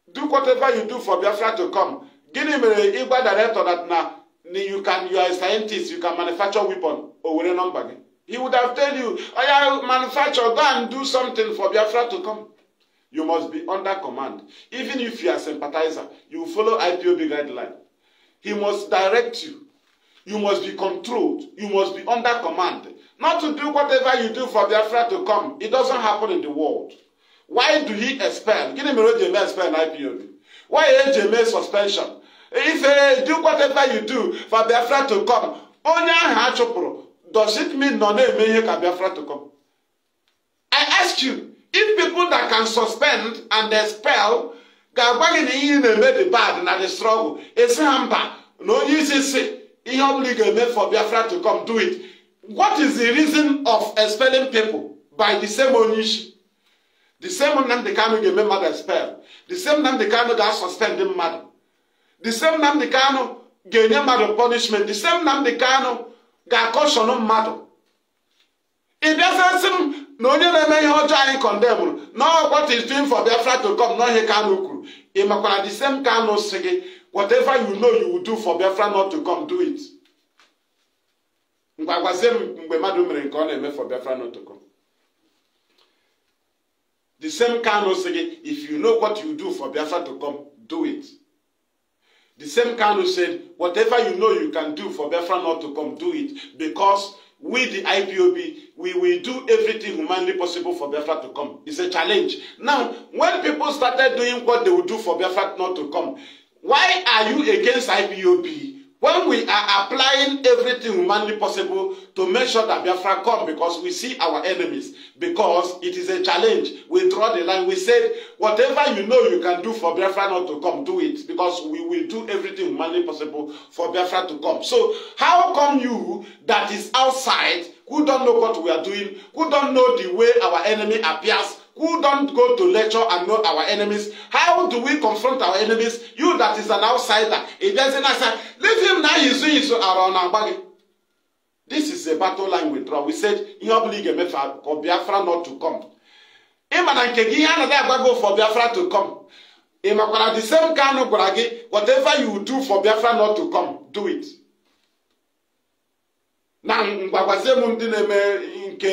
do whatever you do for biafra to come gịnị mere ịgwa director that na you can you are a scientist you can manufacture weapon o were nọmba gị he would have tell you oya oh, manufacture go and do something for biafra to come you must be under command even if you are sympathizer you follow ipob guideline he must direct you You must be controlled. You must be under command. Not to do whatever you do for Biafra to come. It doesn't happen in the world. Why do he expel? Give mere o ji eme expel IPOB? Why eji suspension? If uh, do whatever you do for Biafra to come, onye ahụ does it mean na ọ na-eme ihe ka Biafra to come? I ask you, if people that can suspend and expel ga-agwa in na ihe na the bad and the struggle, it's hamper. No na onye isi ihe ọ bụla ị ga-eme for Biafra to come do it what is the reason of expelling people by the same onyeisi the same Nnamdi Kanu ga-eme mmadụ expel the same Nnamdi Kanu ga-asuspend mmadụ the same Nnamdi Kanu ga-enye mmadụ punishment the same Nnamdi Kanu ga-akọshọn mmadụ ị bịazasị m na onye na-eme ihe ọjọọ anyị kọndemụrụ na what is doing for Biafra to come n'ọhịa Kanu kwuru ị makwara the same Kanu si gị Whatever you know you will do for Biafra not to come, do it. Ngwagwa sie mgbe mmadụ mere nke ọ na-eme for Biafra not to come. The same Kanu sị gị, if you know what you do for Biafra to come, do it. The same Kanu said, whatever you know you can do for Biafra not to come, do it. Because we, the IPOB, we will do everything humanly possible for Biafra to come. It's a challenge. Now, when people started doing what they would do for Biafra not to come, Why are you against IPOB when we are applying everything humanly possible to make sure that Biafra come because we see our enemies, because it is a challenge. We draw the line. We said, whatever you know you can do for Biafra not to come, do it, because we will do everything humanly possible for Biafra to come. So how come you that is outside, who don't know what we are doing, who don't know the way our enemy appears, who don't go to lecture and know our enemies. How do we confront our enemies? You that is an outsider. He doesn't answer. Leave him now. He's doing his own This is a battle line withdrawal. We said, ihe ọbụla ị for Biafra not to come. Ị ma na nke gị ihe anaghị agwa gị for Biafra to come. Ị makwara the same kind of whatever you do for Biafra not to come, do it. na ngwagwazie m ndị na-eme nke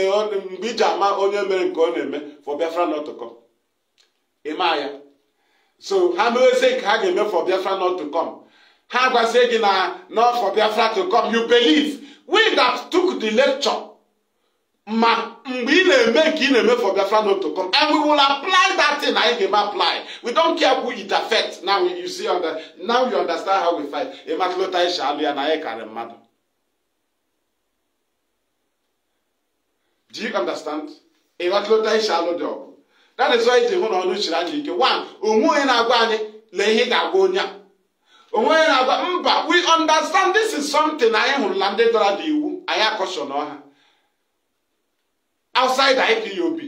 mgbe iji ama onye mere nke ọ na-eme for biafra not to come ịma ya so ha mewezie nke ha ga-eme for biafra not to come ha gwazie gị na not for biafra to come you believe we that took the lecture ma mgbe ị na-eme nke ị na-eme for biafra not to come and we will apply that thing anyị ga-eme apply we don't care who it affect now you see now you understand how we fight ịsha alụ ya na anyị mmadụ Do you understand? ịghọtala isi alụ dị ọgụ that is why ji hụ na ọnụ chiri anyị ike one onye na-agwa anyị lee ihe ga-agwa onye a onye na-agwa mba we understand this is something anyị hụrụ na ndị dọrọ dị iwu anyị akọshọ n'ọha outside IPOB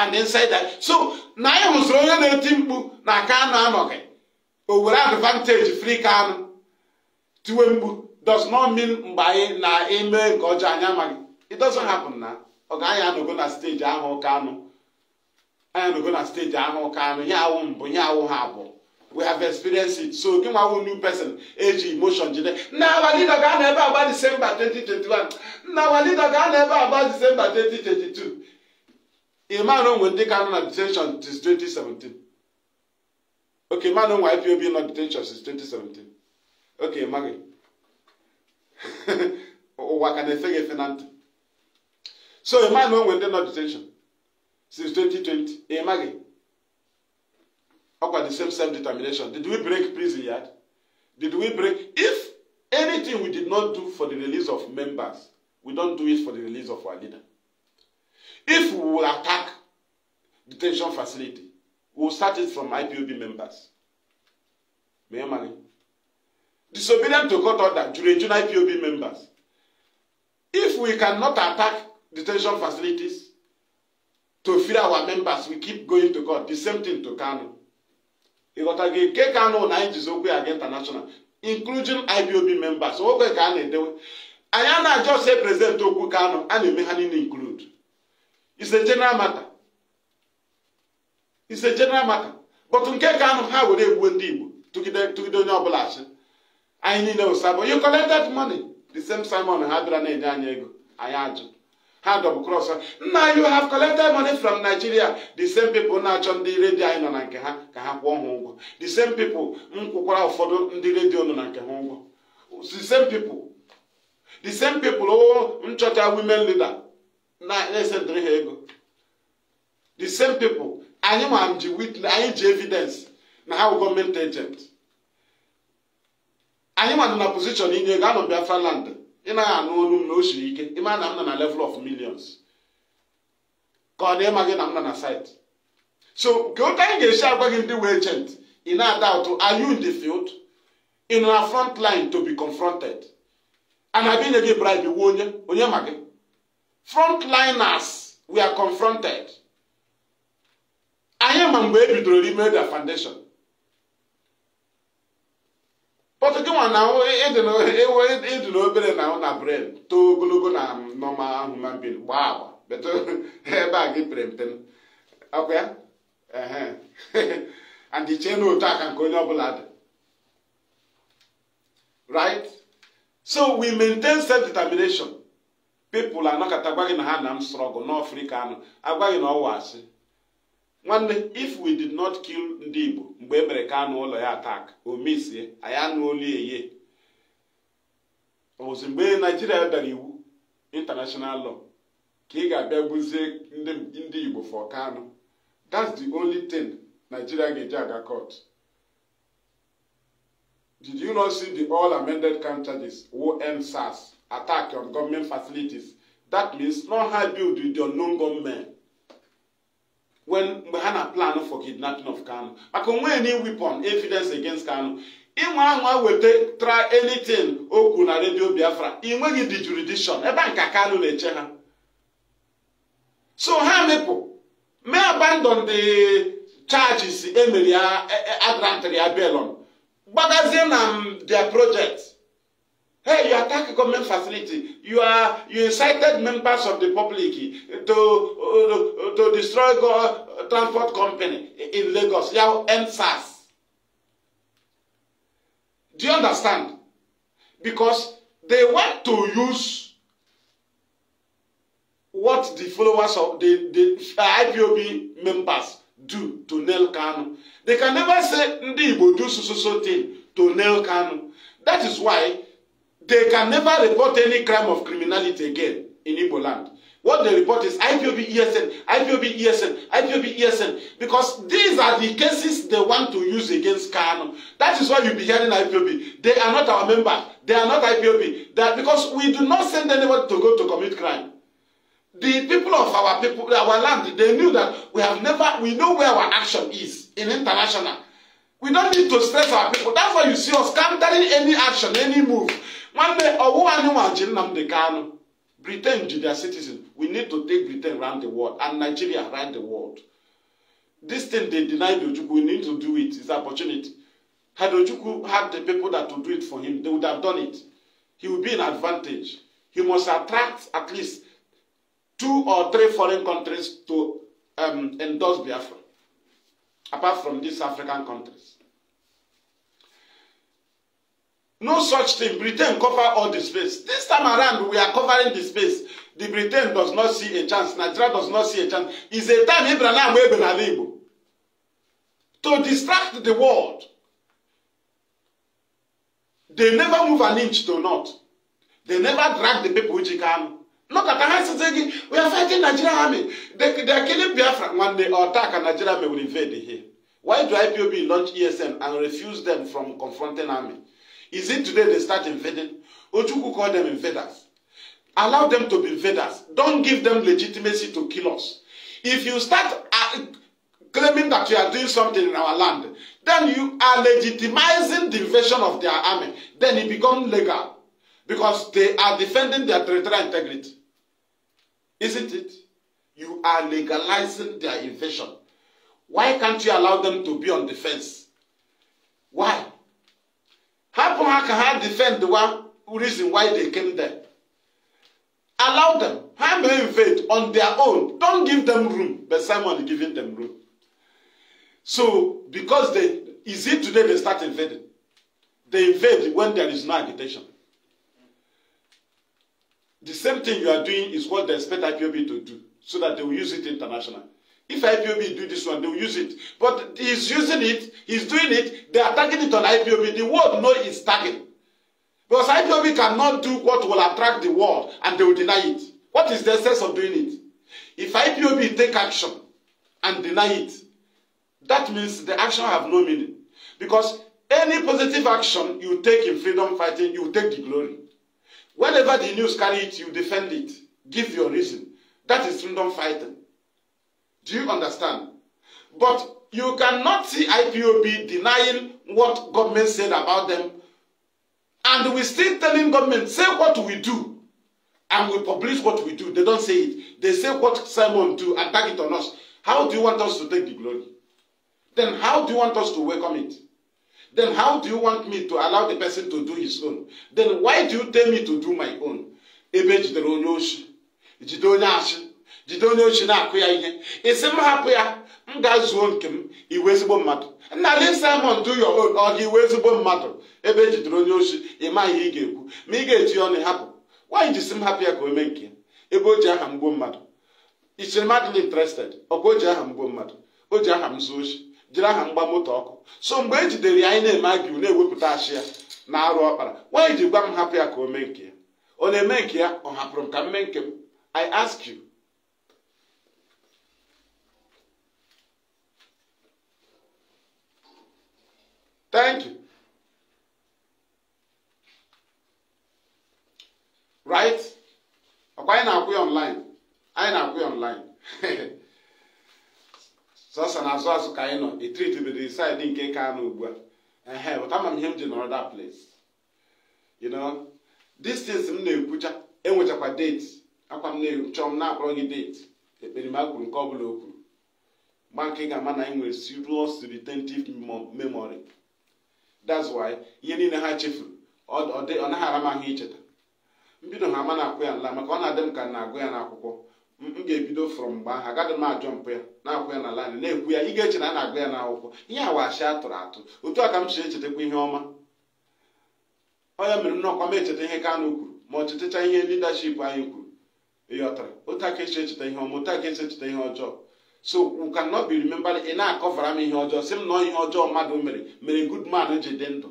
and inside so na anyị hụsịrị onye na-eti mkpu na aka anụ anọghị o were advantage free ka anụ tiwe mkpu does not mean mgbe anyị na eme nke ọjọọ anyị amaghị it doesn't happen na ọ ga-anya gaghị anọgo na steji ahụ ụka anụ anya anọgo na steji ahụ ụka anụ ya awụ mbụ ya awụ ha abụọ we have experienced it so gị nwawo new person eji emotion jide nna awa leader ga na ebe agba disemba 2021 nna awa leader ga na ebe agba disemba 2022 ịmara onwe ndị ka nọ na detention since 2017 oke mmanụ nwa ipob nọ detention since 2017 oke maghị ụwa ka na-efe gị efe na ntị So a man who went no detention since 2020, a eh, maggie. Up the same self-determination. Did we break prison yard? Did we break? If anything we did not do for the release of members, we don't do it for the release of our leader. If we will attack detention facility, we will start it from IPOB members. Mayor Disobedient to court order, jury IPOB members. If we cannot attack detention facilities to feed our members we keep going to court the same thing to kano ịghọtago nke kano na anyị jizi okwu ya ga international including ibob members okwe ka a na-edewe anyị a na-ajọ se prezident okwu kano a na-eme ha niile include is a general mata is a general matter but nke kano ha were egbuo ndị igbo tụgide onye ọbụla achị anyị niile ụsabụ you collected money the same simon ha bịara na-enye anyị ego anyị ajụ ha dọbụ krọs nna you have collected money from Nigeria the same people na-achọ ndị redio anyị nọ na nke ha ka ha kwụọ ha ụgwọ the same people m kwụkwara ụfọdụ ndị redio nọ na nke ha ụgwọ the same people the same people o nchọcha women leader na-esendịrị ha ego the same people anyị ma ji witness anyị ji evidence na ha bụ gọọmenti agent anyị ma madụ na pozishọn inye ego anọ Biafra land ị na-anụ olu m na o siri ike ịma na m nọ na level of millions ka ọ na ịma gị na m nọ na site so ka oke anyị ga-esi agwa gị ndị wee gent ị na-ada ụtụ are you in the field ị na front line to be confronted and abịa inye gị bribe wuo onye onye ma gị frontliners we are confronted anyị ma mgbe e bidoro ime the foundation kpọtụ gị nwa na ewe ịdị na obere na na bred too ogologo na nọma human being gbaa agba betụ ebe a gị pere mpe ọkwa ya and ichee na otu aka nke onye ọbụla dị right so we maintain self-determination people anọkọta gwa gị na ha na m struggle n'ọfrika anụ agbaghi na ọwa asị nwanne if we did not kill ndị igbo mgbe e mere ka anụ ụlọ ya atak o misie anyị anụ eye ozi mgbe naijiria dara iwu international law ka ị ga-abịa gbuzie ndị igbo for kano that's the only thing nigeria ga-eji aga court did you not see the all amended camp end sars attack on government facilities that means no hajj build with your government mgbe ha na plan for kidnapping of Kanu maka onwe ni weapon evidence against kano ịnwa anwa weta try anything o kwuru na redio Biafra ị nweghị the jurisdiction ebe a nka kano na-eche ha so ha mepụ mee abandon the charges emere ya e, e, adrantri ya belon na mm, their project Hey, you attack government facility. You are you incited members of the public to uh, to destroy God uh, transport company in Lagos. You have NSAS. Do you understand? Because they want to use what the followers of the, the IPOB members do to nail Kanu. They can never say Ndi Igbo do so so so thing to nail Kanu. That is why They can never report any crime of criminality again in Igbo land. What they report is IPOB ESN, IPOB ESN, IPOB ESN, because these are the cases they want to use against Kano. That is why you'll be hearing IPOB. They are not our member. They are not IPOB. That because we do not send anyone to go to commit crime. The people of our people, our land, they knew that we have never, we know where our action is in international. We don't need to stress our people. That's why you see us countering any action, any move nwanne ọwụwa anyị nwaji nnamdị kanu britain ji their citizen we need to take britain round the world and nigeria round the world this thing they denied ojukwu we need to do it it's opportunity had ojukwu had the people that would do it for him they would have done it he would be in advantage he must attract at least two or three foreign countries to um, endorse biafra apart from these african countries No such thing. Britain cover all the space. This time around, we are covering the space. The Britain does not see a chance. Nigeria does not see a chance. It's a time Ibrahim Webenalibu to distract the world. They never move an inch to not. They never drag the people which come. Look at Hansi we are fighting Nigeria army. They, they are killing Biafra. When they attack and Nigeria army will invade here. Why do IPOB launch ESN and refuse them from confronting army? Is it today they start invading? Ochuku call them invaders. Allow them to be invaders. Don't give them legitimacy to kill us. If you start uh, claiming that you are doing something in our land, then you are legitimizing the invasion of their army. Then it becomes legal because they are defending their territorial integrity. Isn't it? You are legalizing their invasion. Why can't you allow them to be on defense? Why? How come how can I defend the one reason why they came there? Allow them. How them invade on their own. Don't give them room. But Simon is giving them room. So because they is it today they start invading? They invade when there is no agitation. The same thing you are doing is what they expect IPOB to do so that they will use it internationally. If IPOB do this one, they will use it. But he's using it, he's doing it, they are targeting it on IPOB. The world know it's tagging Because IPOB cannot do what will attract the world and they will deny it. What is the sense of doing it? If IPOB take action and deny it, that means the action have no meaning. Because any positive action you take in freedom fighting, you take the glory. Whenever the news carry it, you defend it. Give your reason. That is freedom fighting. Do you understand? But you cannot see IPOB denying what government said about them. And we're still telling government, say what we do. And we publish what we do. They don't say it. They say what Simon do and tag it on us. How do you want us to take the glory? Then how do you want us to welcome it? Then how do you want me to allow the person to do his own? Then why do you tell me to do my own? Ebe jidere onye jide onye ochie na-akụ ya ihe isi m hapụ ya m ga-zuo nke m iwe ezigbo mmadụ nna di simon duyo ọ ga iwe ezigbo mmadụ ebe e jidere onye ochie ị ma ihe ị ga-ekwu ma ị ga-eji ọnụ hapụ nwaanyị jisi m hapụ ya ka o mee nke ya ebe o ji aha mgbuo mmadụ ichiri mmadụ dị interested ọkwa o ji aha mgbuo mmadụ o ji aha m zuo ochi jiri aha mgba moto ọkụ so mgbe e jidere ya anyị na-eme agiu na-ewepụta achị ya na arụ ọkpara nwaanyị ji gwa m hapụ ya ka o mee nke ya ọ na-eme nke ya ọ hapụrụ m ka m mee nke m i ask you Thank you. Right? Ọkwa anyị na-akwụ ya online. Anyị na-akwụ ya online. Sọsọ na azụ azụ ka anyị nọ etritibiri dị nke ka nọ ugbu a. Ehe, but m ihe m place. You know, distance m na-ekwucha enwechakwa date akwa m na m na-akpọrọ gị date ekperima kwuru nke ọ bụla o kwuru nke ga-ama na anyị nwere serious retentive memory that's why ihe niile ha chefuru ọ naghị ara m ahụ icheta mbido ha ama na-akwụ ya nla maka ọ na-adị m ka na-agụ ya n'akwụkwọ m ga-ebido fọrọ mgbe ahụ agaghị m ajọ mpụ ya na-akwụ ya na lan na-ekwu ya ị ga-eche na a na-agụ ya n'akwụkwọ ihe a washi atụrụ atụ otu a ka m si echetakwa ihe ọma onye mere nnọkwa m echeta ihe Kanu kwuru ma ọ chetacha ihe lidaship anyị kwuru ịghọtara otu aka esi echeta ihe ọma otu aka esi echeta ihe ọjọọ so you cannot be remembered ị na-akọfara m ihe ọjọọ sị m nọọ ihe ọjọọ mmadụ mere mere good man ji dị ndụ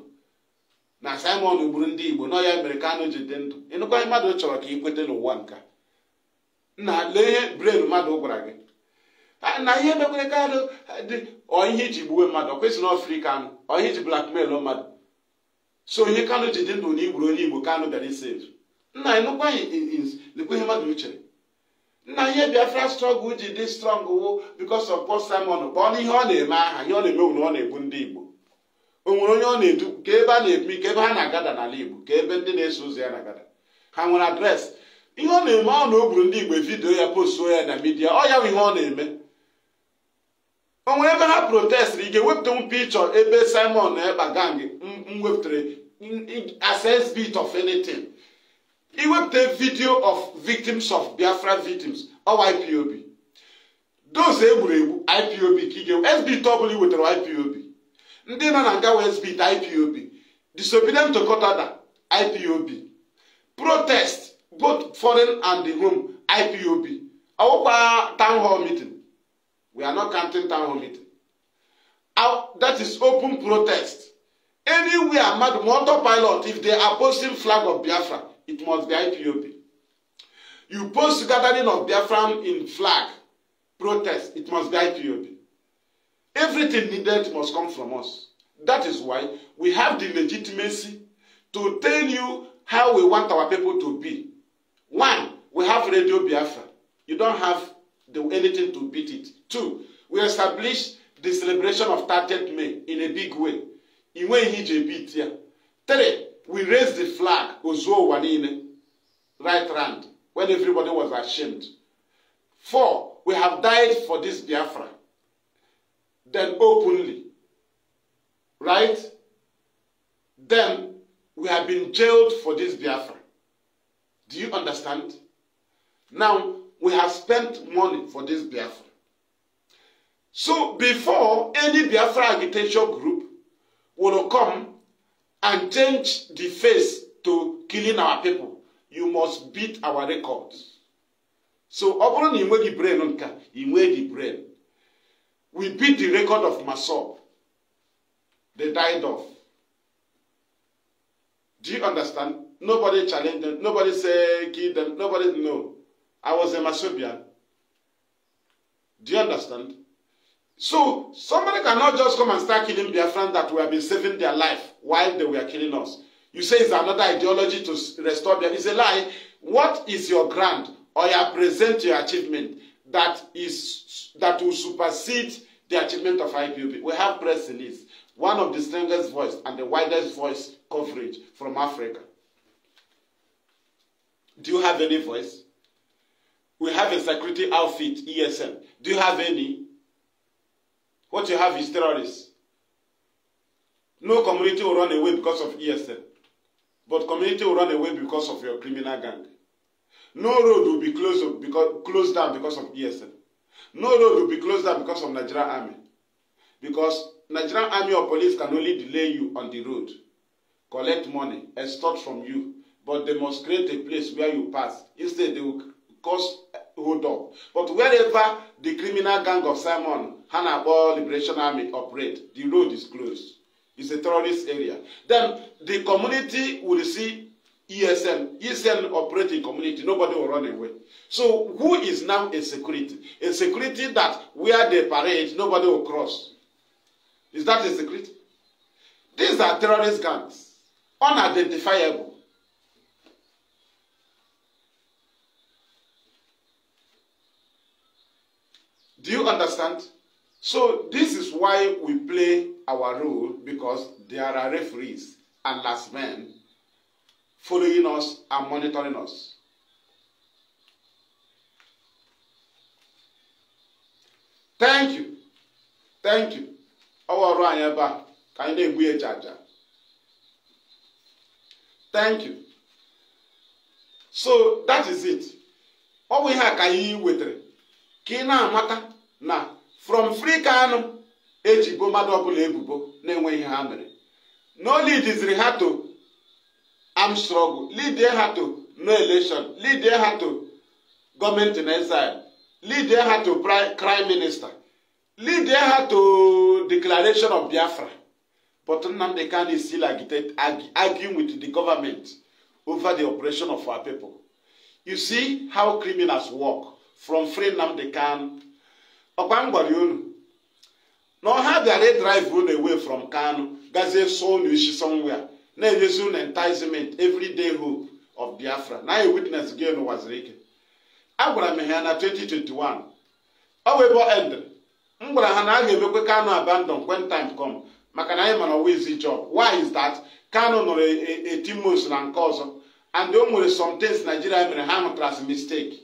na simon gburu ndị igbo nọ ya mere ka anụ ji dị ndụ ịnụkwa mmadụ chọrọ ka ị kweta n'ụwa nka na lee ihe bren mmadụ gwara gị na ihe mekwere kadụ dị ihe iji gbuwe mmadụ ọ kwesịrị ọfrika anụ ọihe iji blackmail mmadụ so ihe kanụ ji dị ndụ na igburu onye igbo kanụ bịara isevu nna ịnụkwa ihe mmadụ chere nna ihe biafra strọgụl ji dị strọng wụ bikos of pọl simon kpọọ na ihe ọ na-eme aha ihe ọ na-eme wụ na ọ na-ebu ndị igbo o nwere onye ọ na-edu ka ebe a na-ebu ka ebe ha na-agada n'ala igbo ka ebe ndị na-eso ụzọ ya na-agada ha nwere adresị ihe ọ na-eme ọ na o gburu ndị igbo vidiyo ya postuo ya na midia ọ ya bụ ihe ọ na-eme o nwere ebe ha protestịrị ike ga m pikchọ ebe simon na-ekpa gang m wepụtara access bit of anything iwepụta vidiyo of victims of biafra victims ọwa ipob those egburu egbu ipob ka ị ga sbt ọbụla wetara ipob ndị nọ na nga wee ipob disobedient to cotada ipob protest both foreign and the home ipob ọwụkwa town hall meeting we are not counting town hall meeting Out, that is open protest anywhere mmadụ motor pilot if they are posting flag of biafra it must be IPOB. You post gathering of Biafran in flag, protest, it must be IPOB. Everything needed must come from us. That is why we have the legitimacy to tell you how we want our people to be. One, we have Radio Biafra. You don't have the, anything to beat it. Two, we established the celebration of 30th May in a big way. In Iwe Hije beat here. Three, we raised the flag ozuo ụwa right hand when everybody was ashamed four we have died for this biafra then openly right then we have been jailed for this biafra do you understand now we have spent money for this biafra so before any biafra agitation group will come and change the face to killing our people you must beat our records so ọ bụrụ na ị nweghị brain nka ị nweghị brain we beat the record of masob they died off do you understand nobody challenge them nobody say kill them nobody no i was a masobian do you understand So somebody cannot just come and start killing Biafran that we have been saving their life while they were killing us. You say it's another ideology to restore them. It's a lie. What is your grant or your present your achievement that is that will supersede the achievement of IPOB? We have press release, one of the strongest voice and the widest voice coverage from Africa. Do you have any voice? We have a security outfit, ESM. Do you have any? What you have is terrorists. No community will run away because of ESN, but community will run away because of your criminal gang. No road will be closed, because, closed down because of ESN. No road will be closed down because of Nigerian army. Because Nigerian army or police can only delay you on the road, collect money, extort from you, but they must create a place where you pass. Instead, they will cause hold up but wherever the criminal gang of simon ha na liberation army operate the road is closed it's a terrorist area then the community will see esn esn operating community nobody will run away so who is now a security a security that where they parade nobody will cross is that a security these are terrorist gangs unidentifiable Do you understand? So this is why we play our role because there are referees and last men following us and monitoring us. Thank you. Thank you. Our ọ̀rọ̀ àyẹ̀ bá ka anyị na-egbu Thank you. So that is it. Ọ we have can you anyị wetara ka ị na from free Kanu ejibo mmadụ ọbụla ebubo na-enweghị ha mere no leadiziri ha to am struggle lead ha to no election lead ha to gọọmenti in exile lead ha to prime minister lead ha to declaration of Biafra but Nnamdi Kanu is still agitated, arguing with the government over the operation of our people. You see how criminals work from free Nnamdi Kanu ọkwa m gwara unu na ọha bịara drive unu away from kano gazie so unu isi somewhere na-enyezi unu enticement everyday hope of biafra na anyị witness gị unu ike a gwara m ha na 2021 ọ wee bụ end m gwara ha na a ga-emekwe kano abandon when time come maka na anyị mara wizi job why is that kano nọrọ etimos e, e, na nke ọzọ and o nwere some nigeria mere ha hụtara mistake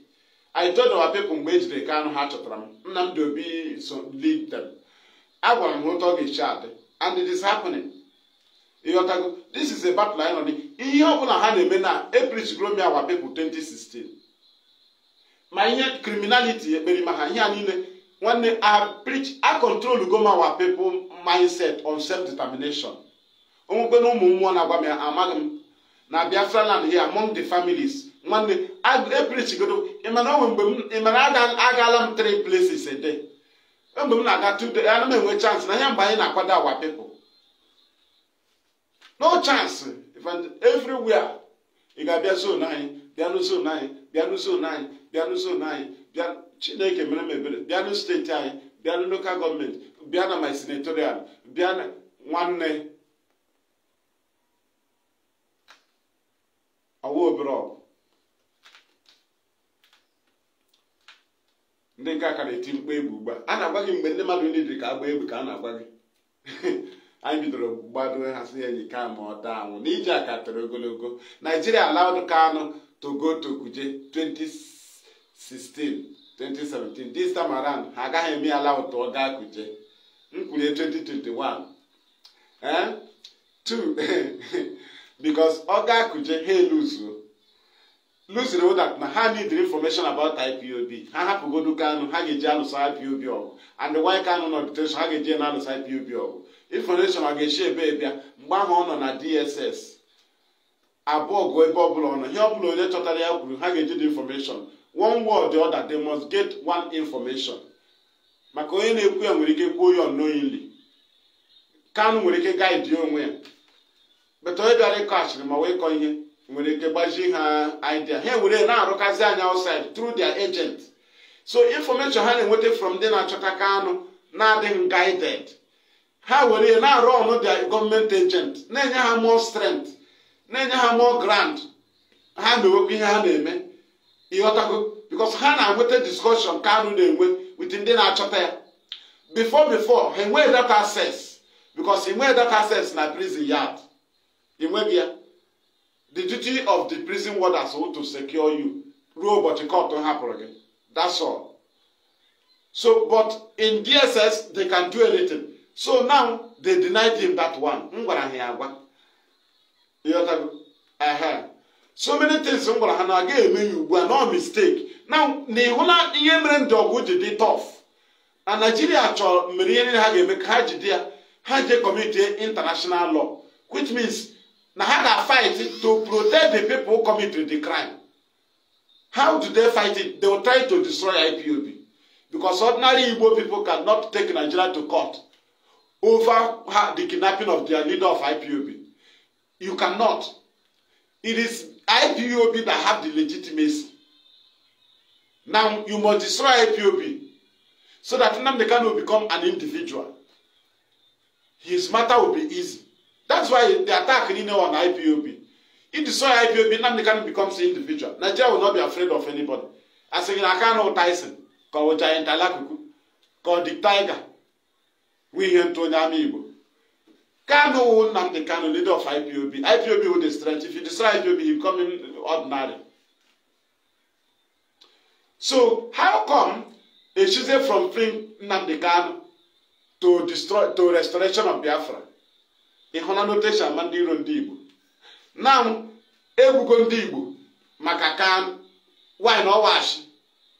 i told our people mgbe e ka anụ ha chọtara m Nnamdi Obi so lead them agwara m ha ụtọ ga adị and it is happening ịghọtago this is a battle anyị nọ dị ihe ọbụla ha na-eme na ebrich gromi awa people 2016 ma ihe criminality ekperima ha ihe a niile nwanne a preach a control goma awa people mindset on self determination onwekwe na ụmụ mmụọ na-agwa m amaghị m na Biafra land here among the families nwanne ebrichigodo ịmana onwe mgbe ịmana agaala m three places a day mgbe m na-aga two days ana m enwe chance na ya mgbe anyị na-akwado awa people no chance everywhere ị ga-abịa zon anyị bịa n'ụzon anyị bịa n'ụzon anyị bịa n'ụzon anyị bịa chineke mere m ebere bịa na steeti anyị bịa na lokal gọọmenti bịa na my senatorial bịa na nwanne ọwa obere ọgụ ndị nke a na eti mkpa egwu ugbu a na-agwa gị mgbe ndị mmadụ ndị dị ka agba egwu ka a na-agwa gị anyị bidoro gbado ha si enyi ka ma ọ daa anwụ n'ije aka toro ogologo naijiria allowed kano to go kuje 2016 2017 this time around ha agaghị eme ala ụtọ ọ gaa kuje 2021 2 bikos ọ gaa kuje ha eluzuo lụziri that na ha need information about IPOB ha hapụgodu Kanu ha ga-eji alụsa IPOB ọgụ and why kanụ nọ detention ha ga-eji na alụsa IPOB ọgụ information ọ ga eshi ebe bịa mgbe ahụ ọ nọ na DSS abụọ gụ ebe ọbụla ọ nọ ihe ọbụla onye chọtara ya kwuru ha ga-eji the information one word or the other get one information maka onye na-ekwu ya nwere ike kwuo ya unknowingly Kanu nwere ike gaidi onwe ya beta onye bịara ịkọ ma wee kọọ ihe nwere ike gbaji ha idea ha were na-arụkazi anya outside through their agent so information ha na-enweta from ndị na-achọta ka anụ na-adịghị guided ha were na-arụ ọnụ their gọọmenti agent na-enye ha more strength na-enye ha more grand ha na ewepụ ihe ha na-eme ịghọtago because ha na-enweta discussion ka anụ na-enwe with ndị na-achọta ya bifo bifo ha enweghị data access because enweghị data access na prison yard enweghị ya the duty of the prison warders who to secure you ruo ụbọchị kọtụ hapụrụ gị that's all so but in dss they can do anything so now they denied him that one m gwara ha ya agwa so many things m gwara ha na aga eme ya ugbu a no mistake now na ịhụla ihe mere ndị ọgwụ ji dị tough na naijiria chọrọ mere ihe niile ha ga-eme ka ha jide ya ha jee kọmitie international law which means na ha na fight to protect the people who commit the crime how do they fight it they will try to destroy ipob because ordinary igbo people cannot take nigeria to court over the kidnapping of their leader of ipob you cannot it is ipob that have the legitimacy now you must destroy ipob so that nnamdi kanu will become an individual his matter will be easy That's why the attack you on IPOB. If the soil IPOB, Nnamdi Kanu becomes individual. Nigeria will not be afraid of anybody. As in Akano Tyson, called Giant Alakuku, called the Tiger, we here to Namibo. Kanu will Nnamdi Kanu, leader of IPOB. IPOB will stretch. If you destroy IPOB, you become ordinary. So, how come they choose from freeing Nnamdi Kanu to destroy to restoration of Biafra? ịhụna notation ma ndị iro ndị igbo na egbugo ndị igbo maka kanu nwanyị na ọwashi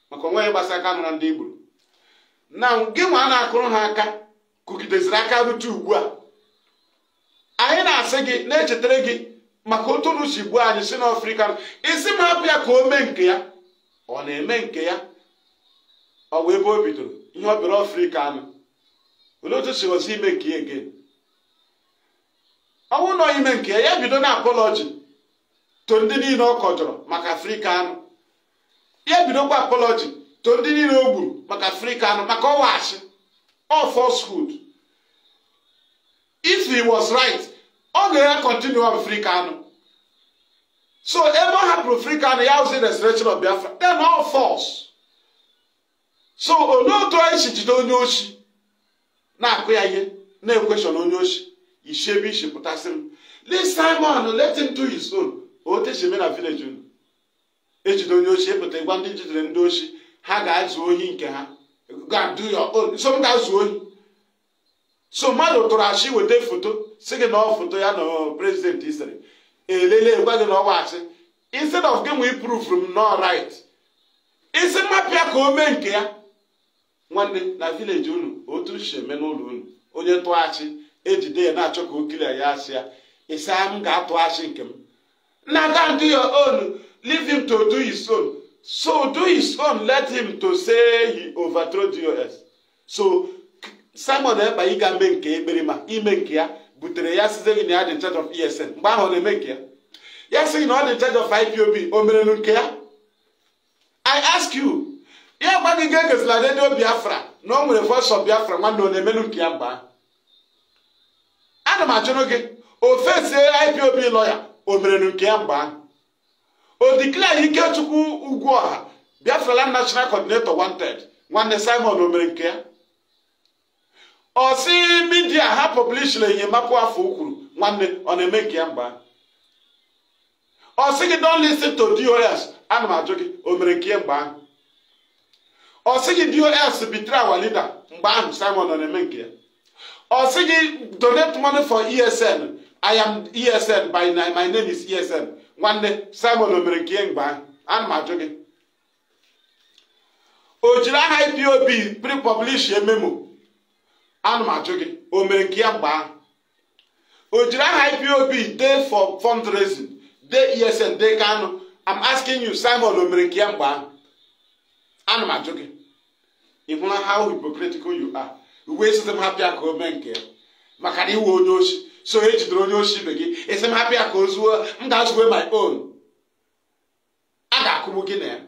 maka onwe ya gbasara kanu na ndị igbo na gị nwa a na-akụrụ ha aka kụgideziri aka rute ugbu a anyị na-asị gị na-echetara gị maka otu unu si gbuo anyị si n'afrika isi m hapụ ya ka o mee nke ya ọ na-eme nke ya ọ bụ ebe o bidoro ihe ọ bịara afrịka anụ olee otu si ọzọ ime nke ya ege ọnwụ nọ ime nke ya bido na apọlọji to ndị niile ọ kọjọrọ maka afrịka anụ ya bidokwa apọlọji to ndị niile o gburu maka afrịka anụ maka ọwachi ọ falsehood if he was right ọ ga-ya continue afrịka anụ so ebe ọ hapụrụ afrịka anụ ya hụzi restoration of biafra then all false so olee otu anyị si jide onye oshi na-akụ ya ihe na-ekweshọn onye oshi ishebe ishi pụtasị m lee simon let do his own otecheme na village unu ejide onye ochi epụta gwa ndị jidere ndị ochi ha ga-azụ ohi nke ha ga-do your own so m ga-azụ ohi so mmadụ tụrụ achị weta foto si gị na ọ foto ya na prezidenti isere elele gwa gị na ọ gwachi instead of gị nwee proof m na right isi mmapịa ka o mee nke ya nwanne na vileji unu otu si eme n'ụlọ unu onye tụọ achị ejide ya na-achọ ka okilia ya asị ya ịsa m ga-atụ asị nke m nata do ya own oh, leave him to do his own so do his own let him to say he overthrow dos so simon ekpa ịga mee nke ekpere ma ime nke ya butere ya size gị na ya dị in of esn mgbe ahụ ọ na-eme nke ya ya sị na ọ dị in of ipob o merenu nke ya i ask you ya gwa gị ga egozila dedo biafra na o nwere voice biafra nwanne ọ na-emenu nke ya mgbe ahụ ana m achọrọ gị ofesie ipob lọya o mere nke ya mgbe ahụ o diklara ikechukwu ugwu ọha biafra land national coordinator wanted nwanne simon o mere nke ya ọsị midia ha pọblishiri enyemapụ afọ ukwuru nwanne ọ na-eme nke ya mgbe ahụ ọ gị don listen to dos ana m ajụ gị o mere nke ya mgbe ahụ ọ gị dos bitere awa lida mgbe ahụ simon ọ na-eme nke ya ọ sị gị donate money for esn i am esn by my name is esn nwanne simon o mere nke mgbe ahụ m ajụ gị o jiri aha ipob pre-publish memo ana m ajụ gị o mere nke ya mgbe o jiri aha ipob dee for fundraising dee esn dee kano i'm asking you simon o mere nke ya mgbe ahụ m ajụ gị ị how hypocritical you are uwe esi m hapịa ka o mee nke maka na iwe onye oshi so e jidere onye oshi ibe gị esi m hapịa ka o zuo m ga my own a ga-akụgbu gị na ya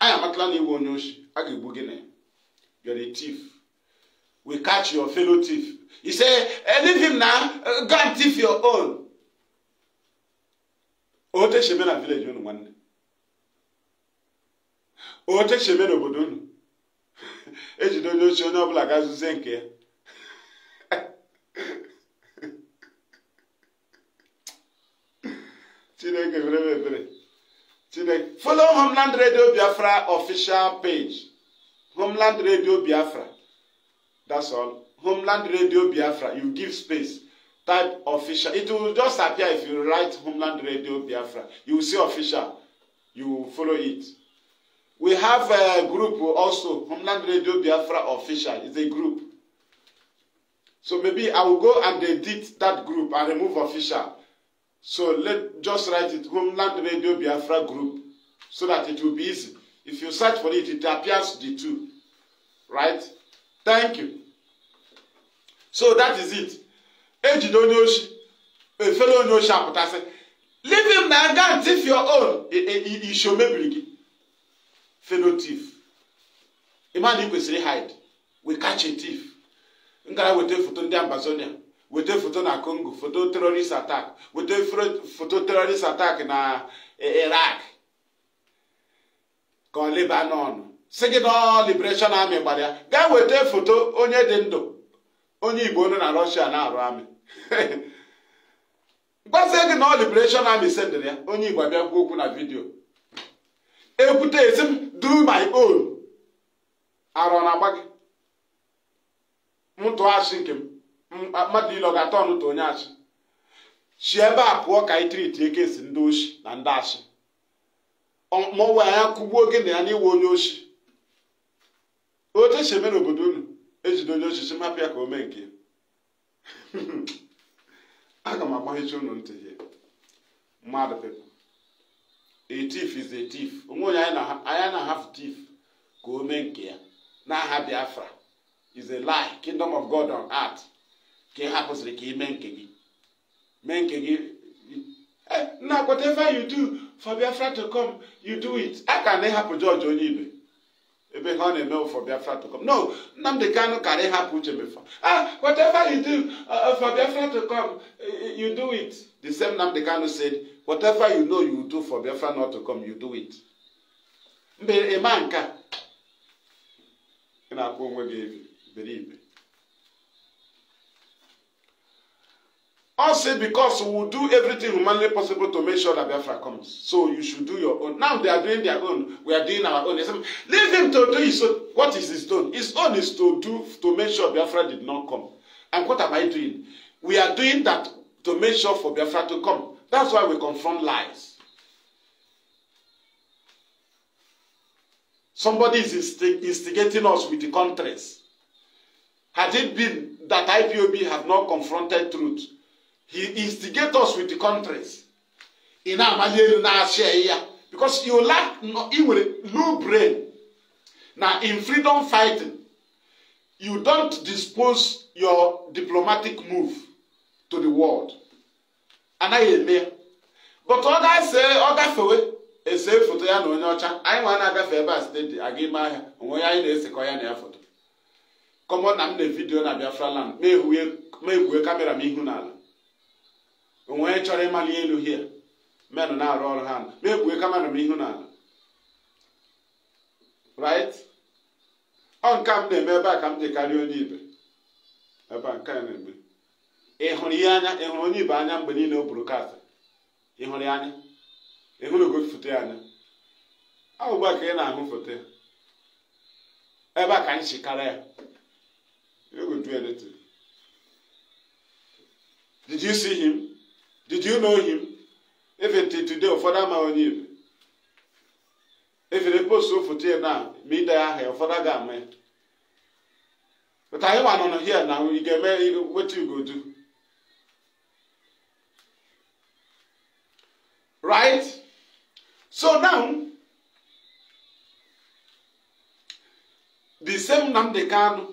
anyị amatala na iwe onye oshi a ga-egbu gị na ya are a thief we catch your fellow thief Ise say eh, leave him na eh, go and thief your own ote sheme na village unu nwanne ote sheme n'obodo unu ejido onye ochie onye ọbụla ga zụzie nke ya chineke mere m ebere chineke follow homeland radio biafra official page homeland radio biafra that's all homeland radio biafra you give space type official it will just appear if you write homeland radio biafra you see official you follow it We have a group also, Homeland Radio Biafra Official. It's a group. So maybe I will go and edit that group and remove official. So let just write it Homeland Radio Biafra Group so that it will be easy. If you search for it, it appears the two. Right? Thank you. So that is it. Ejide onye oshi, efere onye oshi Leave him na gaa and thief your own. Isho gị. fellow thief ịma na ị kwesịrị hide we catch a thief m gara weta foto ndị ambazonia weta foto na congo foto terrorist attack weta foto terrorist attack na e, irak ka ọ lebanon si gị nọ liberation amị gbara ya gaa weta foto onye dị ndụ onye igbo nọ na russia na-arụ amị gwazie gị n'ọ liberation amị sendịrị ya onye igbo abịa kwuo okwu na vidio ekwute esi m through my own arụ na-agba gị m tụọ asị nke m mmadụ ile ọ ga-atọ ọnụ onye asị si ebe a pụọ ka anyị triti eke si ndị oshi na ndị asị mụnwe anya kụgbuo gị na ya n'iwe onye oshi otu esi eme n'obodo unu ejide onye osisi mapụ ya ka o nke aga m agbaghịcha unu ntị ihe mmadụ a thief is a thief onwe onye na half thief ka o mee nke ya n'aha biafra is a lie kingdom of god on earth ka ị hapụsịrị ka ị mee nke gị mee nke gị eh, na whatever you do for biafra to come you do it a ka na ịhapụ jọji onye ibe ebe ha ọ na-eme for biafra to come no nnamdị anụ kara ịhapụ uche mefa ah whatever you do uh, for biafra to come eh, you do it the same nnamdị anụ said whatever you know you do for biafra not to come you do it mbe ịma e nke a ị na-akpọ onwe gị ebi beribe ọ sị because we do everything humanly possible to make sure that biafra comes so you should do your own now they are doing their own we are doing our own leave him to do his own what is his own his own is to do to make sure biafra did not come and what am i doing we are doing that to make sure for biafra to come That's why we confront lies. Somebody is instigating us with the contrast. Had it been that IPOB have not confronted truth, he instigates us with the contrast. Ị na-amali elu because you lack ị nwere low brain. Now, in freedom fighting, you don't dispose your diplomatic move to the world. anaghị eme ya bụtụ ọ ga-ese ọ gafewe ese foto ya na onye ọcha anyị nwa na-agafe ebe a steeti aga ime ahịa onwe anyị na-esekọ ya na ya foto kọmọ na m na vidiyo na biafra land ma egwue kamera m ihu onwe onye chọrọ ịmali elu hia menụ na-arụ ọrụ ha ma kamera m ihu n'ala ọ nke m na-eme ebe a ka m dị karịa onye ibe ebe a nke a na-eme ị hụrụ ihe anya ị onye ibe anya mgbe niile o buru kasị ị hụrụ ya anya ị hụrụ ogo foto ya anya ọ ugbu ka ị na-ahụ foto ebe a ka anyị chịkara ya did you see him did you know him even till today ụfọdụ ama onye ibe efere postu foto ya na ma ide aha ya ụfọdụ ga-ama ya but anyị nwa nọ here na ị ga-eme wetin you go Right? So now, the same Nnamdi Kanu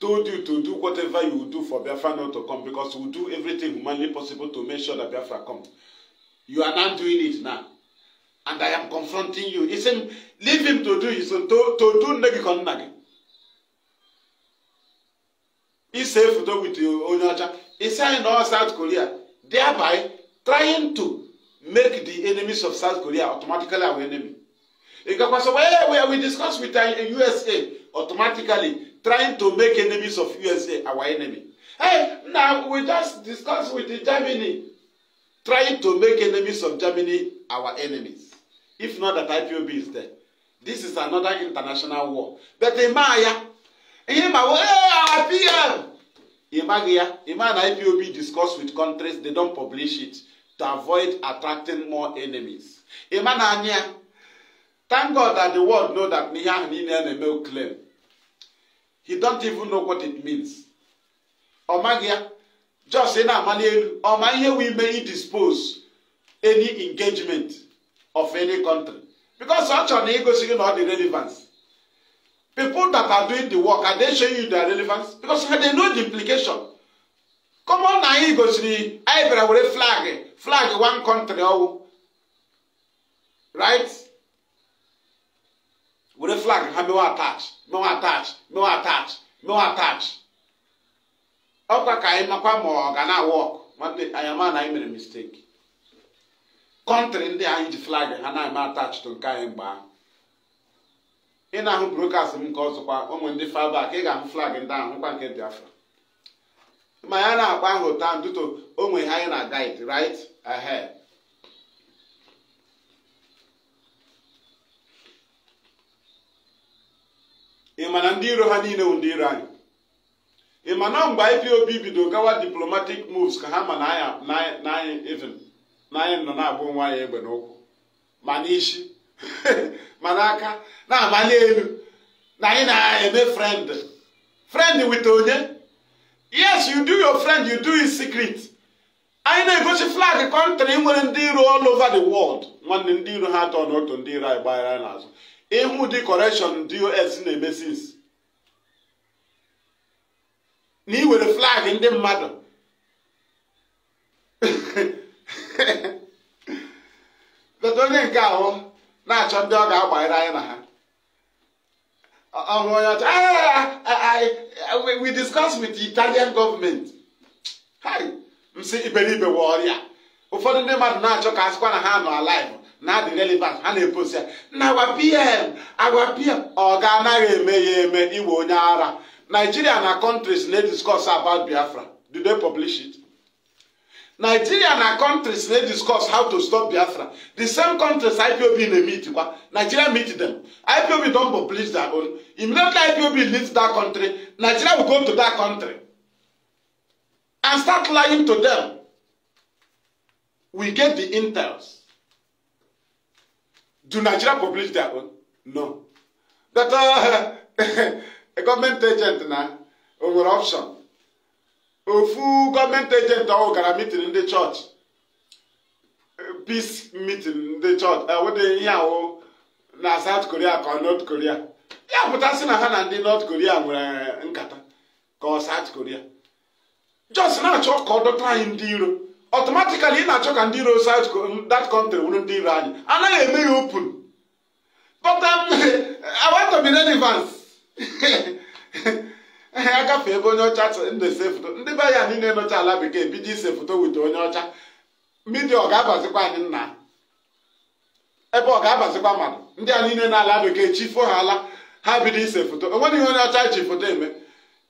told you to do whatever you do for Biafra not to come because we do everything humanly possible to make sure that Biafra comes. You are not doing it now. And I am confronting you. He said, leave him to do his own. To, to do negi kon nagi. He said, photo with you, Onyacha. He said, in all South Korea, thereby trying to make the enemies of South Korea automatically our enemy. Nkakwa sọ wẹ́ẹ́ wẹ́ẹ́ we discuss with uh, USA automatically trying to make enemies of USA our enemy. Hey, now we just discuss with the Germany trying to make enemies of Germany our enemies. If not that IPOB is there. This is another international war. But Imaya, Imawa, hey, IPM! Imagaya, Imana IPOB discuss with countries, they don't publish it. to avoid attracting more enemies ịma na anya thank god that the world know that n'ihe ahụ niile a na-eme claim he don't even know what it means ọ maghị ya just ị na amali elu ọ ihe we may dispose any engagement of any country because ọ chọrọ na igosi gị na ọ dị relevance people that are doing the work are they showing you their relevance because they know the implication come on na anyị gosiri anyị bịara were flag flag one country ọwụ oh. right were flag ha mewa attach mewa attach mewa attach mewe attach ọkwa ka anyị makwa ma ọ ga na wọk anyị na anyị mere mistake kọntrị ndị anyị ji flag ha na-eme attach to nke anyị mgbe ahụ ị na-ahụ brokas m nke ọzọkwa ụmụ ndị fabak ị ga-ahụ flag ndị ahụ nkwa nke biafra ma ya na-agba ahụ taa nduto onwe ha anyị na guide right ahead. ị ma na ndị iro ha niile bụ ndị iro anyị ị ma na mgbe IPOB bido gawa diplomatic moves ka ha ma na anyị even na anyị nọ na-abụ nwa ya egbe n'ụkwụ ma n'isi ma n'aka na-amali elu na anyị na-eme friend friend wit onye yes you do your friend you do his secret anyị na-egosi flag kọntrị nwere ndị iro all over the world nwanne ndị iro ha atọ n'otu ndị iro anyị gbaghara n'azụ ịhụ dị correction dos na-eme since na iwere flag ndị mmadụ dọta onye nke ahụ na-achọ ndị ọ ga-agbaghara anyị na ha ọhụrụ onye ọcha ah, we discuss with the Italian government hi nsị iberibe wa ọrịa ụfọdụ ndị mmadụ na-achọ ka asịkwa na ha nọ alive na-adị relevant ha na-eposi ya na agwa pm agwa pm ọ ga anaghị eme ya eme iwe onye ara Nigeria na countries na-ediscuss about Biafra do they publish it Nigeria na countries na-ediscuss how to stop Biafra the same countries IPOB na-emeet kwa Nigeria meet them IPOB don publish their own immediately IPOB leads that country Nigeria will go to that country and start lying to them, we get the intels. Do Nigeria publish their own? No. That uh, a government agent na over option. Ofu government agent ọ gara meeting in the church. Peace meeting in the church. Uh, eh, what the ihe ahụ na South Korea ka North Korea. Ya si na ha na ndị North Korea nwere eh, nkata ka South Korea. just na-achọ ka ọ dọta anyị ndị iro ọtọmatikali ị na-achọ ka ndị iro south that country wụrụ ndị iro anyị anaghị eme ya open but um, I want to agafe ebe onye ọcha na-ese foto ndị be ya niile nọcha ala bekee bido ise foto wite onye ọcha midia ọ ga-abazikwa anyị nna ebe ọ ga-abazikwa mmadụ ndị a niile na ala bekee chifo ha ala ha bido ise foto onweghị ihe onye ọcha e ji foto eme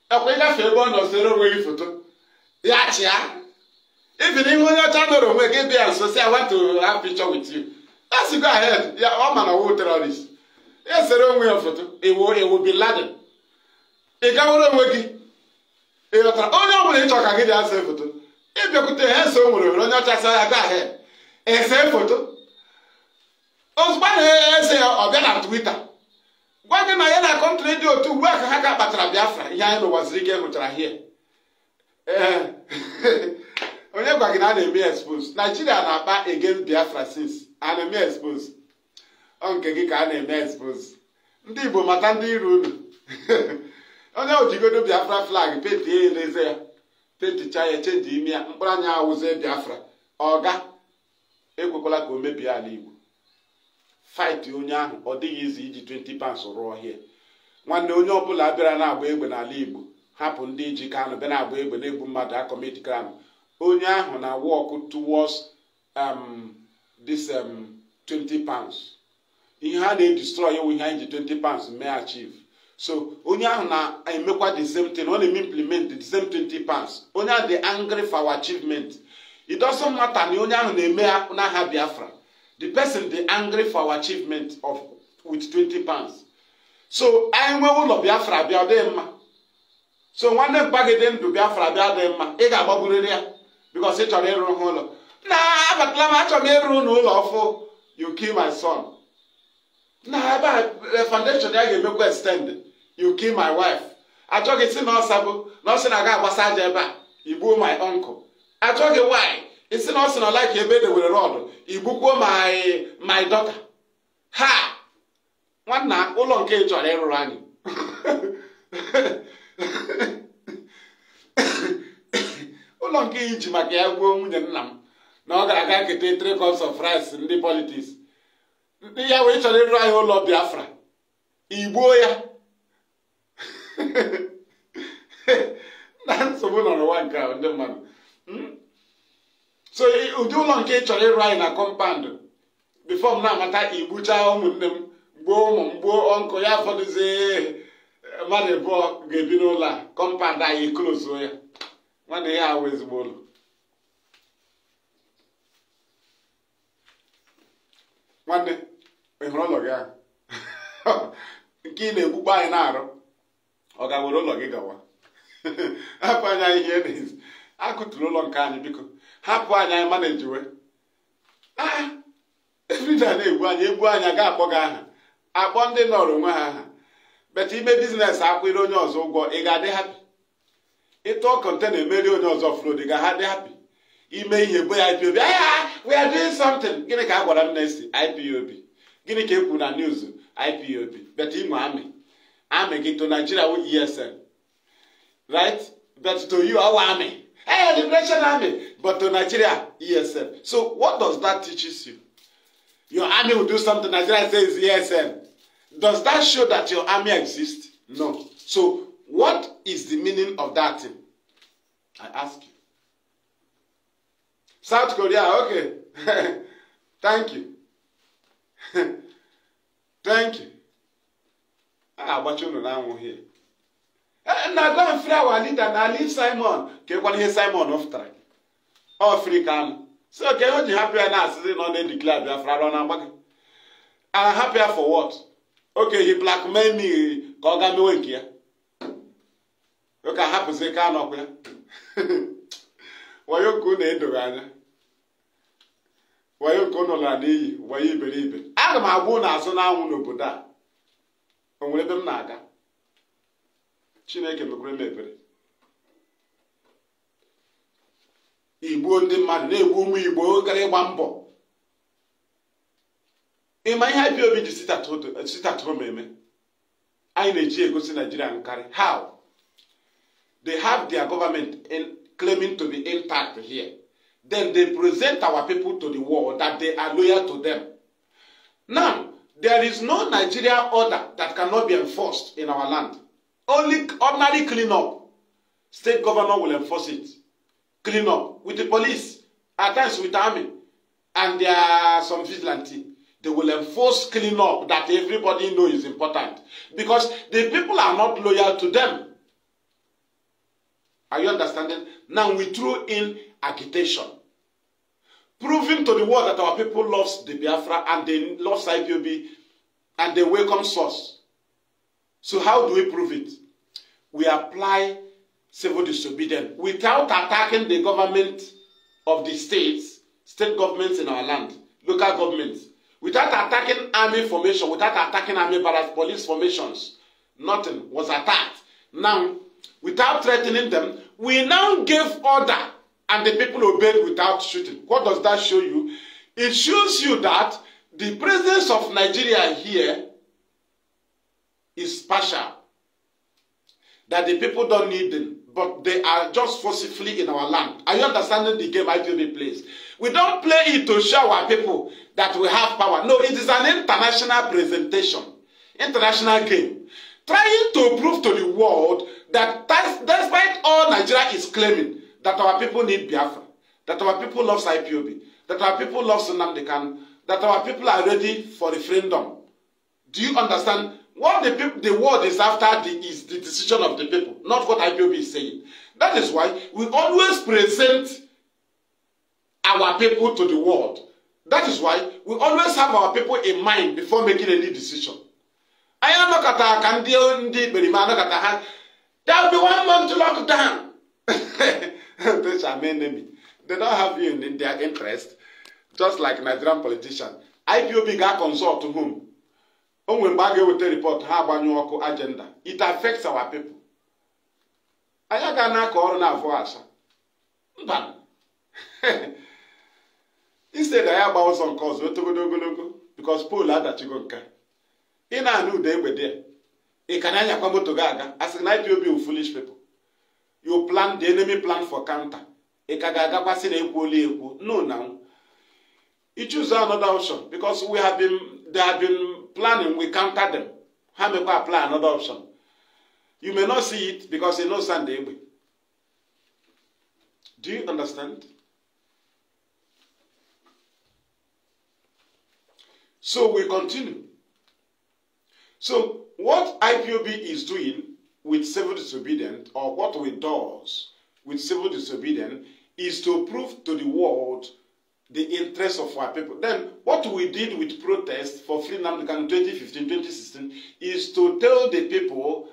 ekwa ịgafe ebe ọ nọ sere onwe gị foto ya chịa ibi ihe onye ọcha nọrọ onwe gị bịa nso si want to have picture with you let's go ahead ya ọ ma na wo terrorist ya sere onwe ya foto iwu iwu bin laden ị gawara onwe gị ịghọtara onye ọ bụla ịchọ ka gị dị ase foto ịbịakwute ha eso nwere ohere onye ọcha sa ya go ahead ese foto ozugbo a na eze ya ọ bịa na twita gwa gị na ya na kọntrị dị otu ugbu a ka ha ka kpatara Biafra ihe anyị rụwaziri ike hụchara hie ee eh. onye gwa gị na a na-eme expose naijiria na-akpa against biafra since a na-eme expose ọ nke gị ka a na-eme expose ndị igbo mata ndị iru unu onye ojigodo biafra flag penti eleze ya penticha ya chenji ime ya mkpụrụ anya awụzie biafra ọga ekwekwala ka o mebie ala igbo fight onye ahụ ọ dịghị izi iji 20 pounds rụọ ọhịa nwanne onye ọbụla bịara na-agba egbe n'ala igbo hapụ ndị ji kanụ bịa na-agba egbe na-egbu mmadụ akọmit kram onye ahụ na wọkụ towards um, this um, 20 pounds ihe ha na-edestroy ewu ihe anyị ji 20 pounds mee achieve so onye ahụ na-emekwa the same thing ọ na-eme implement the same 20 pounds onye ahụ dị angry for our achievement it doesn't matter na onye ahụ na-eme n'aha biafra the person dị angry for our achievement of with 20 pounds so anyị nwee ụlọ biafra bịa ọ dịghị mma so nwanne mkpagide ndụ biafra bịa dị mma ị ga-agbagburiri ya bikos ị chọrọ ịrụ ha ụlọ na abatala m achọrọ m ịrụ n'ụlọ ọfụ you kill my son na ebe a eh, foundation ya ga-emekwa extend you kill my wife achọghị si na ọsa na ọsị na-aga agbasa aja ebe a igbuo my uncle achọghị nwanyị isi na ọsị na ọlaiki ebe edewere rọdụ igbukwuo my my dọka ha nwanna ụlọ nke ị chọrọ ịrụrụ anyị ụlọ nke iyi ji maka ya gwuo nwunye nna m na ọ ga-aga keta three cups of rice ndị politiks ndị ya wee chọrọ ịrụ anyị ụlọ biafra igbuo ya na nsogbu nọ n'ụwa nke ndị mmadụ hmm? so ụdị ụlọ nke ị chọrọ ịrụ anyị na kọmpandụ bifọ m na-amata igbucha ụmụnne m gbuo ụmụ m gbuo ọnkụ ya fọdụzie mmadụ abụọ ga-ebi n'ụlọ a kọmpand anyị klozuo ya nwanne ya ahụ ezigbo ụlọ nwanne ị hụrụ ụlọ gị ahụ nke ị na-egbugba anyị na-arụ ọ ga-were ụlọ gị gawa hapụ anyị anyị ihe n'ezi akụtụrụ ụlọ nke anyị biko hapụ anyị anyị mana ejiwe a ah, evrida na-egbu anyị egbu anyị ga akpọ gị aha akpọ ndị nọrọ onwe ha aha bete ime biznes akwụire onye ọzọ ụgwọ ị ga-adị hapi ịtụọ kọntena emeri onye ọzọ frod ị ga-ha dị hapi ime ihe bụ ya ipob aya ah, we are doing something gịnị ka a gwara m na ipob gịnị ka ekwu na news ipob bete ịmụ amị amị gị to nigeria wu esn right but to you our army Hey, the Russian army, but to Nigeria, ESM. So what does that teaches you? Your army will do something, Nigeria says ESM. Does that show that your army exists? No. So, what is the meaning of that thing? I ask you. South Korea, okay. Thank you. Thank you. agbacha ah, unu n'anwụ hie eh, na go and free our leader na leave simon ka ịkwara ihe simon fụtara ofri ka anụ so okay, ihe o ji hapụ ya na-asịzi na ọ na-edikle biafra rụọ na for what oke yi blackmail n'ihi ka ọ gaa mewe nke ya oke ahapụzi ka anọkwa ya wayo nke unu edoghị anya wayo nke unu lara n'iyi wayo iberibe aga m agwa unu azụ n'anwụ n'obodo a o nwere ebe m na-aga chineke mekwere m ebere igbuo ndị mmadụ na-egbu ụmụ igbo gara ịgba mbọ ịma ihe ipob ji sit home eme anyị na-eji egosi naijiria nkarị how they have their government in claiming to be intact here then they present our people to the world that they are loyal to them now there is no nigeria order that cannot be enforced in our land only ordinary clean up state governor will enforce it clean up with the police at times with army and there are some vigilante They will enforce clean up that everybody know is important because the people are not loyal to them. Are you understanding? Now we threw in agitation, proving to the world that our people loves the Biafra and they loves IPOB and they welcome us. So how do we prove it? We apply civil disobedience without attacking the government of the states, state governments in our land, local governments without attacking army formation, without attacking army barracks, police formations, nothing was attacked. Now, without threatening them, we now gave order and the people obeyed without shooting. What does that show you? It shows you that the presence of Nigeria here is partial. That the people don't need them, but they are just forcefully in our land. Are you understanding the game I IPOB plays? We don't play it to show our people that we have power. No, it is an international presentation, international game, trying to prove to the world that despite all Nigeria is claiming that our people need Biafra, that our people love IPOB, that our people love Nnamdi that our people are ready for the freedom. Do you understand? What the, people, the world is after the, is the decision of the people, not what IPOB is saying. That is why we always present our people to the world. That is why we always have our people in mind before making any decision. anyị anọkọta ka ndị ndị ikperima anọkọta ha will be one month lockdown those are my enemy they don't have you in their interest just like nigerian politician ipob ga-consult whom o nwere mgbe a ga-eweta report ha agbanyụ ọkụ agenda it affects our people anyị aga na-akọ ọrụ na-afụ asa mba instead anyị agba ụzọ nke ọzọ otogodo ogologo bikos poolu adachigo nke ị na-anụ ụda egbede ya ị ka na-anyakwa moto gị aga a sị na ipob foolish people you plan the enemy plan for counter ị ka ga-agakwa sị na ekwuola ekwu no na i choose another option because we have been they have been planning we counter them ha mekwa apply another option you may not see it because you know sand egbe do you understand So we continue. So what IPOB is doing with civil disobedience, or what we do with civil disobedience, is to prove to the world the interests of our people. Then what we did with protest for freedom in 2015, 2016 is to tell the people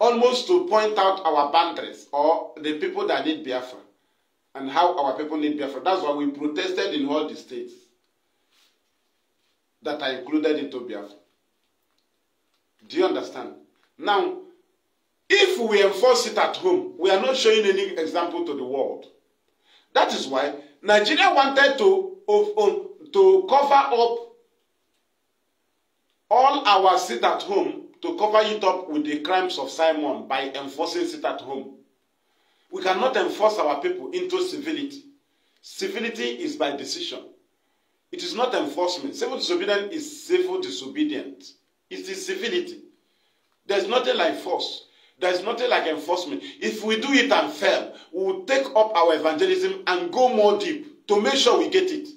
almost to point out our boundaries or the people that need Biafra and how our people need Biafra. That's why we protested in all the states that are included into Biafra. Do you understand? Now, if we enforce it at home, we are not showing any example to the world. That is why Nigeria wanted to, of, um, to cover up all our sit at home to cover it up with the crimes of Simon by enforcing sit at home. We cannot enforce our people into civility. Civility is by decision. It is not enforcement. Civil disobedience is civil disobedience. It is civility. There is nothing like force. There is nothing like enforcement. If we do it and fail, we will take up our evangelism and go more deep to make sure we get it.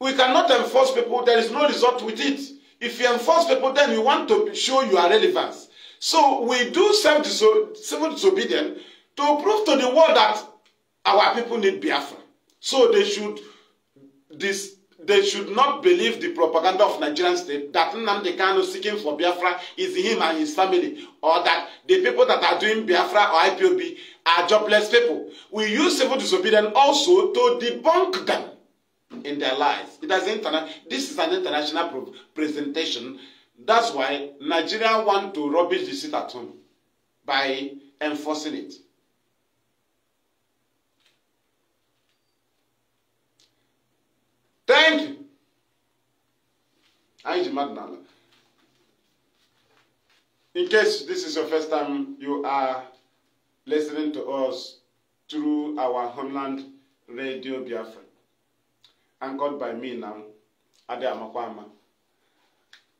We cannot enforce people. There is no result with it. If you enforce people, then you want to show your relevance. So we do self -diso civil disobedience to prove to the world that our people need Biafra. So they should this they should not believe the propaganda of Nigerian state that Nnamdi Kanu seeking for Biafra is him and his family or that the people that are doing Biafra or IPOB are jobless people. We use civil disobedience also to debunk them in their lies. It has this is an international presentation. That's why Nigeria want to rubbish the seat at home by enforcing it. anyị in case this is your first time you are listening to us through our homeland radio biafra anchored by me now adeamakwama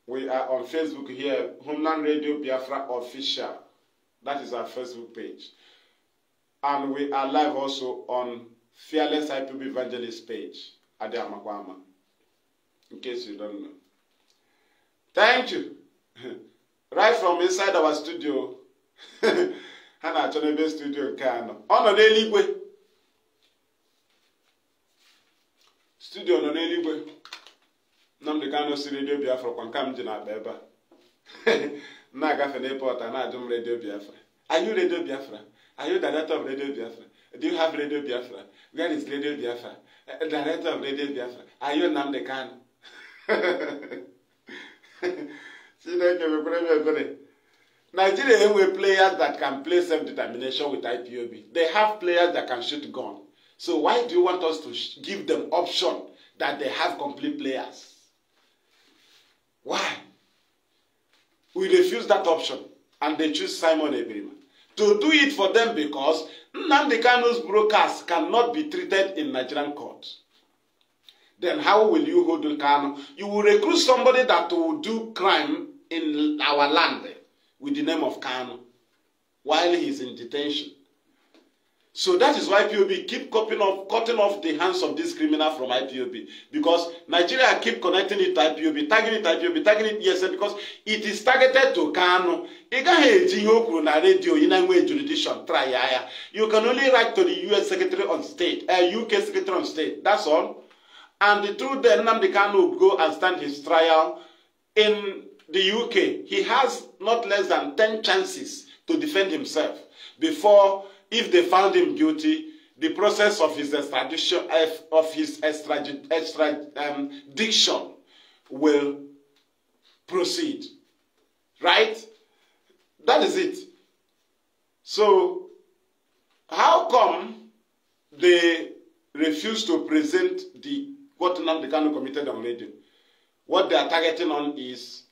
we are on facebook here homeland radio biafra official that is our facebook page and we are live also on fearless ipb evangelist page adeamakwama in case you don't know thank you right from inside our studio ha na-achọ n'ebe studio nke anọ ọ nọ n'eluigwe studio nọ n'eluigwe Nnamdi Kanu si redio Biafra kwa nka m ji na-akpa ebe a na-agafe n'epọt a na-ajụ m redio Biafra are you redio Biafra are you director of redio Biafra do you have redio Biafra where is redio Biafra eh, director of redio Biafra are you Nnamdi Kanu Chineke mekwere m ebere. Nigeria enwe players that can play self-determination with IPOB. They have players that can shoot gun. So why do you want us to give them option that they have complete players? Why? We refuse that option and they choose Simon Ebrima. To do it for them because Nnamdi Kano's broadcast cannot be treated in Nigerian courts then how will you hold Nkano? You will recruit somebody that will do crime in our land with the name of Kano while he is in detention. So that is why IPOB keep cutting off, cutting off the hands of this criminal from IPOB because Nigeria keep connecting it to IPOB, tagging it to IPOB, tagging it yes, because it is targeted to Kano. You can only write to the US Secretary on State, uh, UK Secretary on State, that's all. And through them, Nnamdi Kanu will go and stand his trial in the UK. He has not less than 10 chances to defend himself before, if they found him guilty, the process of his extradition, eh, of his extradition um, will proceed. Right? That is it. So, how come they refuse to present the gotten up the kind of committed on raiding. What they are targeting on is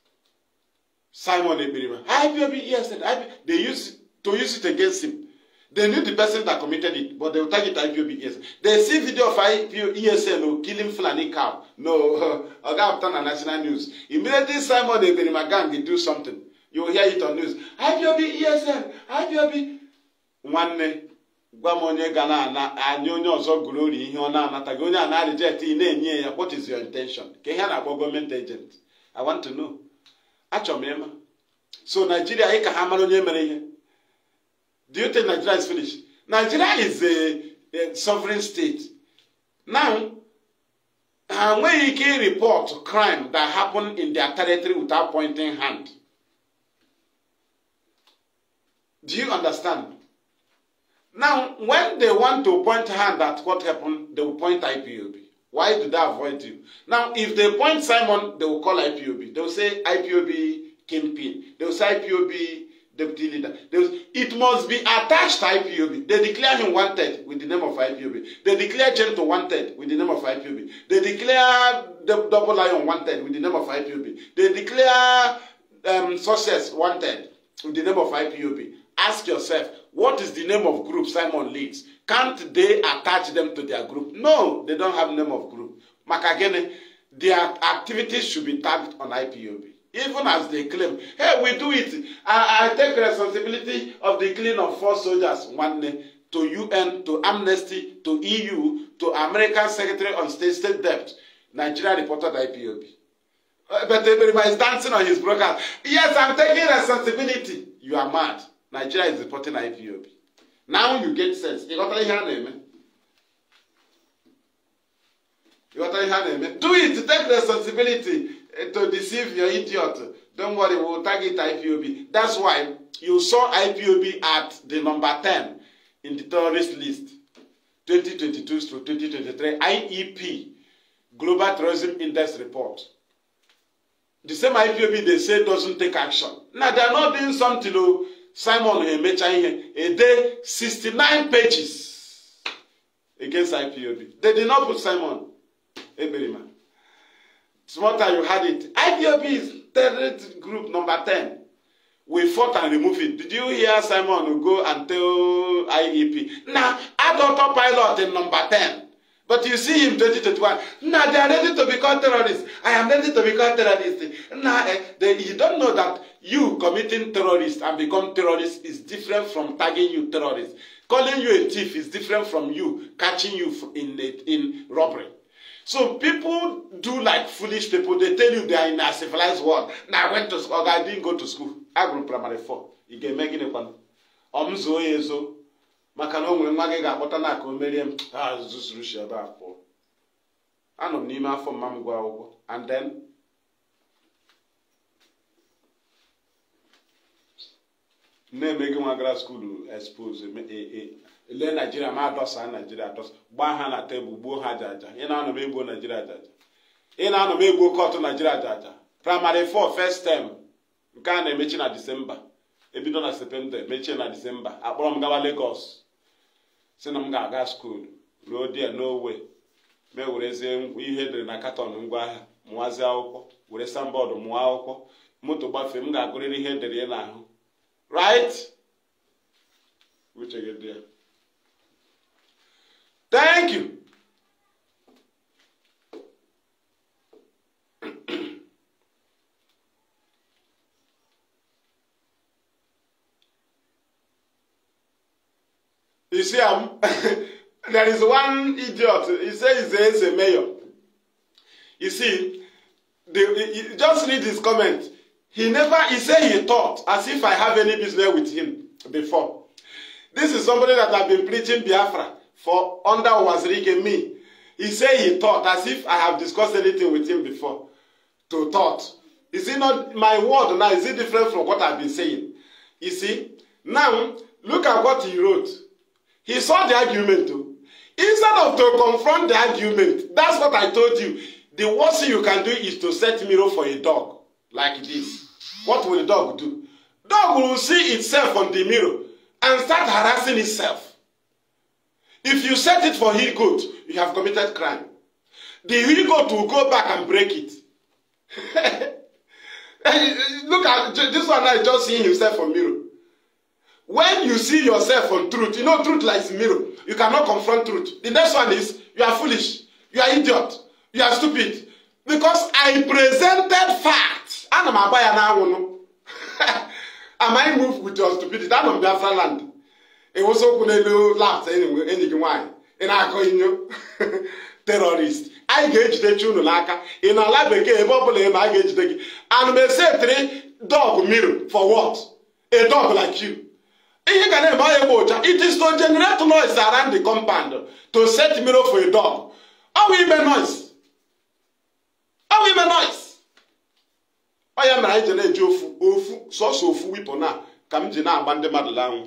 Simon Ebirima. IPOB, yes, and IPOB, they use to use it against him. They knew the person that committed it, but they will target IPOB, yes. They see video of IPO, ESN who killing Fulani cow. No, a guy up on national news. Immediately Simon Ebirima gang, they do something. You will hear it on news. IPOB, ESN, IPOB. One day, gwa m onye ga na-anya onye ọzọ gụrụ ihe ọ na-anataghị onye a na-reject ị na-enye ya what is your intention ka ihe a na-akpọ gọọmenti agent i want to know Achọ m ịma so Nigeria ị ka ha mara onye mere ihe do you think Nigeria is finished Nigeria is a, a sovereign state now ha nweghị ike report crime that happen in their territory without pointing hand do you understand Now, when they want to point hand at what happened, they will point IPOB. Why do they avoid you? Now, if they point Simon, they will call IPOB. They will say IPOB kingpin. They will say IPOB deputy leader. They will, it must be attached to IPOB. They declare him wanted with the name of IPOB. They declare Jento wanted with the name of IPOB. They declare the double lion wanted with the name of IPOB. They declare um, success wanted with the name of IPOB. Ask yourself, what is the name of group Simon leads? Can't they attach them to their group? No, they don't have name of group. Makagene, their activities should be tagged on IPOB. Even as they claim, hey, we do it. I, I take responsibility of the killing of four soldiers one day to UN, to Amnesty, to EU, to American Secretary on State, State Debt. Nigeria reported IPOB. Uh, but everybody is dancing on his broadcast. Yes, I'm taking responsibility. You are mad. Nigeria is reporting IPOB. Now you get sense. You got ihe a na You got ihe a na Do it. Take responsibility eh, to deceive your idiot. Don't worry, we'll target IPOB. That's why you saw IPOB at the number 10 in the terrorist list. 2022 through 2023 IEP Global Terrorism Index report. The same IPOB they say doesn't take action. Now they are not doing something. Though simon emecha ihe ede 69 pages against ipob they did not put simon eberima small time you had it ipob is terrorist group number ten we fought and remove it did you hear simon go and tell iep na adult pilot in number ten But you see him 2021. Now they are ready to become terrorists. I am ready to become terrorist. Now eh, they, you don't know that you committing terrorist and become terrorist is different from tagging you terrorist. Calling you a thief is different from you catching you in in robbery. So people do like foolish people. They tell you they are in a civilized world. Now I went to school. I didn't go to school. I grew primary four. You get making a one. Omzo ezo. maka na o nwere nwa gị ga-akpọta na ka o merie m ha zuzuru shi ebe afọ pụọ anọ m n'ime afọ mma m gụọ akwụkwọ and then na-eme gị nwa gara skuulu expose e, e, lee naijiria ma adọsa naijiria adọsa gbaa ha na tebụl gbuo ha jaja aja ị na-anọ m egbuo naijiria aja ị na-anọ m egbuo kọtụ naijiria jaja praịmarị 4 first tem nke a na-emechi na disemba ebido na septemba mechie na disemba akpọrọ m gawa legos si na m ga-aga skuul ruo di ya n'owe ma ewerezie ihe edere na katọn ngwaahịa mụwazie akwụkwọ were sambọọdụ mụọ akwụkwọ moto gbafee m ga-agụrịrị ihe edere ya n'ahụ right uche gị dị ya thank You see, um, there is one idiot. He says he's a mayor. You see, the, just read his comment. He never, he said he thought as if I have any business with him before. This is somebody that I've been preaching Biafra for under was Wazirike me. He said he thought as if I have discussed anything with him before. To thought. Is it not my word now? Is it different from what I've been saying? You see? Now, look at what he wrote. He saw the argument too. Instead of to confront the argument, that's what I told you. The worst thing you can do is to set mirror for a dog like this. What will the dog do? Dog will see itself on the mirror and start harassing itself. If you set it for heel goat, you have committed crime. The heel goat will go back and break it. Look at this one now is just seeing himself on mirror when you see yourself on truth you know truth lies in mirror you cannot confront truth the next one is you are foolish you are idiot you are stupid because i presented fact ana m agba ya am i move with your stupidity anọ m biafra land ịwụsị ụkwụ n'elu laft enyi gị nwaanyị ị na-akọ inyo terrorist anyị ga-ejidechi unu n'aka ị na ala bekee ebe ọ bụla ị na a ga-ejide gị anụmesetri dog mirror for what a dog like you ihe ga na-eme ọhịa bụ ụcha it is to generate noise around the compound to set mirror for a dog ọwụ ime noise ọwụ ime noise ọ ya mere anyị ji na-eji ofu ofu sọsọ ofu wipụ na ka m ji na-agba ndị mmadụ lanwụ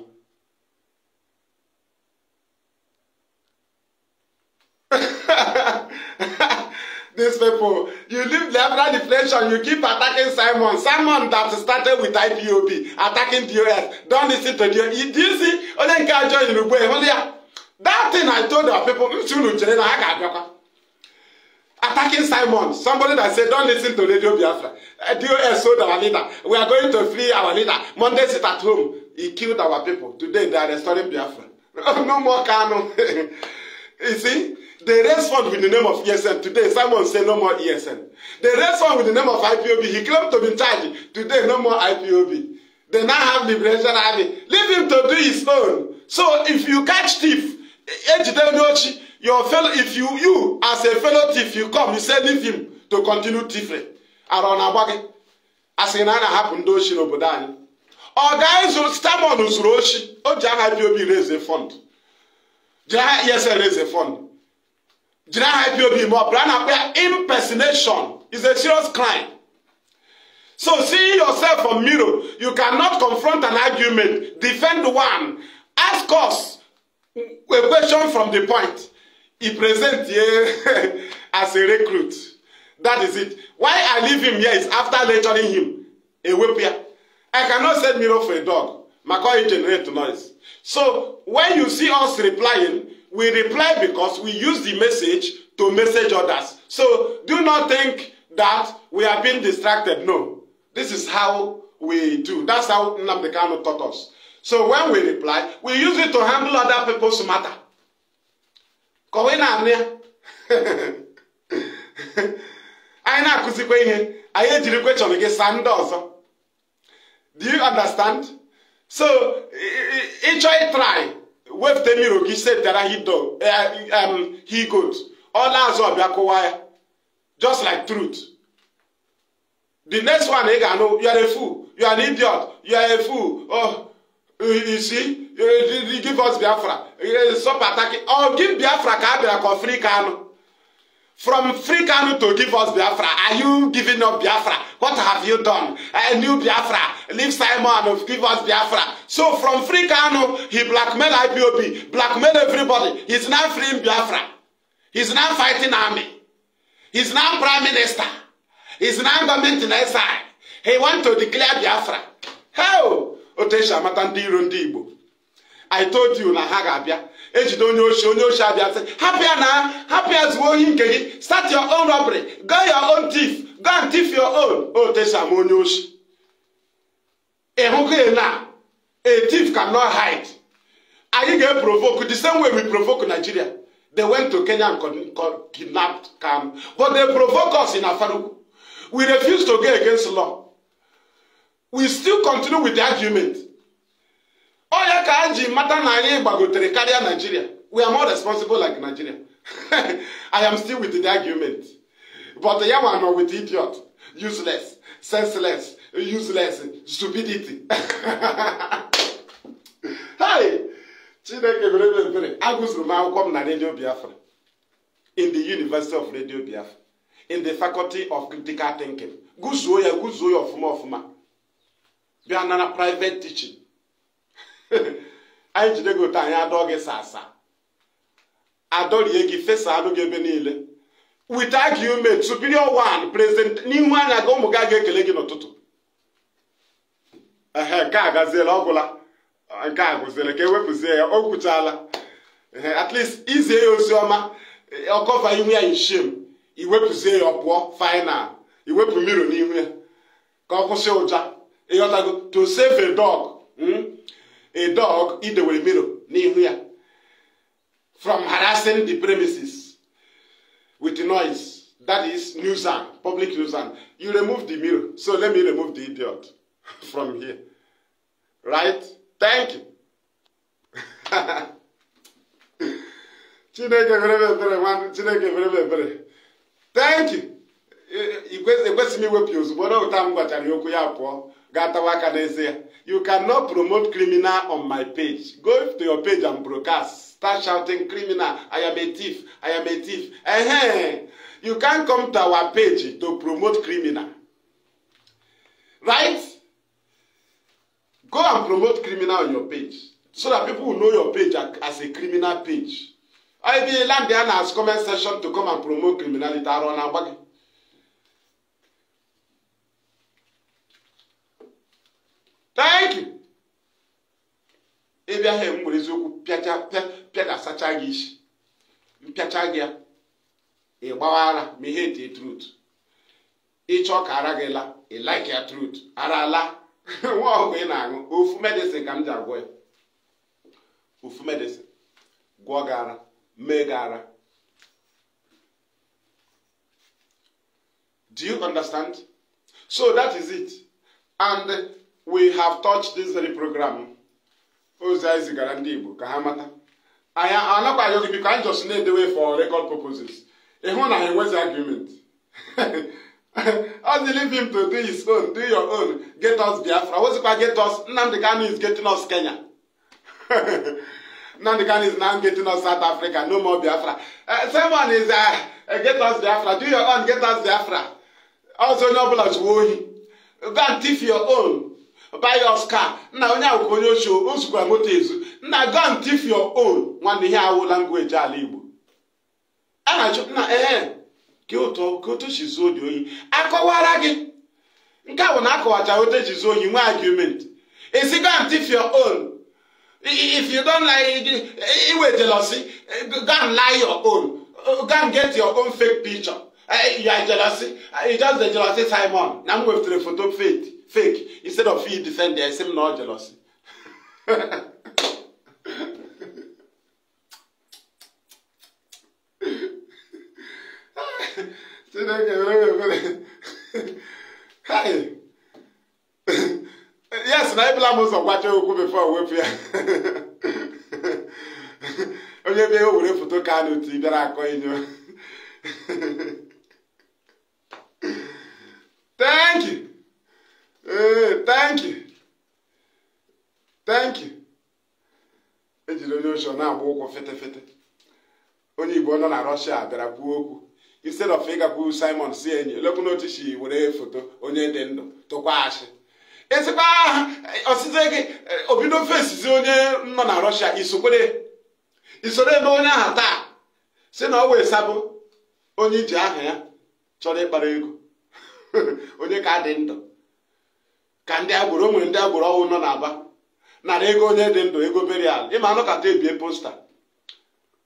these people. You leave the after deflation, you keep attacking Simon. Simon that started with IPOB, attacking DOS. Don't listen to DOS. Do you see? Only can join the way. That thing I told our people, attacking Simon, somebody that said, don't listen to Radio Biafra. DOS uh, sold our leader. We are going to free our leader. Monday sit at home. He killed our people. Today they are restoring Biafra. no more Kano. you see? They raised fund with the name of ESN. Today, Simon said no more ESN. They raised fund with the name of IPOB. He claimed to be in charge. Today, no more IPOB. They now have Liberation Army. Leave him to do his own. So if you catch thief, your fellow, if you, you as a fellow thief, you come, you say leave him to continue thiefing Around Abagi. As in Anna happened, though she no bodani. Or guys who stammer on Uzuroshi, or Jahan IPOB raise a fund. Jahan e ESN raise a fund gyina ha bi obi mu ɔbra na impersonation is a serious crime so see yourself from mirror you cannot confront an argument defend one ask us a question from the point he present here as a recruit that is it why i leave him here is after lecturing him ewepia i cannot send mirror for a dog My macaw generate noise so when you see us replying we reply because we use the message to message others. So do not think that we are being distracted. No. This is how we do. That's how Nnamdi taught us. So when we reply, we use it to handle other people's matter. Kọ̀wé na-anụ ya. na-akụzikwa ihe, anyị ejiri kwechọn gị Do you understand? So, ịchọ ịtrai wepụta mmiri oke setara he goat ọla azụ ọbịa kụwa ya just like truth the next one ị ga-anụ you are a fool you are an idiot you are a fool oh you see give us biafra sọpụta gị ọ gị biafra ka a bịara ka ọ anụ from free Kanu to give us Biafra. Are you giving up Biafra? What have you done? A new Biafra. Leave Simon and give us Biafra. So from free Kanu, he blackmailed IPOB, blackmailed everybody. He's now freeing Biafra. He's now fighting army. He's now prime minister. He's now government in exile. He want to declare Biafra. How? Otesha mata ndị iro ndị Igbo. I told you na ha ga-abịa ejide onye oshi onye oshi abịa sị hapịa na hapịa zuo ohi nke gị start your own robbery go your own thief go and thief your own otesa m onye oshi ịhụgo na a thief cannot hide anyị ga-eprovoke the same way we provoke Nigeria they went to Kenya and kidnapped Kam but they provoke us in Afaruku we refuse to go against law we still continue with the argument onye ka a ji mata na anyị gbagotere karịa naijiria we are more responsible like nigeria i am still with the argument but ya nwa nọ with idiot useless senseless useless stupidity hey chineke mere m ebere agụzuru m akwụkwọ m na radio biafra in the university of radio biafra in the faculty of critical thinking guzuo ya guzuo ya ọfụma ọfụma bịa nara private teaching anyị jide gị ụtọ anyị adọọ gị sasa adọrie gị fesa anụ gị ebe niile wit argument superior one president n'ihu anya ga ụmụ gị a ga-ekele gị n'ụtụtụ ee nke a gaziela ọgwụla nke a gụziele ka ewepụzie ya o kwuchaala at least izie ya oziọma ọma ọkọva ihu ya ishim iwepụzie ya ọpụọ final iwepụ mmiri n'ihu ya ka ọ kwụsị ụja ịghọtago to save a dog a dog idewere mirror n'ihu ya from harassing the premises with the noise that is nuisance public nuisance you remove the mirror so let me remove the idiot from here right thank you chineke mere ebere nwanne chineke mere ebere thank you ekwesịghị iwepụ ozugbo na ụta m gwachara okwu ya pụọ Gatawaka Nesia. You cannot promote criminal on my page. Go to your page and broadcast. Start shouting, criminal, I am a thief, I am a thief. Uh-huh. You can't come to our page to promote criminal. Right? Go and promote criminal on your page so that people will know your page as a criminal page. I be land there as comment section to come and promote criminality. I run a thank you ịbịa ha m were eziokwu pịadasacha gị isi mpịacha gị ya ịgbawa ara ma ihe dị trut ịchọ ka ara gị la laik ya trut ara ala nwa ọgwụ ị na-aṅụ ofu medicine ka m ji agwọ ya ofu medicine gwọ gị ara mee gị ara do you understand so that is it and we have touched this very program ozi anyị zigara ndị Igbo ka ha mata anyị anakwaghị oge biko anyị just na-edewe for record purposes ịhụ na ha enwezi argument ọ dị leave him to do his own do your own get us Biafra wezikwa get us Nnamdi Kano is getting us Kenya Nnamdi Kano is now getting us South Africa no more Biafra uh, eh, someone is eh, eh, get us Biafra do your own get us Biafra ọzọ onye ọbụla zuwe ohi go and tif your own bios car nna onye awụka onye ochie o zukwa moto ezu nna gant if your own nwanne ihe awụ langweji ala igbo a na-achọ nna ee eh, eh, ka ụtọ ka otu si zuo dị oyi akọwara gị nke a bụ na akọwacha otu ji e zuo oyi nwe argument esi gant if your own if you don't like iwe jealousy go and lie your own go get your own fake picture eh, you are jealousy you just the jealousy Simon na m weftere foto fake fake instead of you defend there same not jealousy Hey. yes na ebila most of kwacha okwu before wepụ ya onye bịa were foto kanu ti bịara akọ inyo thank you ee eh, thank you thank you ejiri onye ochie na-agba ụkwụ fete fete onye igbo nọ na rọshia bịara kwuo okwu instead of ịgakwu simon si enyi elekwuna otu si were foto onye dị ndụ tụkwa achị ịsịkwa e ọsịze gị eh, obido fesizi onye nọ na rọshia isoro ebe onye aha taa si na ọ wee sabụ onye iji aha ya chọrọ ịkpara ego onye ka dị ndụ ka ndị agboro nwere ndị agboro ọnwụ nọ n'aba nara ego onye dị ndụ ego berial ịma anụ kata ebie posta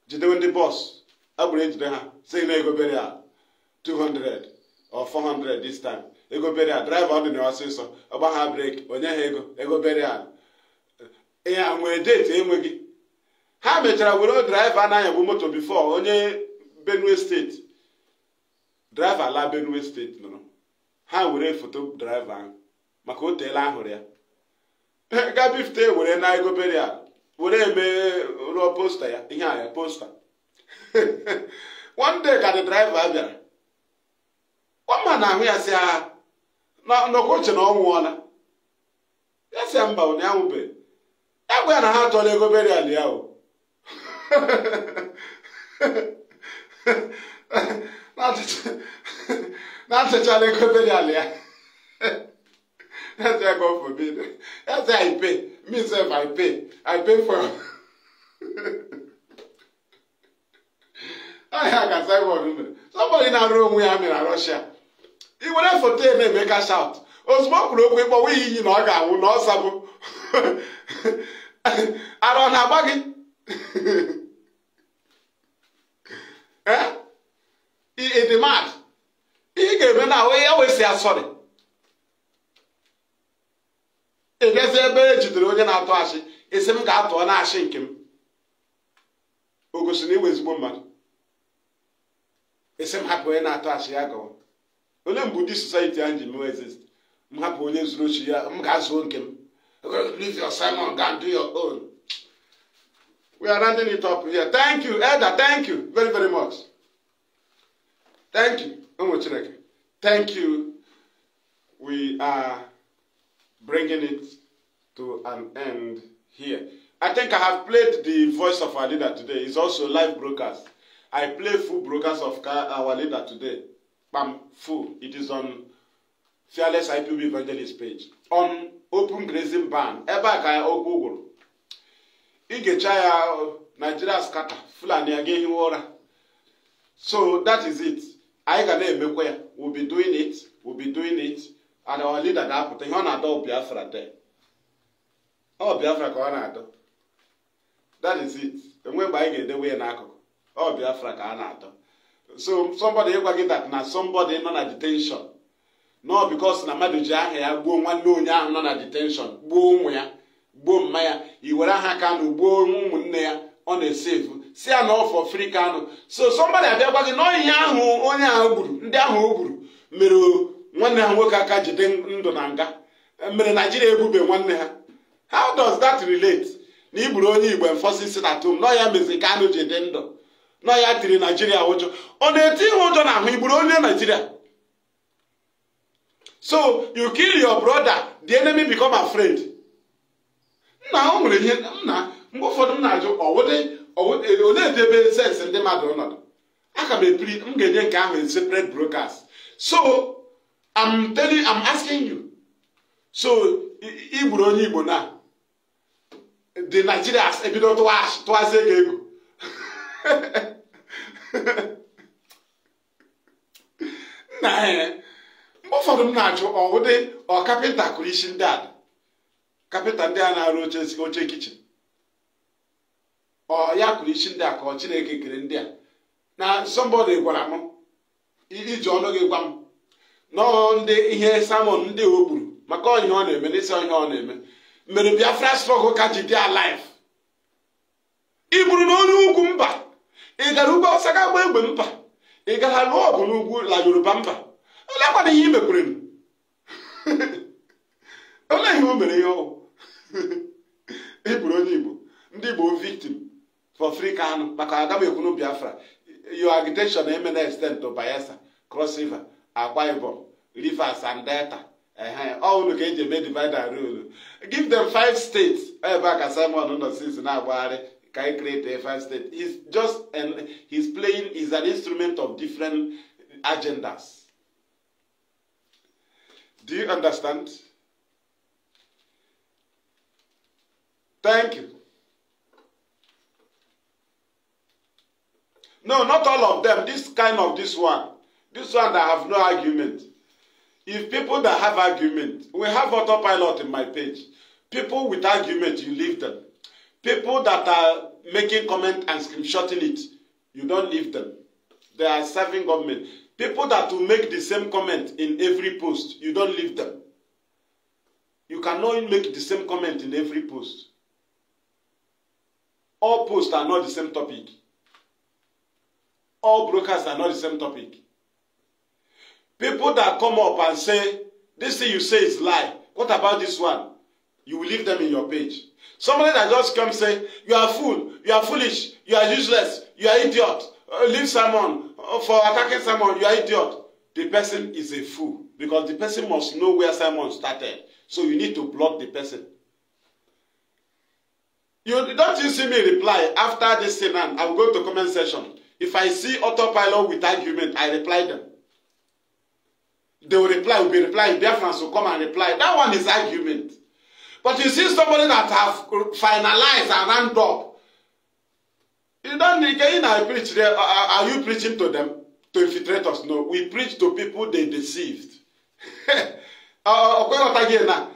jidewe ndị bọs agboro ejide ha si na ego berial 200 or 400 this time ego berial draiva ọ dị na ọsịsọ ọgba ha breki onye ha ego ego berial ya nwere deti enweghị ha mechara were draiva na-anyagbu moto bifo onye benue steeti draiva ala benue steeti nọrọ ha were foto draiva ahụ maka o teela ahụrụ ya ga bifte were na ego were eme rụọ posta ya ihe aya posta one day ka the driver bịara nwama na ahụ ya si agha n'okoche na ọ nwụọla ya si ah, mba ụna ya nwụbeghị ya gwa ya na ha atọla ego ya o na-atụchala ego berial ya That's why God forbid. That's why I pay. Me self, I pay. I pay for. ahịa ka simon mere somebody na-arụ onwe ya mere Russia i were foto eme na-emeka shout ozugbo kwuru okwu ịkpọwa nwa iyi na ọ ga-awụ na ọsa bụ ara ọ na-agba gị ịdị mad ihe ị ga-eme na ahụ ya wesị asọrị egezi ebe e jidere onye na-atụ achị esi m ga-atụọ na asị nke m o gosi na iwe ezigbo mmadụ esi m hapụ onye na-atụ asị ya gawa onye mbụ ndị society ahụ ji mewe exist m hapụ onye zuru ochi ya m ga-azụo nke m leave your Simon go do your own we are rounding it up here thank you elder thank you very very much thank you ụmụ chineke thank you we are bringing it to an end here. I think I have played the voice of our leader today. It's also live broadcast. I play full broadcast of our leader today. Bam, full. It is on Fearless IPB Evangelist page. On Open Grazing Ban. Ebe ka ya okwu ụgwụrụ. Ị ya Nigeria scatter. Fulani aga ehi So that is it. I ga na-emekwa We'll be doing it. We'll be doing it. and our leader ga-apụta ihe ọ na-adọ biafra there ọ biafra ka ọ na-adọ that is it enwe mgbe ga-edewe ya n'akụkụ ọ biafra ka a na-adọ so somebody ịgwa that na somebody nọ na detention nọ because na mmadụ ji aha ya gbuo nwanne onye ahụ nọ na detention gbuo ụmụ ya gbuo mmanya were aha kanụ gbuo ụmụnne ya ọ na-esevu si ya na ọfọ free so somebody abịa gị na ihe ahụ onye ahụ gburu ndị ahụ o gburu mere nwanne ha nwoke aka jide ndụ na nga e mere naijiria ebube nwanne ha how does that relate na iburu onye igbo enforcing sit at home nọ ya mezi Kanu ji dị ndụ nọ ya tiri naijiria ụjọ ọ na-eti ihe ụjọ na ahụ igburu onye naijiria so you kill your brother the enemy become afraid nna o nwere ihe nna mgbe ụfọdụ m na-ajụ e, olee debe ndị mmadụ ọnọdụ aka m epiri m ga-enye nke ahụ separate broadcast so I'm telling I'm asking you. So igburu onye Igbo na the Nigerians ebido tụwaasị tụwaasị ego ego nna ya eh, mgbe ụfọdụ m na-ajụ ọwụdị kapịnta kụrụ isi ndị ada kapịnta ndị a na-arụ oche oche kichin ọ ya kụrụ isi ndị a ka ọ Chineke kere ndị a na somebody gwara m iji ọnụ gị gwa m nọọ ndị ihe samon ndị o gburu maka onye ọ na-eme n'isi onye ọ na-eme mere biafra strọgụ ka ji dị alive ị na ugwu mba ị gara ugwu ọsa ga agba egbe mba ị gara lụọ ọgụ n'ugwu la yoruba mba olekwana ihe imekwere m ole ihe o mere ihe ọwụ ị onye igbo ndị igbo victim for free kano maka aga ekwunu biafra your agitation eme na extent bayelsa cross river agba ibom rivers and delta ọwụlụ ka eji eme divide and rule give them five states ebe a ka simon nọ since na-agbagharị ka e create a five state he's just an, he's playing is an instrument of different agendas do you understand thank you no not all of them this kind of this one this one that have no argument If people that have argument, we have autopilot in my page. People with argument, you leave them. People that are making comment and screenshotting it, you don't leave them. They are serving government. People that will make the same comment in every post, you don't leave them. You cannot make the same comment in every post. All posts are not the same topic. All brokers are not the same topic. People that come up and say, this thing you say is lie. What about this one? You will leave them in your page. Somebody that just come say, you are fool, you are foolish, you are useless, you are idiot. Uh, leave someone uh, for attacking someone, you are idiot. The person is a fool because the person must know where someone started. So you need to block the person. You don't you see me reply after this thing and I'm going to comment session. If I see autopilot with argument, I reply them they will reply, will be replying, Biafrans will come and reply. That one is argument. But you see somebody that have finalized and ramped up. You don't again, I preach there. Uh, uh, are you preaching to them? To infiltrators? No. We preach to people they deceived. uh,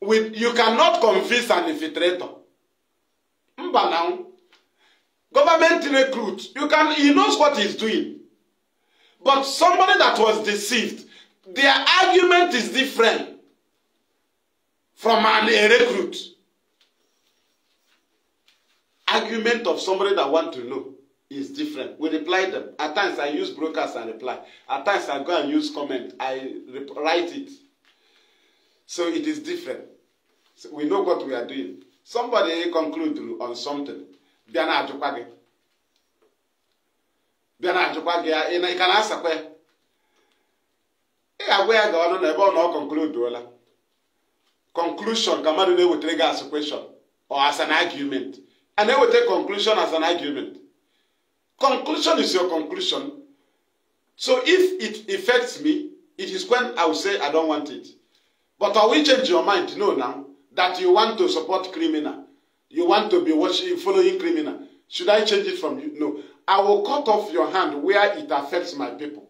With, uh, you cannot convince an infiltrator. Mba now. Government recruit. You can he knows what he's doing. But somebody that was deceived, Their argument is different from an, a recruit. Argument of somebody that want to know is different. We reply them. At times I use brokers and reply. At times I go and use comment. I write it. So it is different. So we know what we are doing. Somebody conclude on something. Bịa na-ajụkwa gị. Bịa na-ajụkwa gị kwe ị ga-agwa ya ga ọnụ na ebe ọ na ọ konkluduola conclusion ka mmadụ na-ewetara gị as question or as an argument a na-eweta conclusion as an argument conclusion is your conclusion so if it affects me it is when i will say i don't want it but i will change your mind no now that you want to support criminal you want to be watching following criminal should i change it from you no i will cut off your hand where it affects my people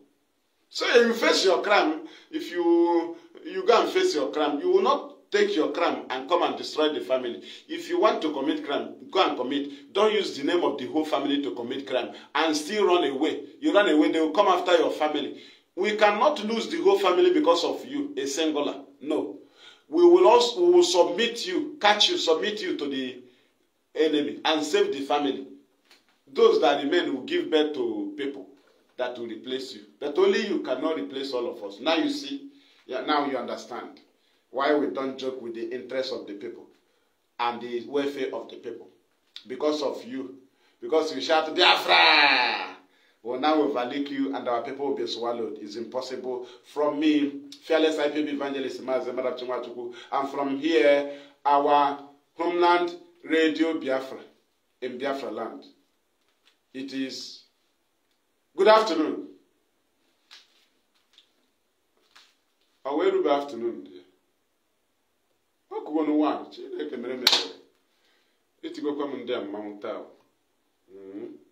So you face your crime. If you you go and face your crime, you will not take your crime and come and destroy the family. If you want to commit crime, go and commit. Don't use the name of the whole family to commit crime and still run away. You run away, they will come after your family. We cannot lose the whole family because of you, a singular. No. We will also we will submit you, catch you, submit you to the enemy and save the family. Those that remain will give birth to people that will replace you. But only you cannot replace all of us. Now you see, yeah, now you understand why we don't joke with the interests of the people and the welfare of the people. Because of you. Because you shout, Biafra! Well, now we'll value you and our people will be swallowed. It's impossible. From me, fearless IPB evangelist Mazemara Chumwachuku, and from here, our homeland, Radio Biafra, in Biafra land. It is Good afternoon. Ọ wee rube afternoon dị ọ kụwo n'ụwa Chineke mere mere etigokwa m ndị a mmanwụ taa hmm.